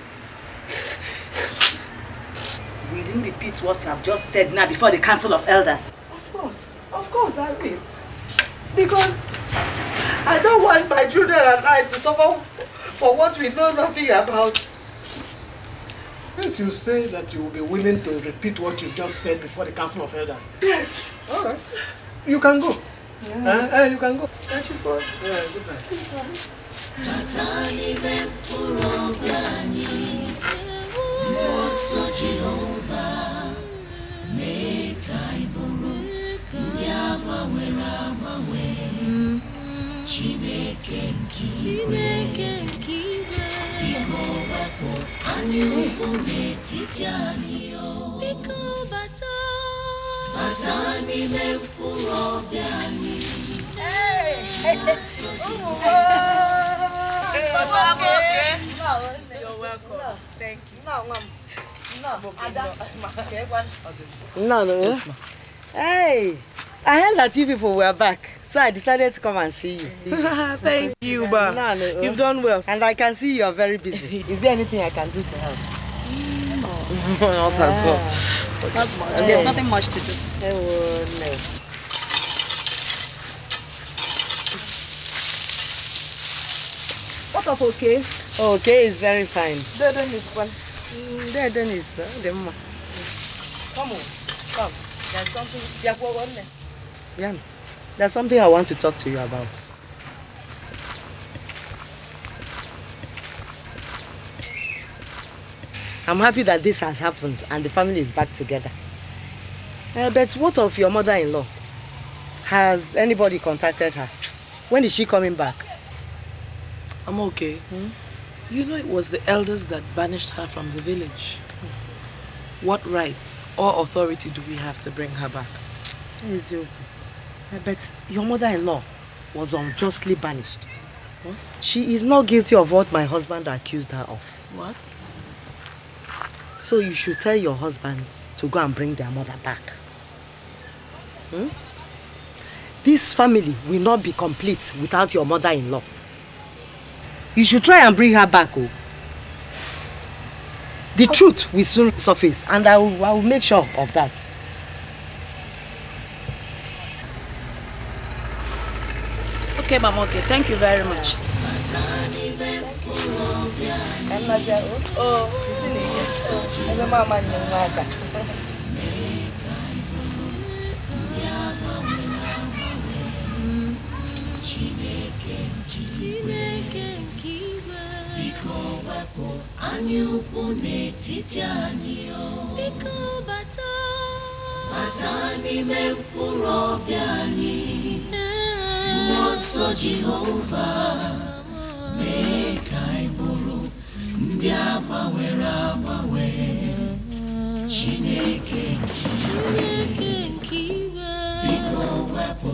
Will you repeat what you have just said now before the Council of Elders? Of course. Of course I will. Because I don't want my children and I to suffer for what we know nothing about. Yes, you say that you will be willing to repeat what you just said before the Council of Elders. Yes. All right. You can go. Yeah. Uh, uh, you can go. Catch you for Yeah, good night. Good night. mgbaso Jehova mee ka anyị bụrụ ndị agbanwere agbanwe Chineke nke igwe biko wepụ anyị ugwu n'etiti anyị biko No, you're welcome. No, thank you. No, ma'am. No, No, no. Hey, I heard that you people were back, so I decided to come and see you. Thank you, Ba. No, no. You've done well. And I can see you are very busy. Is there anything I can do to help? no. Not at all. much. There's nothing much to do. Oh, no. of okay? Okay is very fine. Then is one. Then mm, is uh, the mama. Come on, come. There's something. there's something I want to talk to you about. I'm happy that this has happened and the family is back together. Uh, but what of your mother-in-law? Has anybody contacted her? When is she coming back? I'm okay. Hmm? You know it was the elders that banished her from the village. What rights or authority do we have to bring her back? Ezio, I bet your mother-in-law was unjustly banished. What? She is not guilty of what my husband accused her of. What? So you should tell your husbands to go and bring their mother back. Hmm? This family will not be complete without your mother-in-law. You should try and bring her back. Oh. The truth will soon surface, and I will, I will make sure of that. Okay, Mama, okay. Thank you very much. Mm. anyị anyaukwu n'etiti anyị o biko bata bata n'ime mkpụrụ obi anyị mmụọ nsọ Jehova mee ka anyị bụrụ ndị agbanwere agbanwe Chineke nke iwe biko wepụ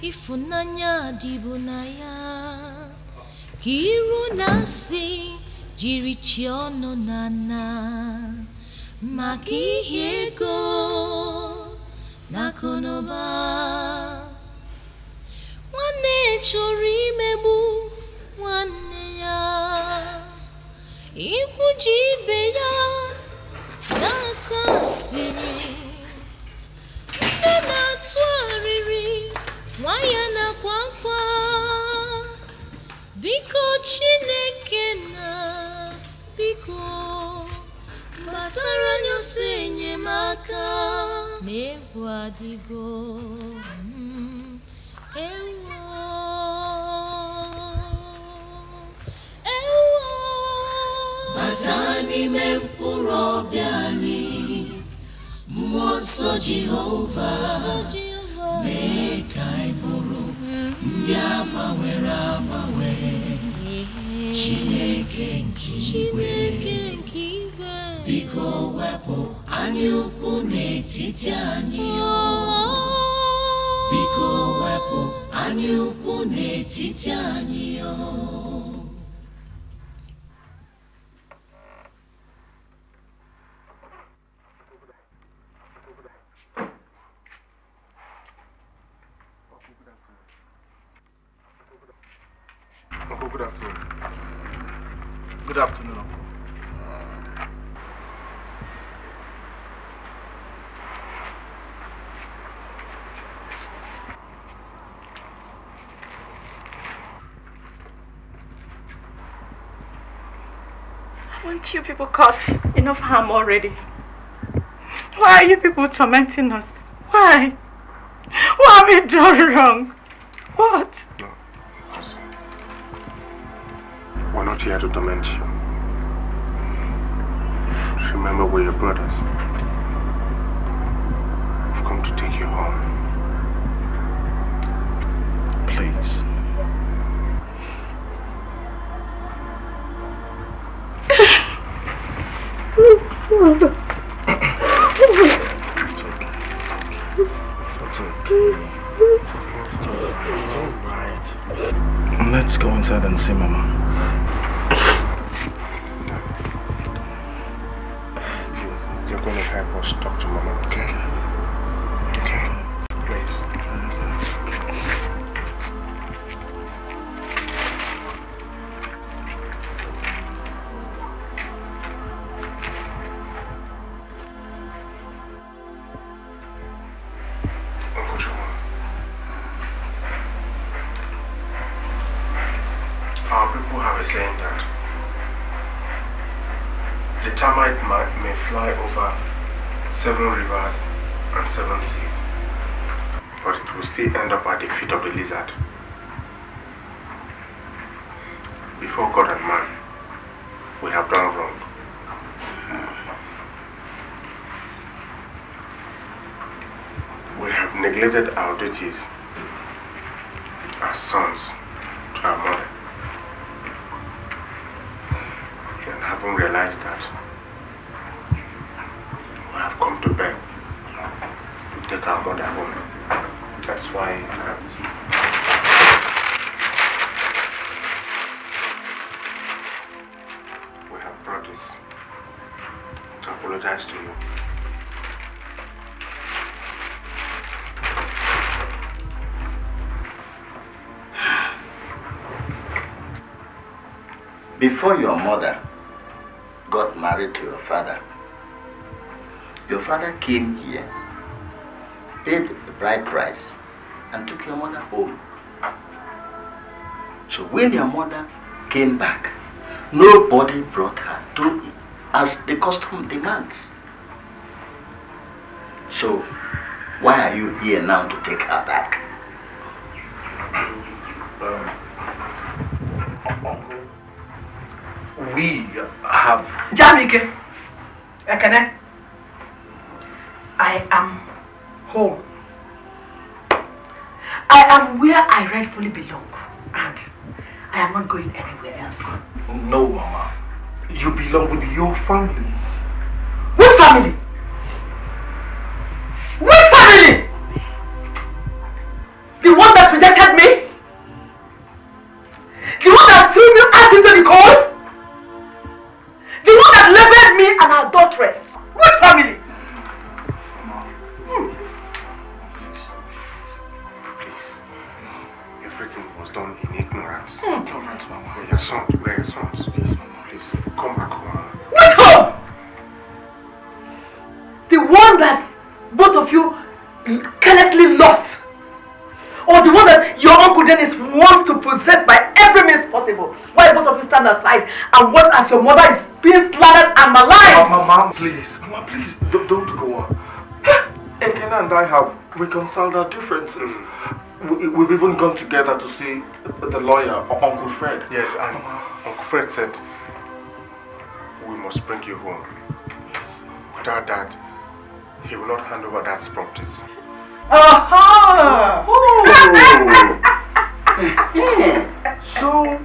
ịfụnanya dịbụ na ya ka iru na-asị jiri chi nana na nna maka ihe ego na akụnụba ya ikwuji ya n'aka asịrị nne wayana kwakwa biko chineke na biko gbasara anyị ọsọ enyemaka na egwu adịgo hmm, enwo enwo bata n'ime mkpụrụ ọbịa anyị mmụọ nsọ jehova mee ka anyị bụrụ ndị agbanwere agbanwe Chineke nke igwe biko wepụ anyaukwu n'etiti anyị biko wepụ anyaukwu n'etiti anyị Good afternoon. Haven't you people caused enough harm already? Why are you people tormenting us? Why? What have we done wrong? Remember, we're your brothers. of duties before your mother got married to your father, your father came here, paid the bride price, and took your mother home. So when your mother came back, nobody brought her to as the custom demands. So why are you here now to take her? have reconciled our differences. Mm. We, have even gone together to see the lawyer, Uncle Fred. Yes, and uh-huh. Uncle Fred said, we must bring you home. Yes. Without that, he will not hand over Dad's properties. Aha! Oh. so,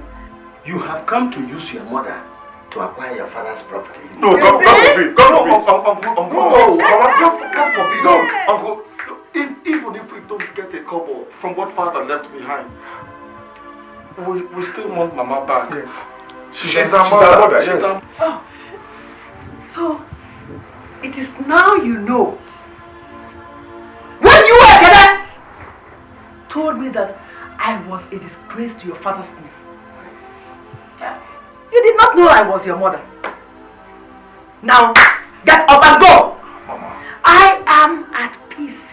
you have come to use your mother to acquire your father's property. No, God, God forbid. God forbid. Uncle, uncle, uncle, no, No, uncle. If, even if we don't get a couple from what father left behind, we, we still want mama back. Yes. She's, she's our mother. mother. She's yes. Our... Oh. So, it is now you know. When you were together, told me that I was a disgrace to your father's name. You did not know I was your mother. Now, get up and go! Mama. I am at peace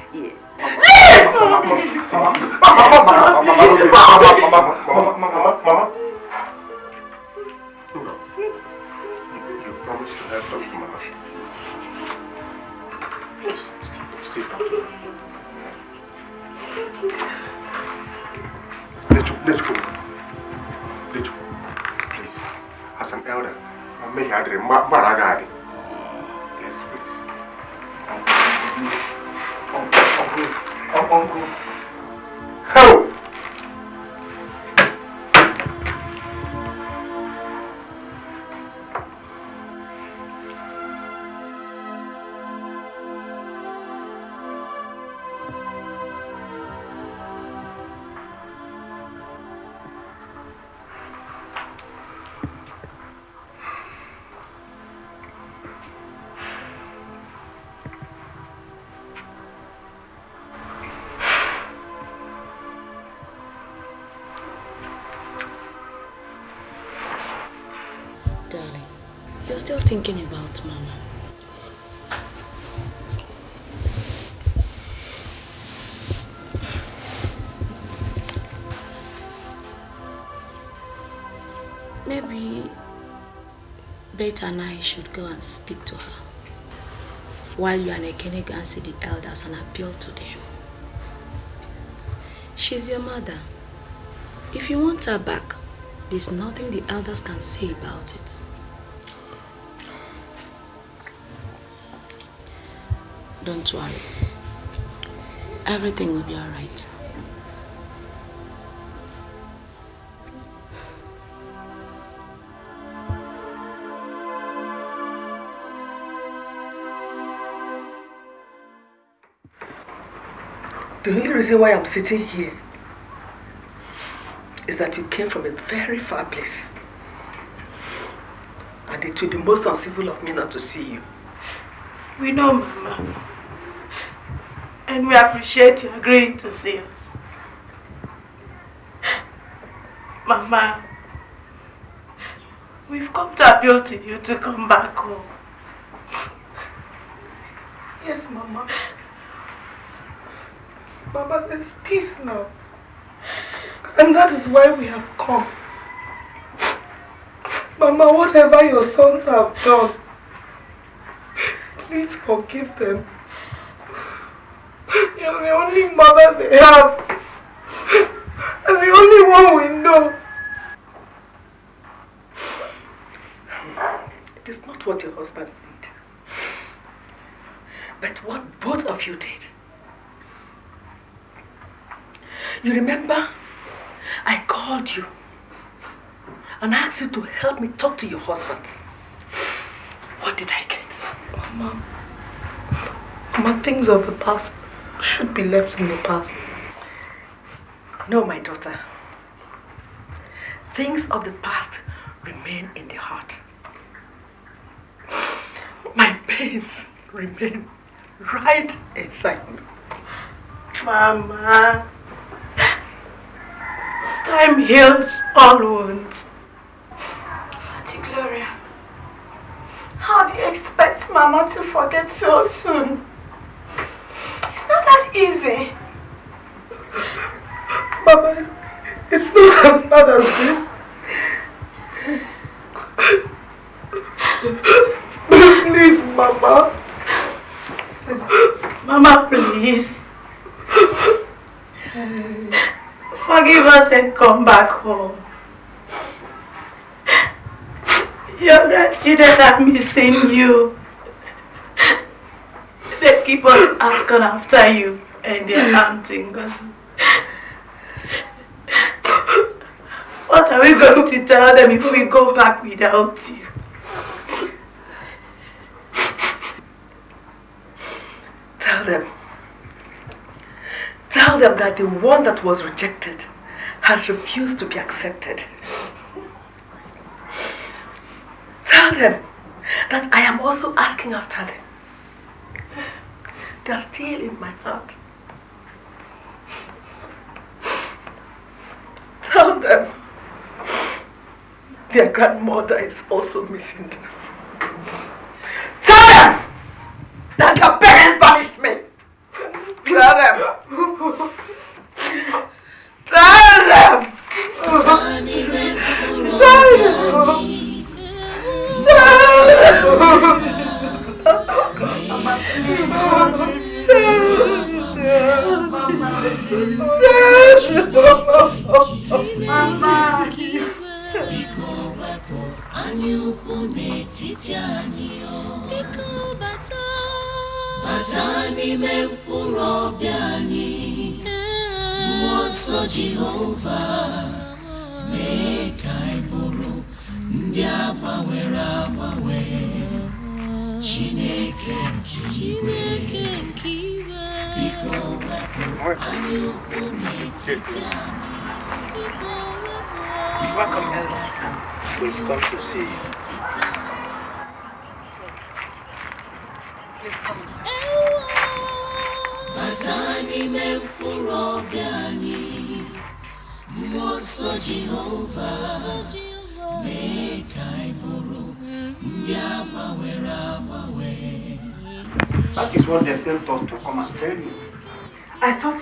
Baragari. Yes, please. ao concurso. thinking about Mama. Maybe Beta and I should go and speak to her. While you and Ekene go and see the elders and appeal to them. She's your mother. If you want her back, there's nothing the elders can say about it. Don't worry. Everything will be alright. The only reason why I'm sitting here is that you came from a very far place. And it would be most uncivil of me not to see you. We know, Mama and we appreciate you agreeing to see us. Mama, we've come to appeal to you to come back home. Yes, Mama. Mama, there's peace now. And that is why we have come. Mama, whatever your sons have done, please forgive them the only mother they have. And the only one we know. It is not what your husbands did. But what both of you did. You remember? I called you and asked you to help me talk to your husbands. What did I get? Mama, Mama, things of the past should be left in the past. No, my daughter. Things of the past remain in the heart. My pains remain right inside me. Mama, time heals all wounds. Auntie Gloria, how do you expect Mama to forget so soon? crazy. Mama, it's not as bad as this. please, Mama. Mama, please. Forgive us and come back home. Your grandchildren are missing you. They keep on asking after you and they're hunting. what are we going to tell them if we go back without you? Tell them. Tell them that the one that was rejected has refused to be accepted. Tell them that I am also asking after them. They are still in my heart. them. Their grandmother is also missing them.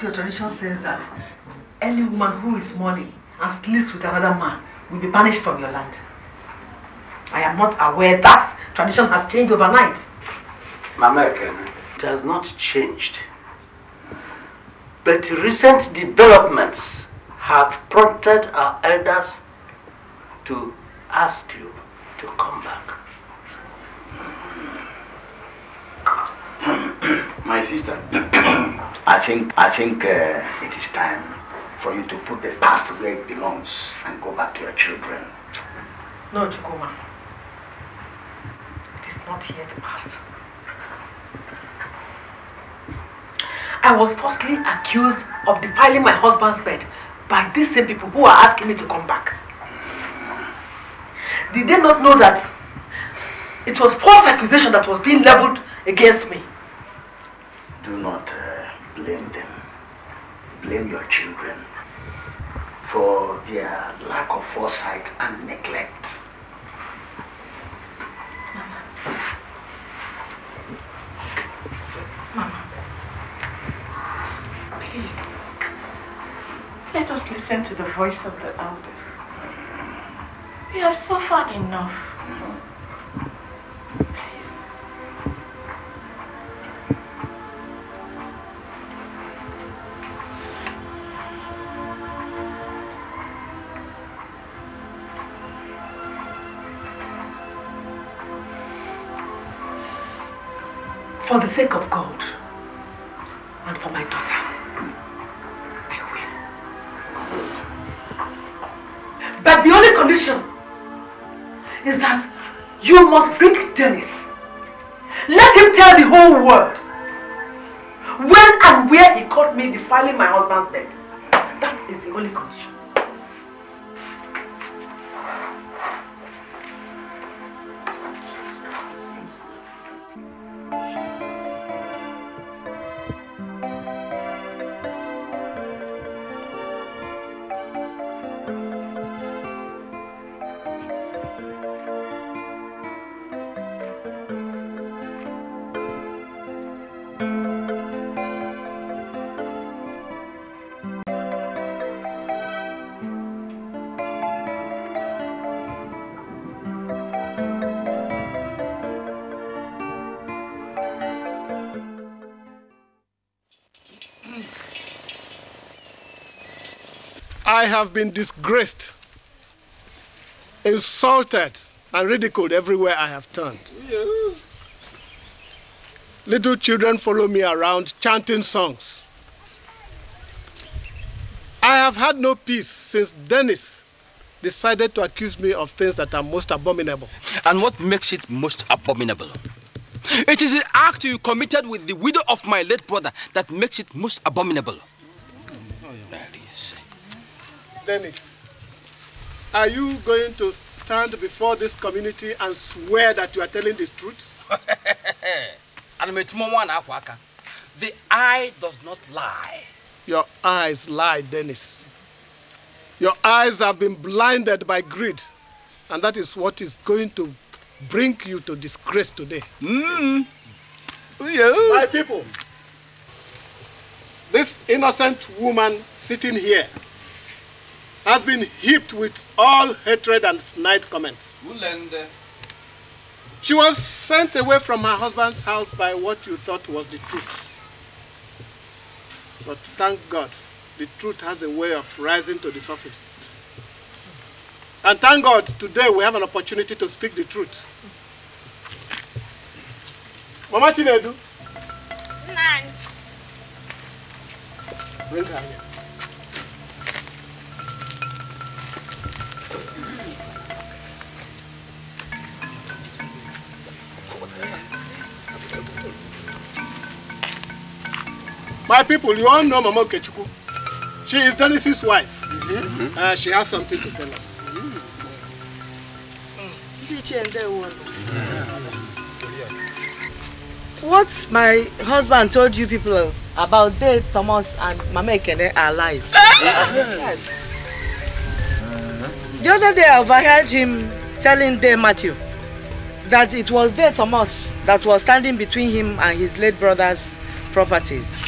your tradition says that any woman who is mourning and sleeps with another man will be banished from your land. I am not aware that tradition has changed overnight. American, it has not changed. But recent developments have prompted our elders to ask you to come back. My sister. I think, I think uh, it is time for you to put the past where it belongs and go back to your children. No, Chukuma. It is not yet past. I was falsely accused of defiling my husband's bed by these same people who are asking me to come back. Did they not know that it was false accusation that was being leveled against me? do not uh, blame them. Blame your children for their lack of foresight and neglect. Mama. Please. Let us listen to the voice of the elders. We have suffered enough. Mm-hmm. Please. For the sake of God and for my daughter, I will. But the only condition is that you must bring Dennis. Let him tell the whole world when and where he caught me defiling my husband's bed. That is the only condition. Thank you. have been disgraced, insulted, and ridiculed everywhere I have turned. Little children follow me around chanting songs. I have had no peace since Dennis decided to accuse me of things that are most abominable. And what makes it most abominable? It is the act you committed with the widow of my late brother that makes it most abominable. Dennis, are you going to stand before this community and swear that you are telling the truth? the eye does not lie. Your eyes lie, Dennis. Your eyes have been blinded by greed. And that is what is going to bring you to disgrace today. Mm. Mm-hmm. Yeah. My people, this innocent woman sitting here has been heaped with all hatred and snide comments. She was sent away from her husband's house by what you thought was the truth. But thank God, the truth has a way of rising to the surface. And thank God, today we have an opportunity to speak the truth. Mama Chinedu. Nani. Bring her here. My people, you all know Mama Kechuku. She is Dennis's wife. Mm -hmm. uh, she has something to tell us. Mm. Mm. Mm. What my husband told you people about dead Thomas, and Mama Ekene are lies. Eh? yes. The other day I overheard him telling Dave Matthew that it was Dave Thomas that was standing between him and his late brother's properties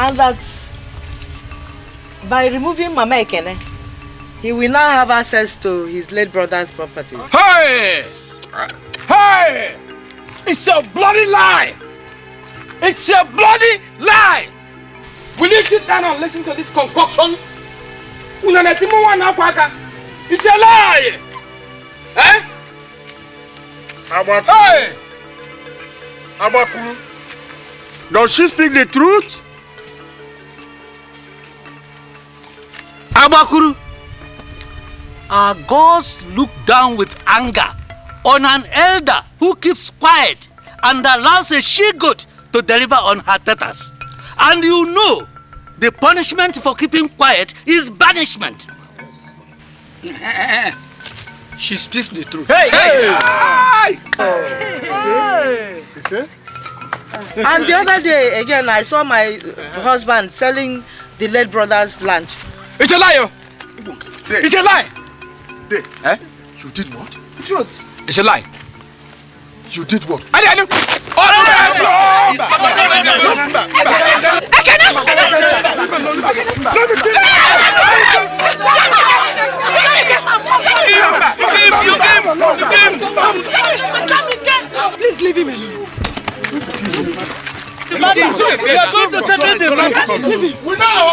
and that by removing Mama Ekene, he will now have access to his late brother's property. Hey! Hey! It's a bloody lie! It's a bloody lie! Will you sit down and listen to this concoction? It's a lie! Eh? Hey! Abakulu. Does she speak the truth? Kabakuru. Our gods look down with anger on an elder who keeps quiet and allows a she-goat to deliver on her tetas. And you know, the punishment for keeping quiet is banishment. she speaks the truth. Hey! Hey! hey. hey. hey. And the other day, again, I saw my husband selling the late brother's land. It's a lie. Oh. yo. It's a lie. Eh? You did what? Truth. It's a lie. You did what? I did. Oh, no, no, no, no. I cannot. I cannot. Please leave him alone. We know our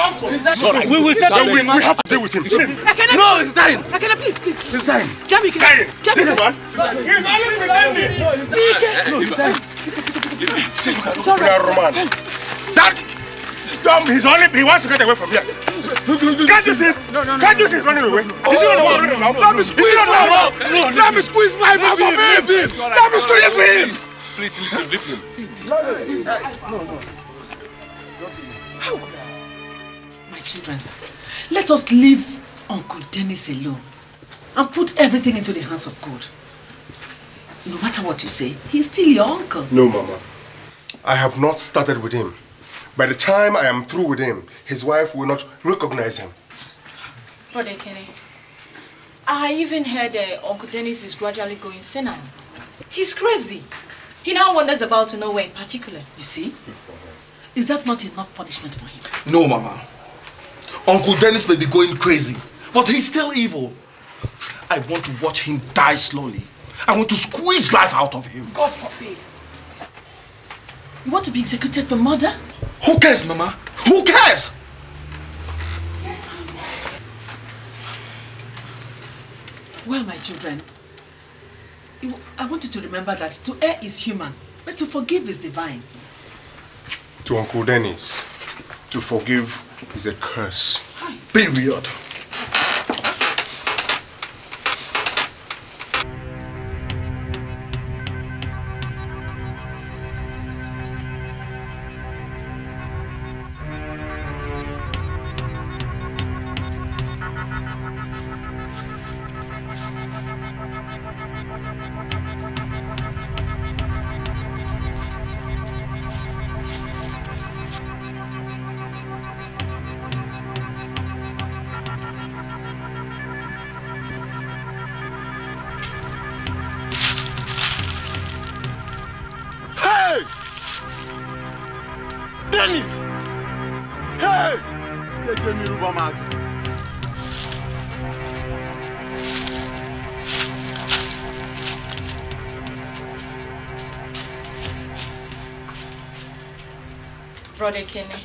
uncle. Sorry. We will settle. We, we have to deal with him. I No, he's dying. cannot, please, please. He's dying. Jami, can Dying. Jami, this man. He's only pretending. No, he's dying. Sorry. We are Roman. That dumb, he's only, he wants to get away from here. Can't you see? Can't you see? Running away. Is he not oh, running now? Let me squeeze life out of him. Let me squeeze life out of him. him. Please, leave him. Leave him. No, no, no, How? My children, let us leave Uncle Dennis alone and put everything into the hands of God. No matter what you say, he's still your uncle. No, Mama. I have not started with him. By the time I am through with him, his wife will not recognize him. Brother Kenny, I even heard uh, Uncle Dennis is gradually going senile. He's crazy. He now wanders about nowhere in particular. You see? Is that not enough punishment for him? No, Mama. Uncle Dennis may be going crazy, but he's still evil. I want to watch him die slowly. I want to squeeze life out of him. God forbid. You want to be executed for murder? Who cares, Mama? Who cares? Well, my children, I want you to remember that to err is human, but to forgive is divine. To Uncle Dennis, to forgive is a curse. Hi. Period. Ekene, eh?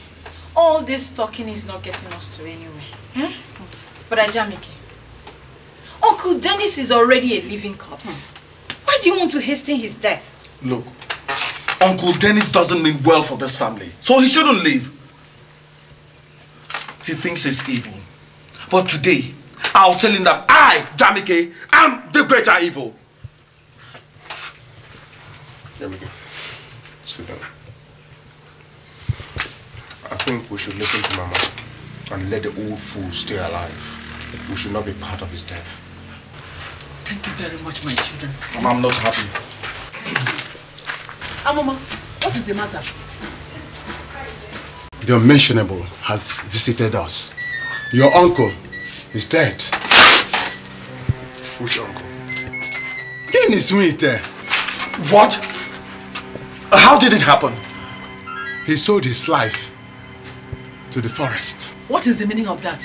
all this talking is not getting us to anywhere. Hmm? But Ajamike, Uncle Dennis is already a living corpse. Hmm. Why do you want to hasten his death? Look, Uncle Dennis doesn't mean well for this family, so he shouldn't leave. He thinks he's evil. But today, I'll tell him that I, Jamike, am the greater evil. There we go. Sit down. I think we should listen to Mama and let the old fool stay alive. We should not be part of his death. Thank you very much, my children. Mama, I'm not happy. Ah, Mama, what is the matter? The unmentionable has visited us. Your uncle is dead. Which uncle? Dennis Winter. What? How did it happen? He sold his life to the forest. What is the meaning of that?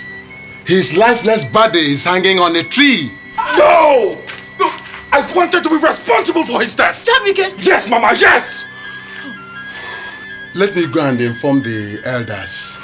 His lifeless body is hanging on a tree. No! No! I wanted to be responsible for his death! Jamike! Yes, Mama, yes! Let me go and inform the elders.